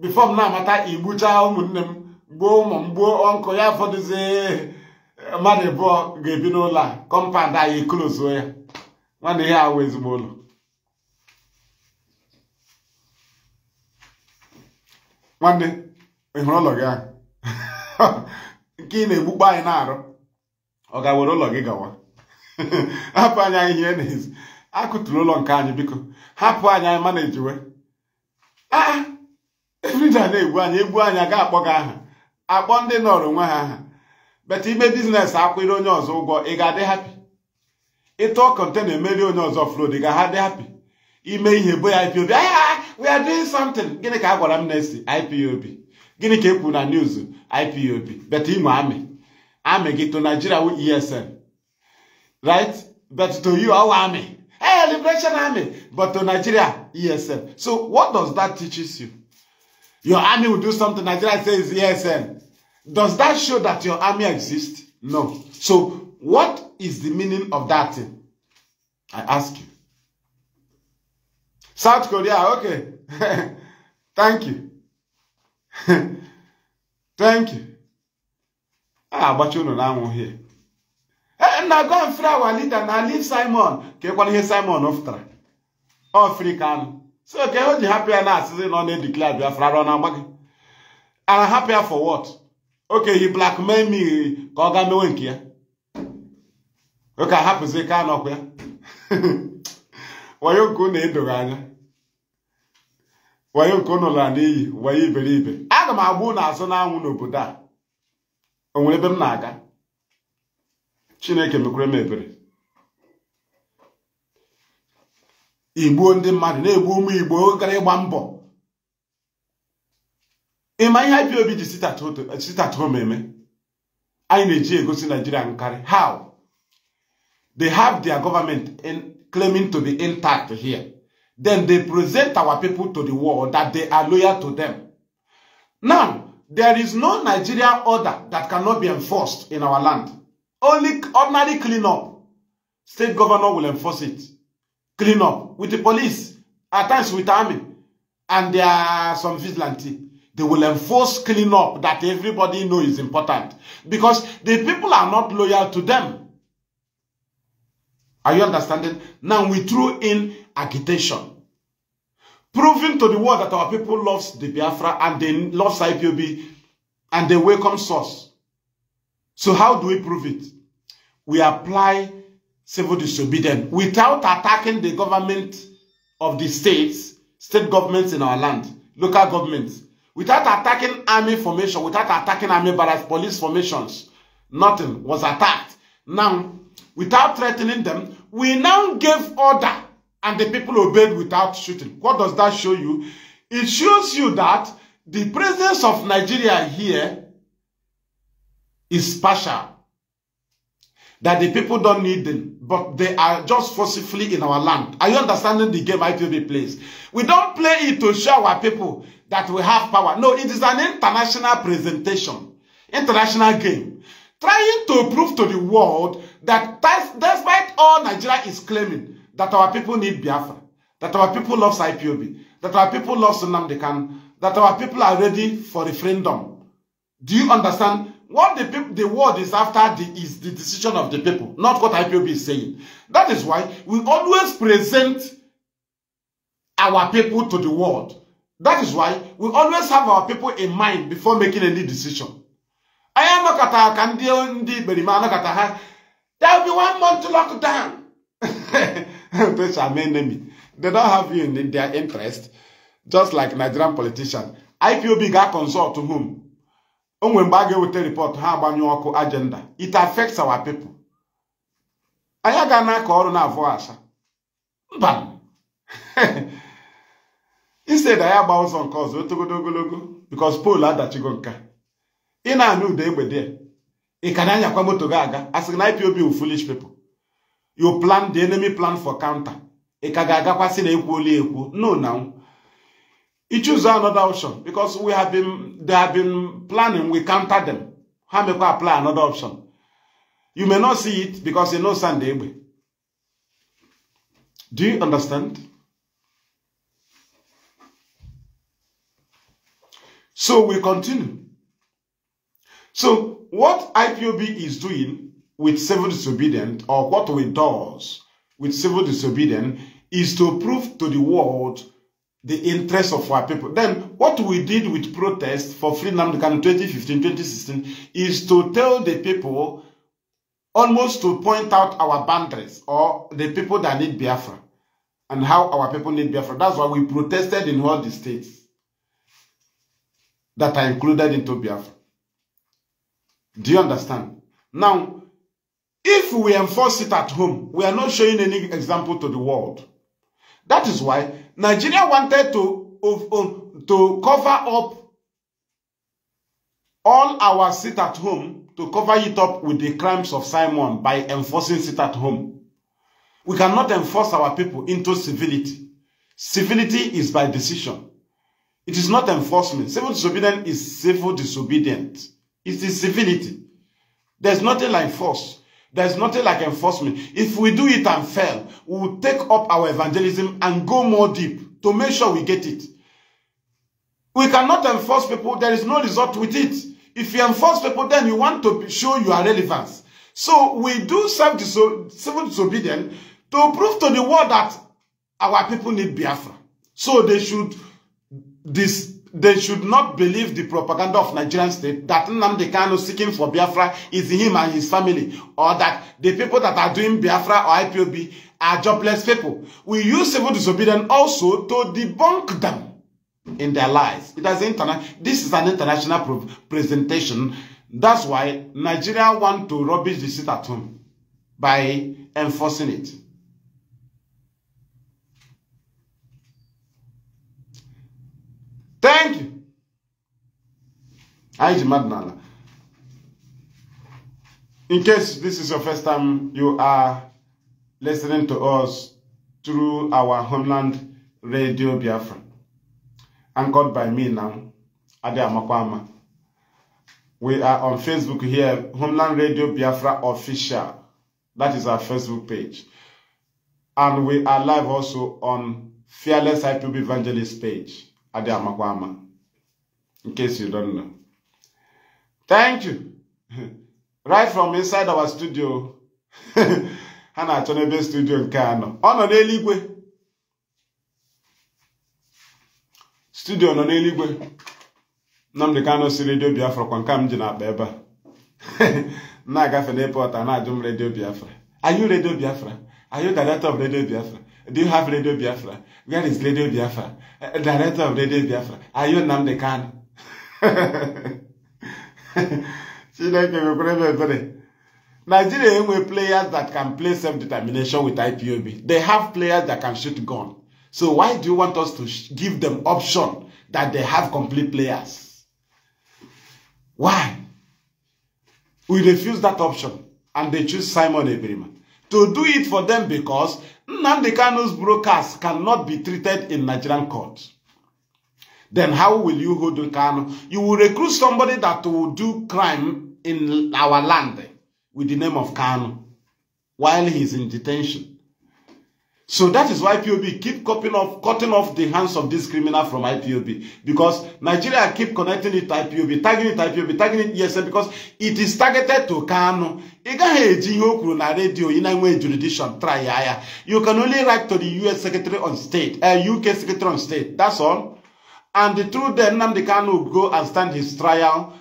bifọ m na-amata igbuchaa ụmụnne m gbuo ụmụ m gbuo ọnkụ ya fọdụzie mmadụ abụọ ga-ebi n'ụlọ a kọmpandụ anyị eklozuo ya nwanne ihe awụ ezigbo ụlọ nwanne ị hụrụ ụlọ gị ahụ (laughs) nke ị na-egbukpa anyị na-arụ ọ ga-were ụlọ gị gawa (laughs) hapụ anyị anyị ihe na akụtụrụ ụlọ nke anyị biko hapụ anyị anyị mana ejiwe aa na-egbu anyị egbu anyị aga akpọ gị aha akpọ ndị nọrọ onwe ha aha beta ime biznes akwụrụ onye ọzọ ụgwọ ị ga-adị hapi ịtụ ọkọnte na-emeri onye ọzọ flod ga ha dị hapi ime ihe bo ya ipob aya ah, ah, ah, we are doing something gịnị ka a gwara m na-esi ipob gịnị ka e kwuru na news ipob bet imo amị amị gị to nigeria wu esn right bet to you our army hey liberation army but to nigeria esn so what does that teaches you your army will do something nigeria says esn does that show that your army exists no so what is the meaning of that thing? I ask you. South Korea, okay. (laughs) Thank you. (laughs) Thank you. Ah, but you know now here. And eh, now go and free our leader. Now leave Simon. Okay, what is Simon after? African. So okay, how the happy and us is not declared we are from And I'm happier for what? Okay, he blackmailed me. Koga me ya? ụka hapụzi ka anọkwa ya wayo nke unu edoghị anya wayo nke unu lara n'iyi wayo iberibe aga m agba unu azụ n'anwụ n'obodo a o nwere ebe m na-aga chineke mekwere m ebere igbuo ndị mmadụ na-egbu ụmụ igbo gara ịgba mbọ ịma ihe IPOB ji sitachom eme anyị na-eji egosi naijiria nkarị how They have their government in, claiming to be intact here. Then they present our people to the world that they are loyal to them. Now, there is no Nigeria order that cannot be enforced in our land. Only ordinary cleanup. State governor will enforce it. Clean up with the police, at times with army, and there are some vigilante. They will enforce clean up that everybody know is important because the people are not loyal to them. Are you understanding? Now we threw in agitation. Proving to the world that our people loves the Biafra and they loves IPOB and they welcome source. So how do we prove it? We apply civil disobedience without attacking the government of the states, state governments in our land, local governments, without attacking army formation, without attacking army barracks, police formations. Nothing was attacked. Now, without threatening them, we now gave order and the people obeyed without shooting. What does that show you? It shows you that the presence of Nigeria here is partial. That the people don't need them, but they are just forcefully in our land. Are you understanding the game ITV plays? We don't play it to show our people that we have power. No, it is an international presentation, international game trying to prove to the world that despite all Nigeria is claiming that our people need Biafra, that our people love IPOB, that our people love Sunamdekan, that our people are ready for referendum. Do you understand? What the, the world is after the, is the decision of the people, not what IPOB is saying. That is why we always present our people to the world. That is why we always have our people in mind before making any decision. anyị anọkọta ka ndị ndị ikperima anọkọta ha there be one month lockdown (laughs) those enemy they don't have you in their interest just like Nigerian politician IPOB ga-consult whom o nwere mgbe a ga-eweta report ha agbanyụ ọkụ agenda it affects our people anyị aga na-akọ ọrụ na-avụ asa mba (laughs) instead anyị agba ụzọ nke ọzọ otogodo ogologo because pool adachigo nka ị na-anụ ụda egbe dị ị ka na-anyakwa moto gị aga a sị na IPOB wu foolish people you plan the enemy plan for counter ị ka ga-agakwa sị na ekwuola ekwu no na i choose another option because we have been they have been planning we counter them ha mekwa apply another option you may not see it because you know Sunday egbe do you understand so we continue So what IPOB is doing with civil disobedience, or what we does with civil disobedience, is to prove to the world the interest of our people. Then what we did with protest for freedom in 2015, 2016 is to tell the people almost to point out our boundaries or the people that need Biafra and how our people need Biafra. That's why we protested in all the states that are included into Biafra. Do you understand? Now, if we enforce it at home, we are not showing any example to the world. That is why Nigeria wanted to, to cover up all our sit at home, to cover it up with the crimes of Simon by enforcing sit at home. We cannot enforce our people into civility. Civility is by decision. It is not enforcement. Civil disobedience is civil disobedience. It's the civility. There's nothing like force. There's nothing like enforcement. If we do it and fail, we will take up our evangelism and go more deep to make sure we get it. We cannot enforce people. There is no result with it. If you enforce people, then you want to show your relevance. So we do self -diso civil disobedience to prove to the world that our people need Biafra. So they should this they should not believe the propaganda of Nigerian state that Nnamdi Kanu seeking for Biafra is him and his family, or that the people that are doing Biafra or IPOB are jobless people. We use civil disobedience also to debunk them in their lies. It has interna this is an international presentation. That's why Nigeria want to rubbish the seat at home by enforcing it. Thank you. I Aiji Madnala. In case this is your first time you are listening to us through our homeland radio Biafra, anchored by me now, Ade Amakwama. We are on Facebook here, Homeland Radio Biafra Official. That is our Facebook page. And we are live also on Fearless IPB Evangelist page. adị amakwa ama nke si donna thank you (laughs) right from inside our studio (laughs) ha na-achọ n'ebe studio nke anọ ọ nọ n'eluigwe studio nọ n'eluigwe Nnamdi Kanu si redio Biafra kwa nke m ji na-akpa ebe a (laughs) na-agafe n'epọt na-ajụ m redio Biafra are you redio Biafra are you director of redio Biafra Do you have Radio Biafra? Where is Radio Biafra? Uh, director of Radio Biafra. Are you Nnamdi Kanu? (laughs) Chineke nwekwara ebe ebere. Nigeria enwe players that can play self-determination with IPOB. They have players that can shoot gun. So why do you want us to give them option that they have complete players? Why? We refuse that option and they choose Simon Ebrima. To do it for them because Nnamdi Kanu's brokers cannot be treated in Nigerian court. Then how will you hold Kanu? You will recruit somebody that will do crime in our land with the name of Kanu while he's in detention. So that is why POB keep cutting off, cutting off the hands of this criminal from IPOB because Nigeria keep connecting it to IPOB, tagging it to IPOB, tagging it Yes, because it is targeted to Kanu. Ị gaghị eji ihe o kwuru na redio ị na-enwe jurisdiction try You can only write to the US Secretary on State, uh, eh, UK Secretary on State, that's all. And through them, Nnamdi Kanu go and stand his trial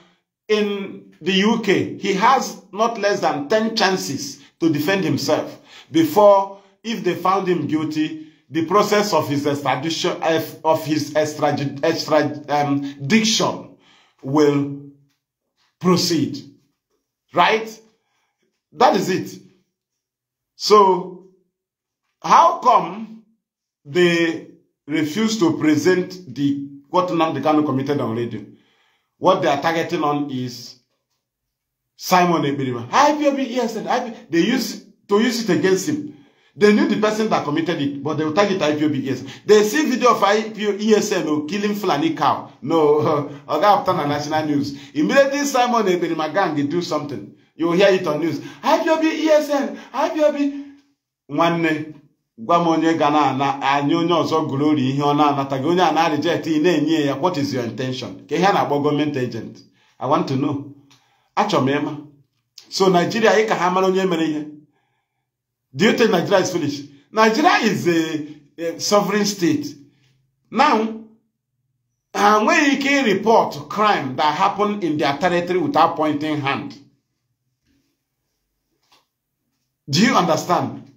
in the UK. He has not less than 10 chances to defend himself before if they found him guilty, the process of his extradition, eh, of his extradition um, will proceed. Right? That is it. So, how come they refuse to present the what the Namdekano committed on radio? What they are targeting on is Simon Ebirima. IPOB, yes, they use to use it against him. They knew the person that committed it, but they will target IPOB ESN. They see video of IPO ESN oh, killing Fulani cow. No, (laughs) Oga Upton na National News. Immediately Simon Ebenimagan, they do something. You will hear it on news. IPOB ESN, IPOB. Nwanne, gwa m onye ga na-anya onye ọzọ gụrụ ihe ọ na-anataghị onye a na-reject ị na-enye ya what is your intention? Ka ihe a na-akpọ gọọmenti agent. I want to know. Achọ m ịma. So Nigeria, ị ka ha mara onye mere ihe. Do you think Nigeria is finished? Nigeria is a, a sovereign state. Now, and uh, when you can report crime that happened in their territory without pointing hand. Do you understand?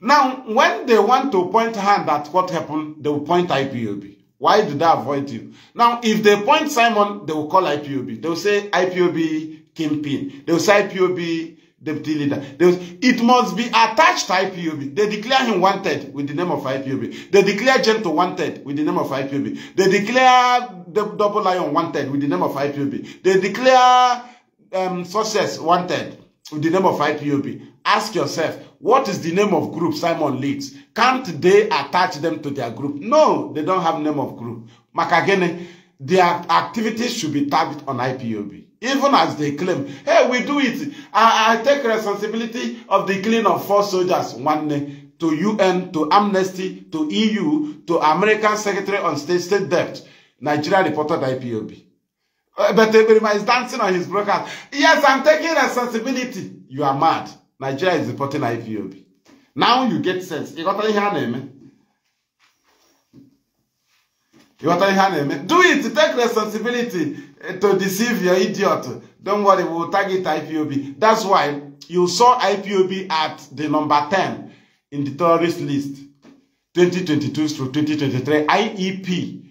Now, when they want to point hand at what happened, they will point IPOB. Why do they avoid you? Now, if they point Simon, they will call IPOB. They will say IPOB kingpin. They will say IPOB deputy leader. They, it must be attached to IPOB. They declare him wanted with the name of IPOB. They declare Gentle wanted with the name of IPOB. They declare the Double Lion wanted with the name of IPOB. They declare um, Success wanted with the name of IPOB. Ask yourself, what is the name of group Simon leads? Can't they attach them to their group? No, they don't have name of group. Makagene, their activities should be tagged on IPOB even as they claim. Hey, we do it. I, I take responsibility of the killing of four soldiers one day eh, to UN, to Amnesty, to EU, to American Secretary on State, State Debt. Nigeria reported IPOB. Uh, eh, but Ebrima is dancing on his broken. Yes, I'm taking responsibility. You are mad. Nigeria is reporting IPOB. Now you get sense. You got your name. Eh, you got your name. Do it. Take responsibility. Eh, to deceive your idiot. Don't worry, we will target IPOB. That's why you saw IPOB at the number 10 in the terrorist list 2022 through 2023 IEP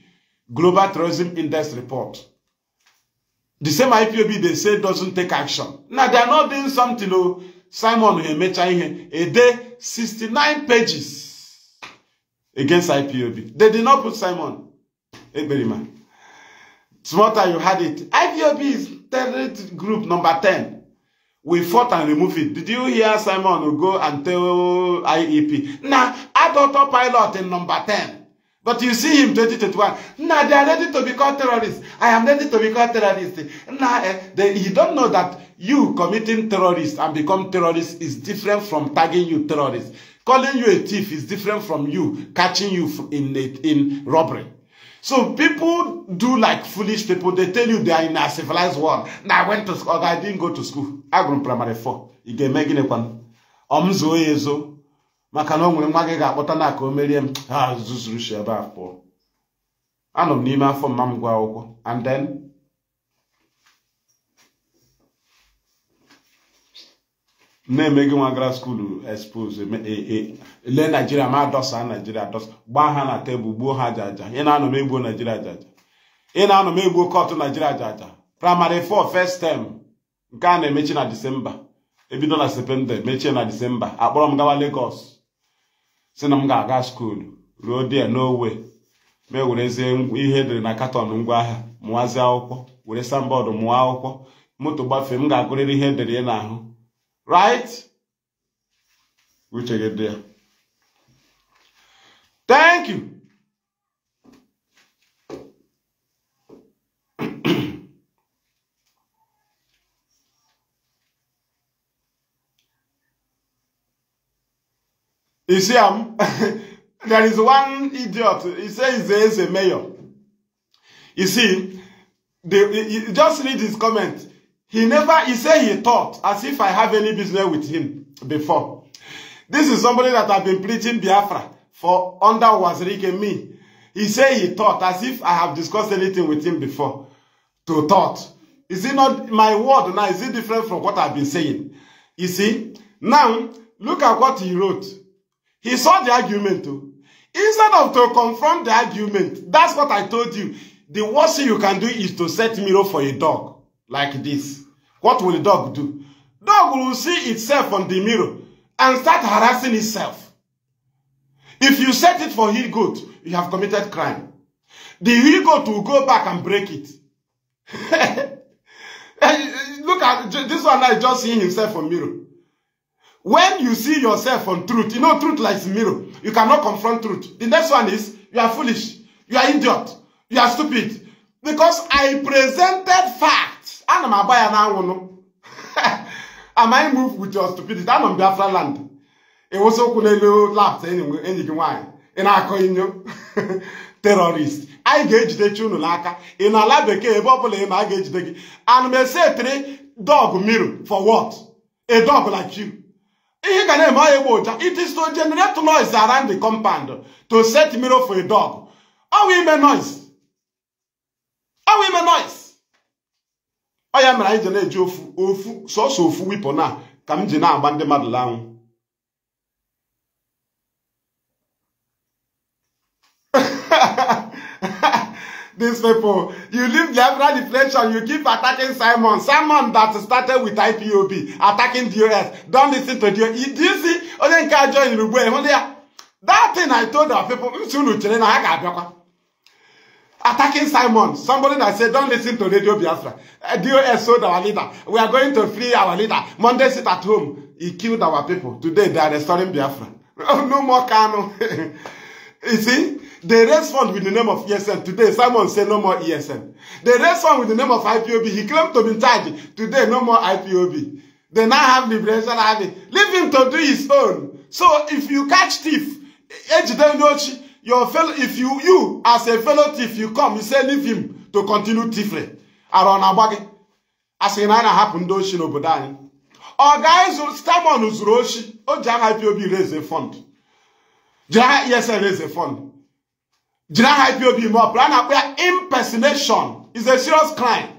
Global Terrorism Index Report. The same IPOB they say doesn't take action. Now they are not doing something. Oh, Simon Emecha Ihe, a day 69 pages against IPOB. They did not put Simon Eberima. Smarter, you had it. IPOB is terrorist group number 10. We fought and removed it. Did you hear Simon go and tell IEP? Now, adult pilot in number 10. But you see him 2021. Now, they are ready to be called terrorists. I am ready to be called terrorists. Now, eh, they, you don't know that you committing terrorists and become terrorists is different from tagging you terrorists. Calling you a thief is different from you catching you in, in robbery. So people do like foolish people. They tell you they are in a civilized world. Now I went to school. I didn't go to school. I grew primary four. You get me gịnị kwanụ? Ọ m zoo ya ezo maka na o nwere nwa gị ga-akpọta na ka o merie m ha zuzuru shi ebe a pụọ. Anọ m n'ime afọ mma m gwa akwụkwọ and then na emeghị nwa gara skul expose e, e, lee naijiria ma dọsa naijiria dọsa gbaa ha na tebụl gbuo ha jaja ị na-anọ m egbuo naijiria ajaja ị na-anọ egbuo kọtụ naijiria jaja praịmarị 4 first tem nke a na-emechi na disemba ebido na septemba mechie na disemba akpọrọ m gawa Lagos si na m ga-aga skuulu ruo die n'owe ma ewerezie ihe edere na katọn ngwaahịa mụwazie akwụkwọ were sambọọdụ mụọ akwụkwọ moto gbafee m ga-agụrịrị ihe edere na n'ahụ Right? we take it there. Thank you. (coughs) You see, um, (laughs) there is one idiot. He says there is a mayor. You see, they, he, he just read his comment. He never, he said he thought as if I have any business with him before. This is somebody that I've been preaching Biafra for under Wazirike and me. He said he thought as if I have discussed anything with him before. To thought. Is it not my word now? Is it different from what I've been saying? You see? Now, look at what he wrote. He saw the argument too. Instead of to confront the argument, that's what I told you. The worst thing you can do is to set mirror for a dog like this. What will the dog do? Dog will see itself on the mirror and start harassing itself. If you set it for he goat, you have committed crime. The he goat will go back and break it. (laughs) Look at this one I just seeing himself on mirror. When you see yourself on truth, you know truth lies mirror. You cannot confront truth. The next one is you are foolish, you are idiot, you are stupid. Because I presented fact ana m agba ya n'anwụnụ (laughs) am I moved with your stupidity ana m Biafra land ịwụsị ụkwụ n'elu laptọ enyi gị nwaanyị ị na-akọ inyo (laughs) terrorist anyị ga-ejidechi unu n'aka ị na ala bekee ebe ọ bụla ị ma a ga-ejide gị ana m ese dog miro for what a dog like you ihe ga na-eme ọya egbe ụja it is to generate noise around the compound to set mirror for a dog ọwụ ime noise ọwụ ime noise ọ mere anyị ji na-eji ofu ofu sọsọ ofu wipụ na ka m ji na-agba ndị mmadụ laanwụ (laughs) these people. You leave the Biafra deflation. you keep attacking Simon. Simon that started with IPOB, attacking DOS. Don't listen to DOS. Do you see? Only encourage you in That thing I told our people, I'm soon to tell you, I can't attacking Simon. Somebody that said, don't listen to Radio Biafra. Eh, DOS sold our leader. We are going to free our leader. Monday sit at home. He killed our people. Today they are restoring Biafra. (laughs) Oh, no more Kano. (laughs) you see? They raised fund with the name of ESN. Today, Simon said no more ESN. They raised fund with the name of IPOB. He claimed to be in charge. Today, no more IPOB. They now have Liberation Army. Leave him to do his own. So if you catch thief, Ejide Nochi, your fellow if you you as a fellow thief you come you say leave him to continue thievery ara ọ na-agba gị asị na a na-ahapụ ndị oshi n'obodo anyị ọ ga-ezuru stamon zuru oshi o ji aha ipob reze fond jiri aha esn reze fond jiri aha ipob mee ọpụrụ a na-akpọ ya impersonation is a serious crime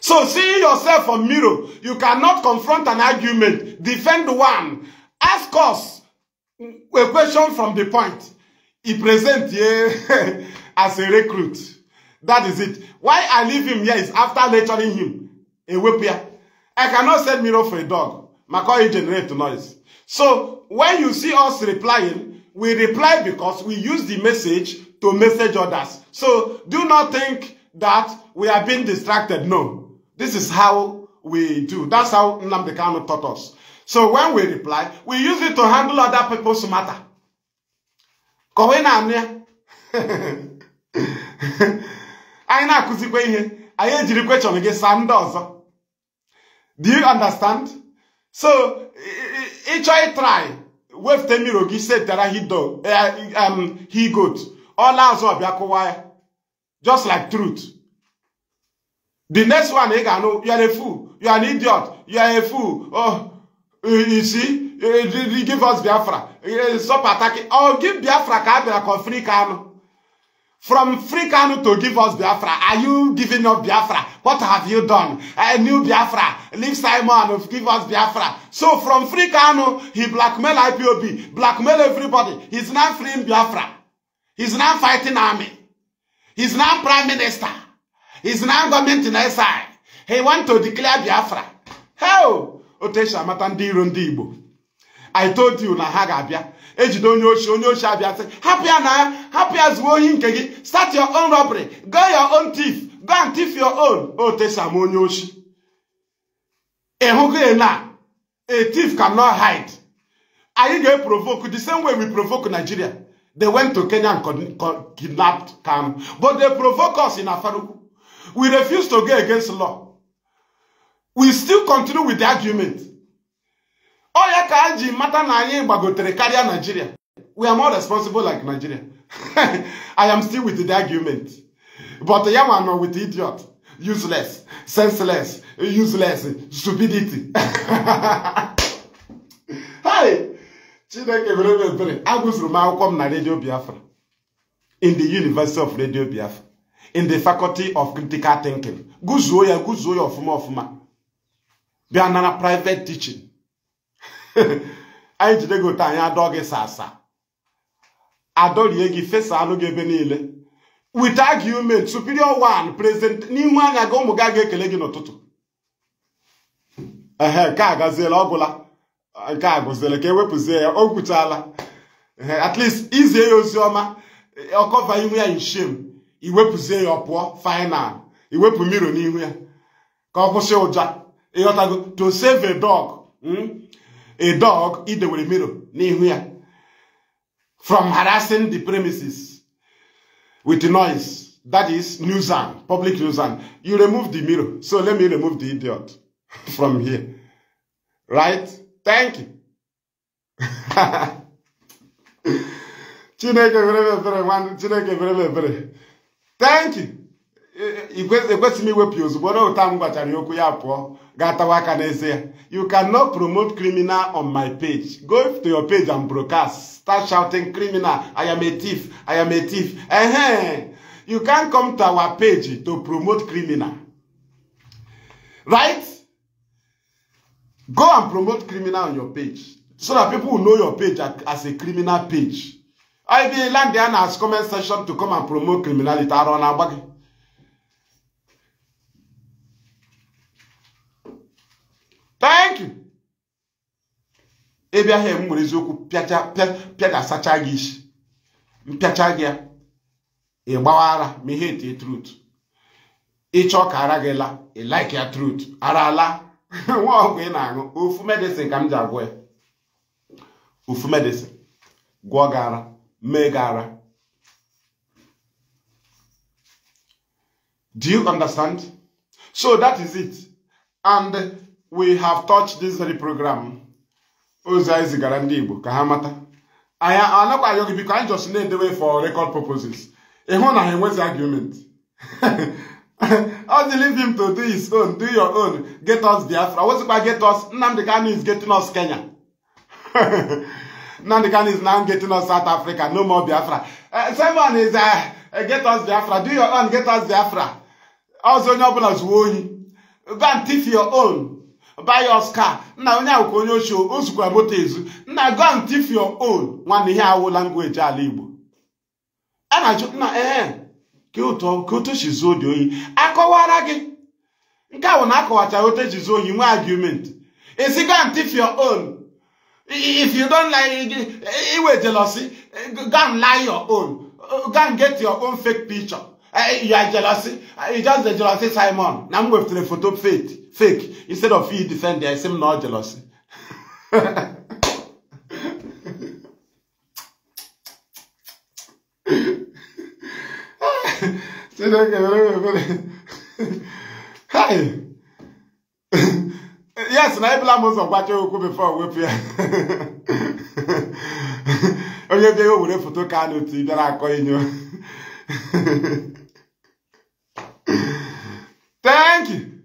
so see yourself on mirror you cannot confront an argument defend one ask us a question from the point He present here (laughs) as a recruit. That is it. Why I leave him here is after lecturing him. A whipper. I cannot send mirror for a dog. My McCoy generate noise. So when you see us replying, we reply because we use the message to message others. So do not think that we are being distracted. No. This is how we do. That's how Nnamdi Kanu taught us. So when we reply, we use it to handle other people's matter. kọwa ị na-anụ ya anyị na-akụzikwa ihe anyị ejiri kwechọn gị saa ndị ọzọ do you understand so ịchọ ịtrai wefute mmiri gị setara hido eh, um, he goat ọla azụ ọbịa kụwa ya just like truth the next one ị ga-anụ you are a fool you are an idiot you are a fool oh you see, eh, eh, give us Biafra. Eh, stop attacking. Oh, give Biafra Kabira free Kano. From free Kano to give us Biafra. Are you giving up Biafra? What have you done? A new Biafra. Leave Simon. Give us Biafra. So from free Kano, he blackmail IPOB. Blackmail everybody. He's not freeing Biafra. He's not fighting army. He's not prime minister. He's not government in SI. He want to declare Biafra. How? otu esi amata ndị iro ndị Igbo I told you na ha ga-abịa ejide onye ochi onye ochi abịa sị hapụ ya na ya hapụ ya zuo ohi nke gị start your own robbery go your own thief go and thief your own otu esi ama onye ochi ịhụgo na a thief cannot hide anyị ga-eprovoke the same way we provoke Nigeria they went to Kenya and kidnapped Kanu but they provoke us in Afaruku we refuse to go against law we still continue with the argument ọ ka anyị ji mata na anyị gbagotere karịa Nigeria we are more responsible like Nigeria (laughs) I am still with the argument but ya nwa nọ with idiot useless senseless useless stupidity hi (laughs) Chineke mere m ebere agụzuru m akwụkwọ m na Radio Biafra in the University of Radio Biafra in the Faculty of Critical Thinking gụzuo ya gụzuo ya ọfụma ọfụma bịa na private teaching anyị jide gị ụta anyị adọ gị sasa adọrie gị fesa anụ gị ebe niile with argument superior one president n'ihu anya gị ụmụ gị a ga-ekele gị n'ụtụtụ ehe nke a gaziela ọgwụla nke a ka ewepụzie ya o gwuchaala at least izie ya ozi ọma ọkọva ihu ya inshem iwepụzie ya ọ pụọ final iwepụ mmiri n'ihu ya ka ọ kwụsị ụja to save a dog hmm? a dog idewere mirror n'ihu ya from harassing the premises with noise that is nuisance public nuisance you remove the mirror so let me remove the idiot (laughs) from here right thank you (laughs) chineke ebere nwanne chineke ebere thank you ekwesịghị iwepụ ozugbo m okwu ya pụọ Gatawaka Neze. You cannot promote criminal on my page. Go to your page and broadcast. Start shouting criminal. I am a thief. I am a thief. Uh -huh. You can't come to our page to promote criminal. Right? Go and promote criminal on your page. So that people will know your page as a criminal page. I be land there as comment section to come and promote criminality. I don't know. thank you ebe ahụ m e nwere eziokwu pịadasacha gị isi mpịacha gị ya ịgbawa ara ma ihe ete trut ịchọ ka ara gị la like ya trut ara ala (laughs) nwa ọgwụ ị na-aṅụ ofu medicine ka m ji agwọ ya ofu medicine gwọọ gị ara mee gị ara do you understand so that is it and we have touched this very program ozi anyị zigara ndị Igbo ka ha mata anyị anakwaghị gị biko anyị just na-edewe for record purposes ịhụ na ha enwezi argument (laughs) ọ dị leave him to do his own do your own get us Biafra wezikwa get us Nnamdi Kanu is getting us Kenya (laughs) Nnamdi Kanu is now getting us South Africa no more Biafra eh, someone is eh, eh, get us Biafra do your own get us Biafra ọzọ onye ọbụla zuo oyi go and thief your own bioscar nna onye ahụ ka onye ochie o zukwa moto ezu nna go and thief your own nwanne ihe awụ language ala igbo a na-achụ nna ee ka ụtọ ka otu e si zuo dị oyi akọwara gị nke ahụ na-akọwacha otu ji e zuo ohi nwee argument isi go and thief your own if you don't like iwe jealousy go and lie your own go and get your own fake picture eh, you are jealousy eh, you just the jealousy Simon na m weftere foto faith fake. Instead of you defend there, I seem not jealousy. Hi. yes, blame us mo what you oku before we Oh, Onye bi o wure photo card. ka no ti bịara akọ you. Thank you.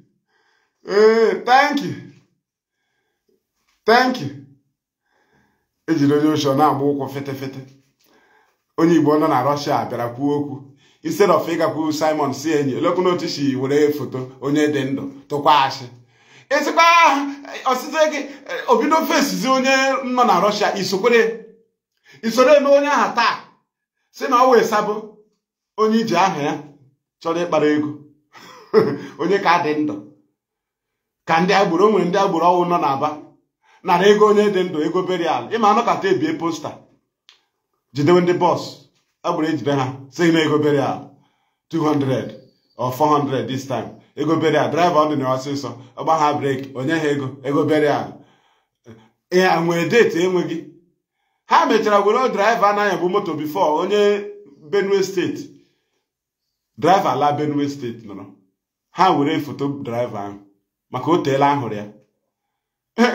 ee eh, thank you thank you ejiri onye ochie na-agba ụkwụ fete fete onye igbo nọ na rọshia bịara kwuo okwu instead of ịgakwu simon si enyi elekwu n'otu si were foto onye dị ndụ tụkwa asị ịsịkwa osite gị obido fesizi onye nọ na rọshia isoro eme onye aha taa si na ọ wee sabụ onye iji aha ya chọrọ ịkpara ego (laughs) onye ka dị ndụ ka ndị agboro nwere ndị agboro ọnwụ nọ n'aba nara ego onye dị ndụ ego berial ịma anụ kata ebie posta jidewe ndị bọs agboro ejide ha sị na ego berial 200 or 400 this time ego berial draiva ọ dị na ọsịsọ ọgba ha breki onye ha ego ego berial ya nwee deti enweghị ha mechara were draiva anaghị bụ moto bifo onye benue steeti draiva ala benue steeti nọrọ ha were foto draiva ahụ maka o teela ahụrụ ya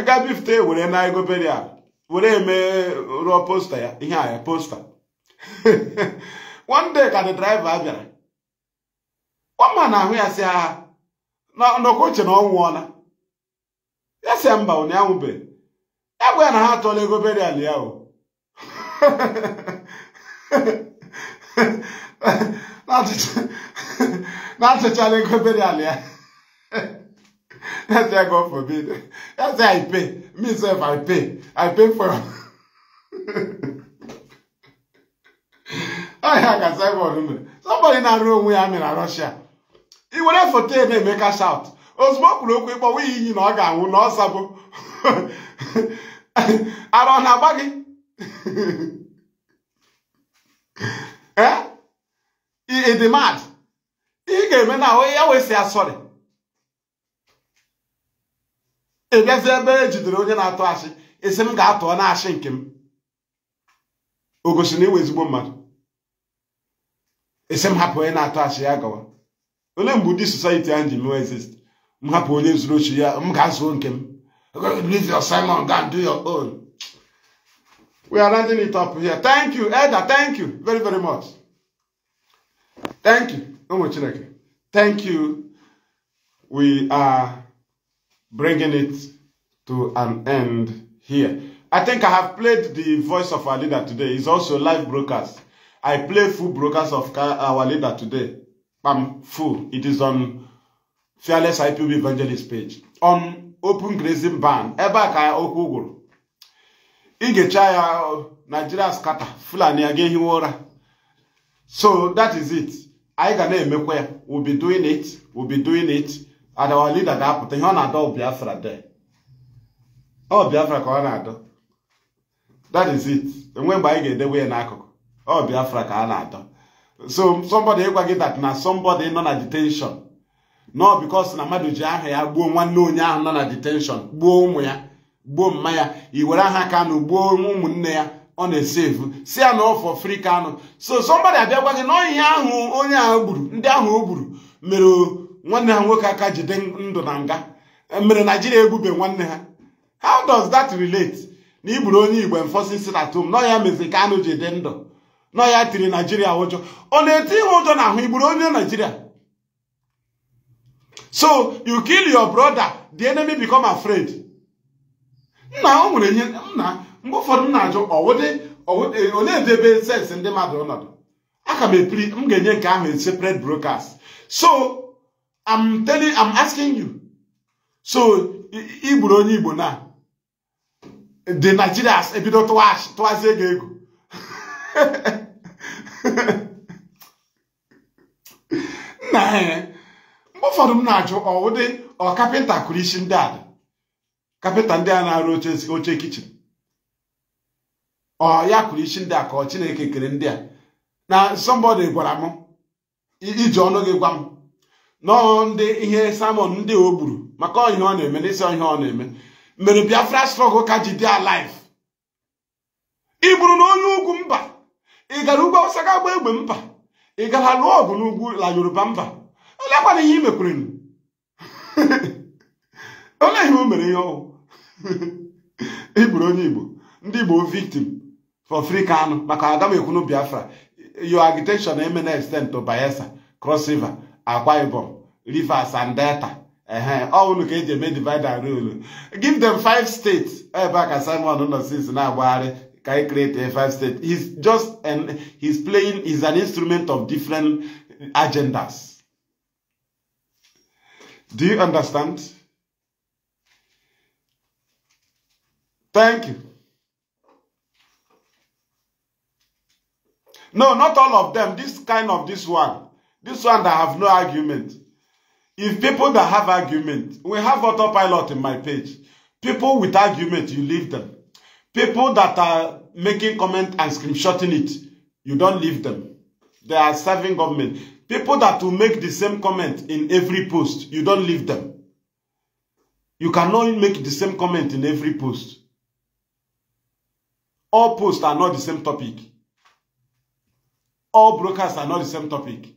gaa bifute were na ego berial were eme rụọ posta ya ihe a posta (laughs) one day ka the driver bịara ọma na ahụ ya si agha ndọkọuche na ọ nwụọla ya si mba ụnụ ya ya bụ ya na ha atọla egoberial ala ya o (laughs) (laughs) na-atụchala ego berial ya That's why God forbid. That's why I pay. Me sef I pay. I pay for. I can say one. Somebody na onwe ya am na Russia. He went for ten and make a shout. ozugbo kwuru okwu ịkpọ nwe iyi na ọ ga-anwụ na ọ sabụ ara ọ na-agba gị ee ịdị mad ihe ị ga-eme na ya wee sị asọrị ebiazi ebe e jidere onye na-atụ asị esi m ga-atụọ na asị nke m o gosi na iwe ezigbo mmadụ esi m hapụ onye na-atụ asị ya gawa ole mgbe ụdị society ahụ ji mewe exist m hapụ onye zuru ochi ya m ga-azụo nke m Simon go do your own we are rounding it up here thank you elder thank you very very much thank you ụmụ chineke thank you we are bringing it to an end here. I think I have played the voice of our leader today. It's also live broadcast. I play full broadcast of our leader today. I'm full. It is on Fearless IPB Evangelist page. On Open Grazing Ban. Ebe a ka okwu ya Nigeria scatter. Fulani aga ehi So that is it. Anyị ga na-emekwa We'll be doing it. We'll be doing it. adawa lida ga-apụta ihe ọ na-adọ Biafra de ọ Biafra ka ọ na-adọ that is it enwe mgbe anyị ga-edewe ya n'akụkụ ọ Biafra ka a na-adọ so somebody ịgwa gị that na somebody nọ na detention nọ because na mmadụ ji aha ya gbuo nwanne onye ahụ nọ na detention gbuo ụmụ ya gbuo mma ya i were aha Kanu gbuo ụmụnne ya ọ na-esevu si ya na ọfọ free Kanu so somebody abịa gwa gị na ihe ahụ onye ahụ gburu ndị ahụ o gburu mere nwanne ha nwoke aka jide ndụ na nga e mere naijiria egbube nwanne ha how does that relate na igburu onye igbo enforcing sit at nọ ya mezi ka ji jide ndụ nọ ya tiri naijiria ụjọ ọ na-eti ihe ụjọ na ahụ igburu onye naijiria so you kill your brother the enemy become afraid nna o nwere ihe nna mgbe ụfọdụ m na-ajụ e, onye debe sensị ndị mmadụ ọnọdụ aka m epiri m ga-enye nke ahụ separate broadcast so I'm telling, I'm asking you. So, igburu onye Igbo na the Nigerians ebido tụwachi tụwazie ego ego. Nna (laughs) ya, eh, mgbe m na-ajụ ụdị ọ kapịnta kụrụ isi ndị a kapịnta ndị a na-arụ oche kichin ọ ya kụrụ isi ndị a ka ọ Chineke kere ndị a na somebody gwara m iji ọnụ gị gwa m nọ ndị ihe samon ndị o gburu maka ihe ọ na-eme n'isi ihe ọ na-eme mere biafra strọgụ ka ji dị alive ị gburu na onye ugwu mba ị gara ugwu ọsa ga agba egbe mba ị gara lụọ ọgụ n'ugwu la yoruba mba olekwana ihe imekwurenụ (laughs) ole ihe o mere ihe ọwụ igburu onye igbo ndị igbo victim for free anụ maka aga ekwunu biafra yo agitation eme na extent bayelsa cross akwa ibom rivers and delta ọwụlụ ka eji eme divide and rule give them five states ebe a ka simon nọ since na-agbagharị ka e create a five state he's just an, he's playing he's an instrument of different agendas do you understand thank you no not all of them this kind of this one this one that have no argument If people that have argument, we have autopilot in my page. People with argument, you leave them. People that are making comment and screenshotting it, you don't leave them. They are serving government. People that will make the same comment in every post, you don't leave them. You cannot make the same comment in every post. All posts are not the same topic. All brokers are not the same topic.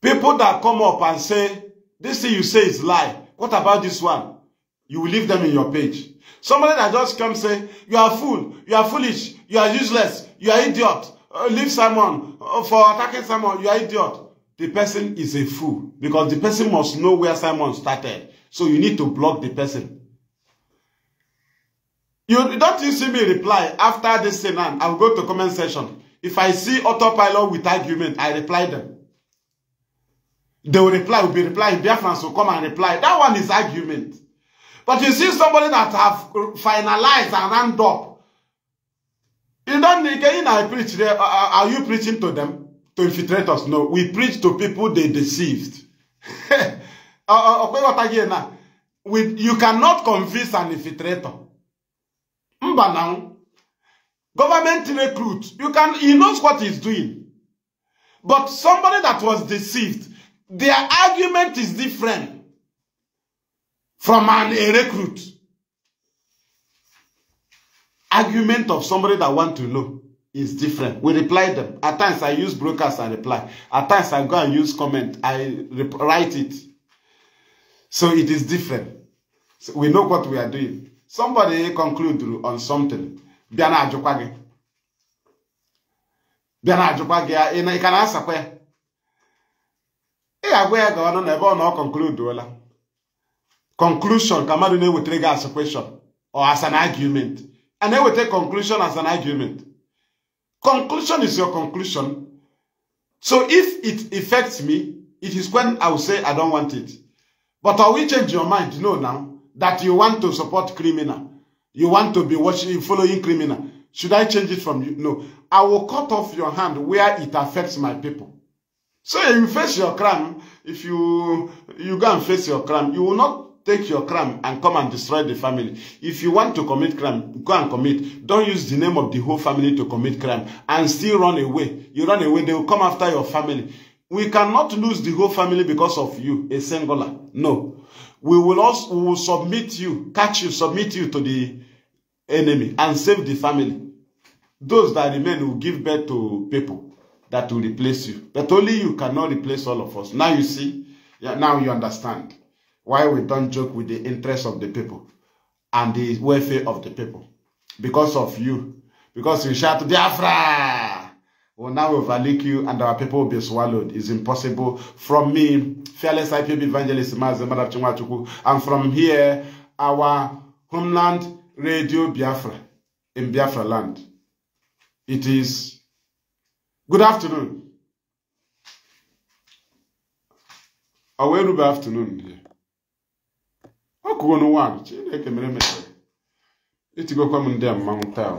People that come up and say, this thing you say is lie. What about this one? You will leave them in your page. Somebody that just come say, you are fool, you are foolish, you are useless, you are idiot. Uh, leave Simon uh, for attacking Simon, you are idiot. The person is a fool because the person must know where Simon started. So you need to block the person. You don't you see me reply after this thing, I will go to comment section. If I see autopilot with argument, I reply them. They will reply, will be replying. Biafrans will come and reply. That one is argument. But you see somebody that have finalized and hand up. You don't need you know, I preach there. Uh, uh, are you preaching to them? To infiltrators? No. We preach to people they deceived. With, (laughs) uh, you cannot convince an infiltrator. Mba now. Government recruit. You can he knows what he's doing. But somebody that was deceived, Their argument is different from an, a recruit. Argument of somebody that want to know is different. We reply them. At times I use brokers, I reply. At times I go and use comment, I write it. So it is different. So we know what we are doing. Somebody conclude on something. Biana Ajokwage. Biana Ajokwage, you can answer where? ị ga-agwa ya ga ọnụ na ebe ọ na ọ konkluduola conclusion ka mmadụ na-ewetara gị as question or as an argument a na-eweta conclusion as an argument conclusion is your conclusion so if it affects me it is when i will say i don't want it but i will change your mind no now that you want to support criminal you want to be watching following criminal should i change it from you no i will cut off your hand where it affects my people So you face your crime. If you you go and face your crime, you will not take your crime and come and destroy the family. If you want to commit crime, go and commit. Don't use the name of the whole family to commit crime and still run away. You run away, they will come after your family. We cannot lose the whole family because of you, a singular. No. We will also we will submit you, catch you, submit you to the enemy and save the family. Those that remain will give birth to people that will replace you. But only you cannot replace all of us. Now you see, yeah. now you understand why we don't joke with the interests of the people and the welfare of the people. Because of you. Because you shout, Biafra! Well, now we'll overlook you and our people will be swallowed. It's impossible. From me, fearless IPB evangelist Mazemara Chumwachuku, and from here, our homeland, Radio Biafra, in Biafra land. It is Good afternoon. Ọ wee rube afternoon dị ọ kụgo n'ụwa Chineke mere mere etigokwa m ndị a mmanwụ taa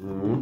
hmm?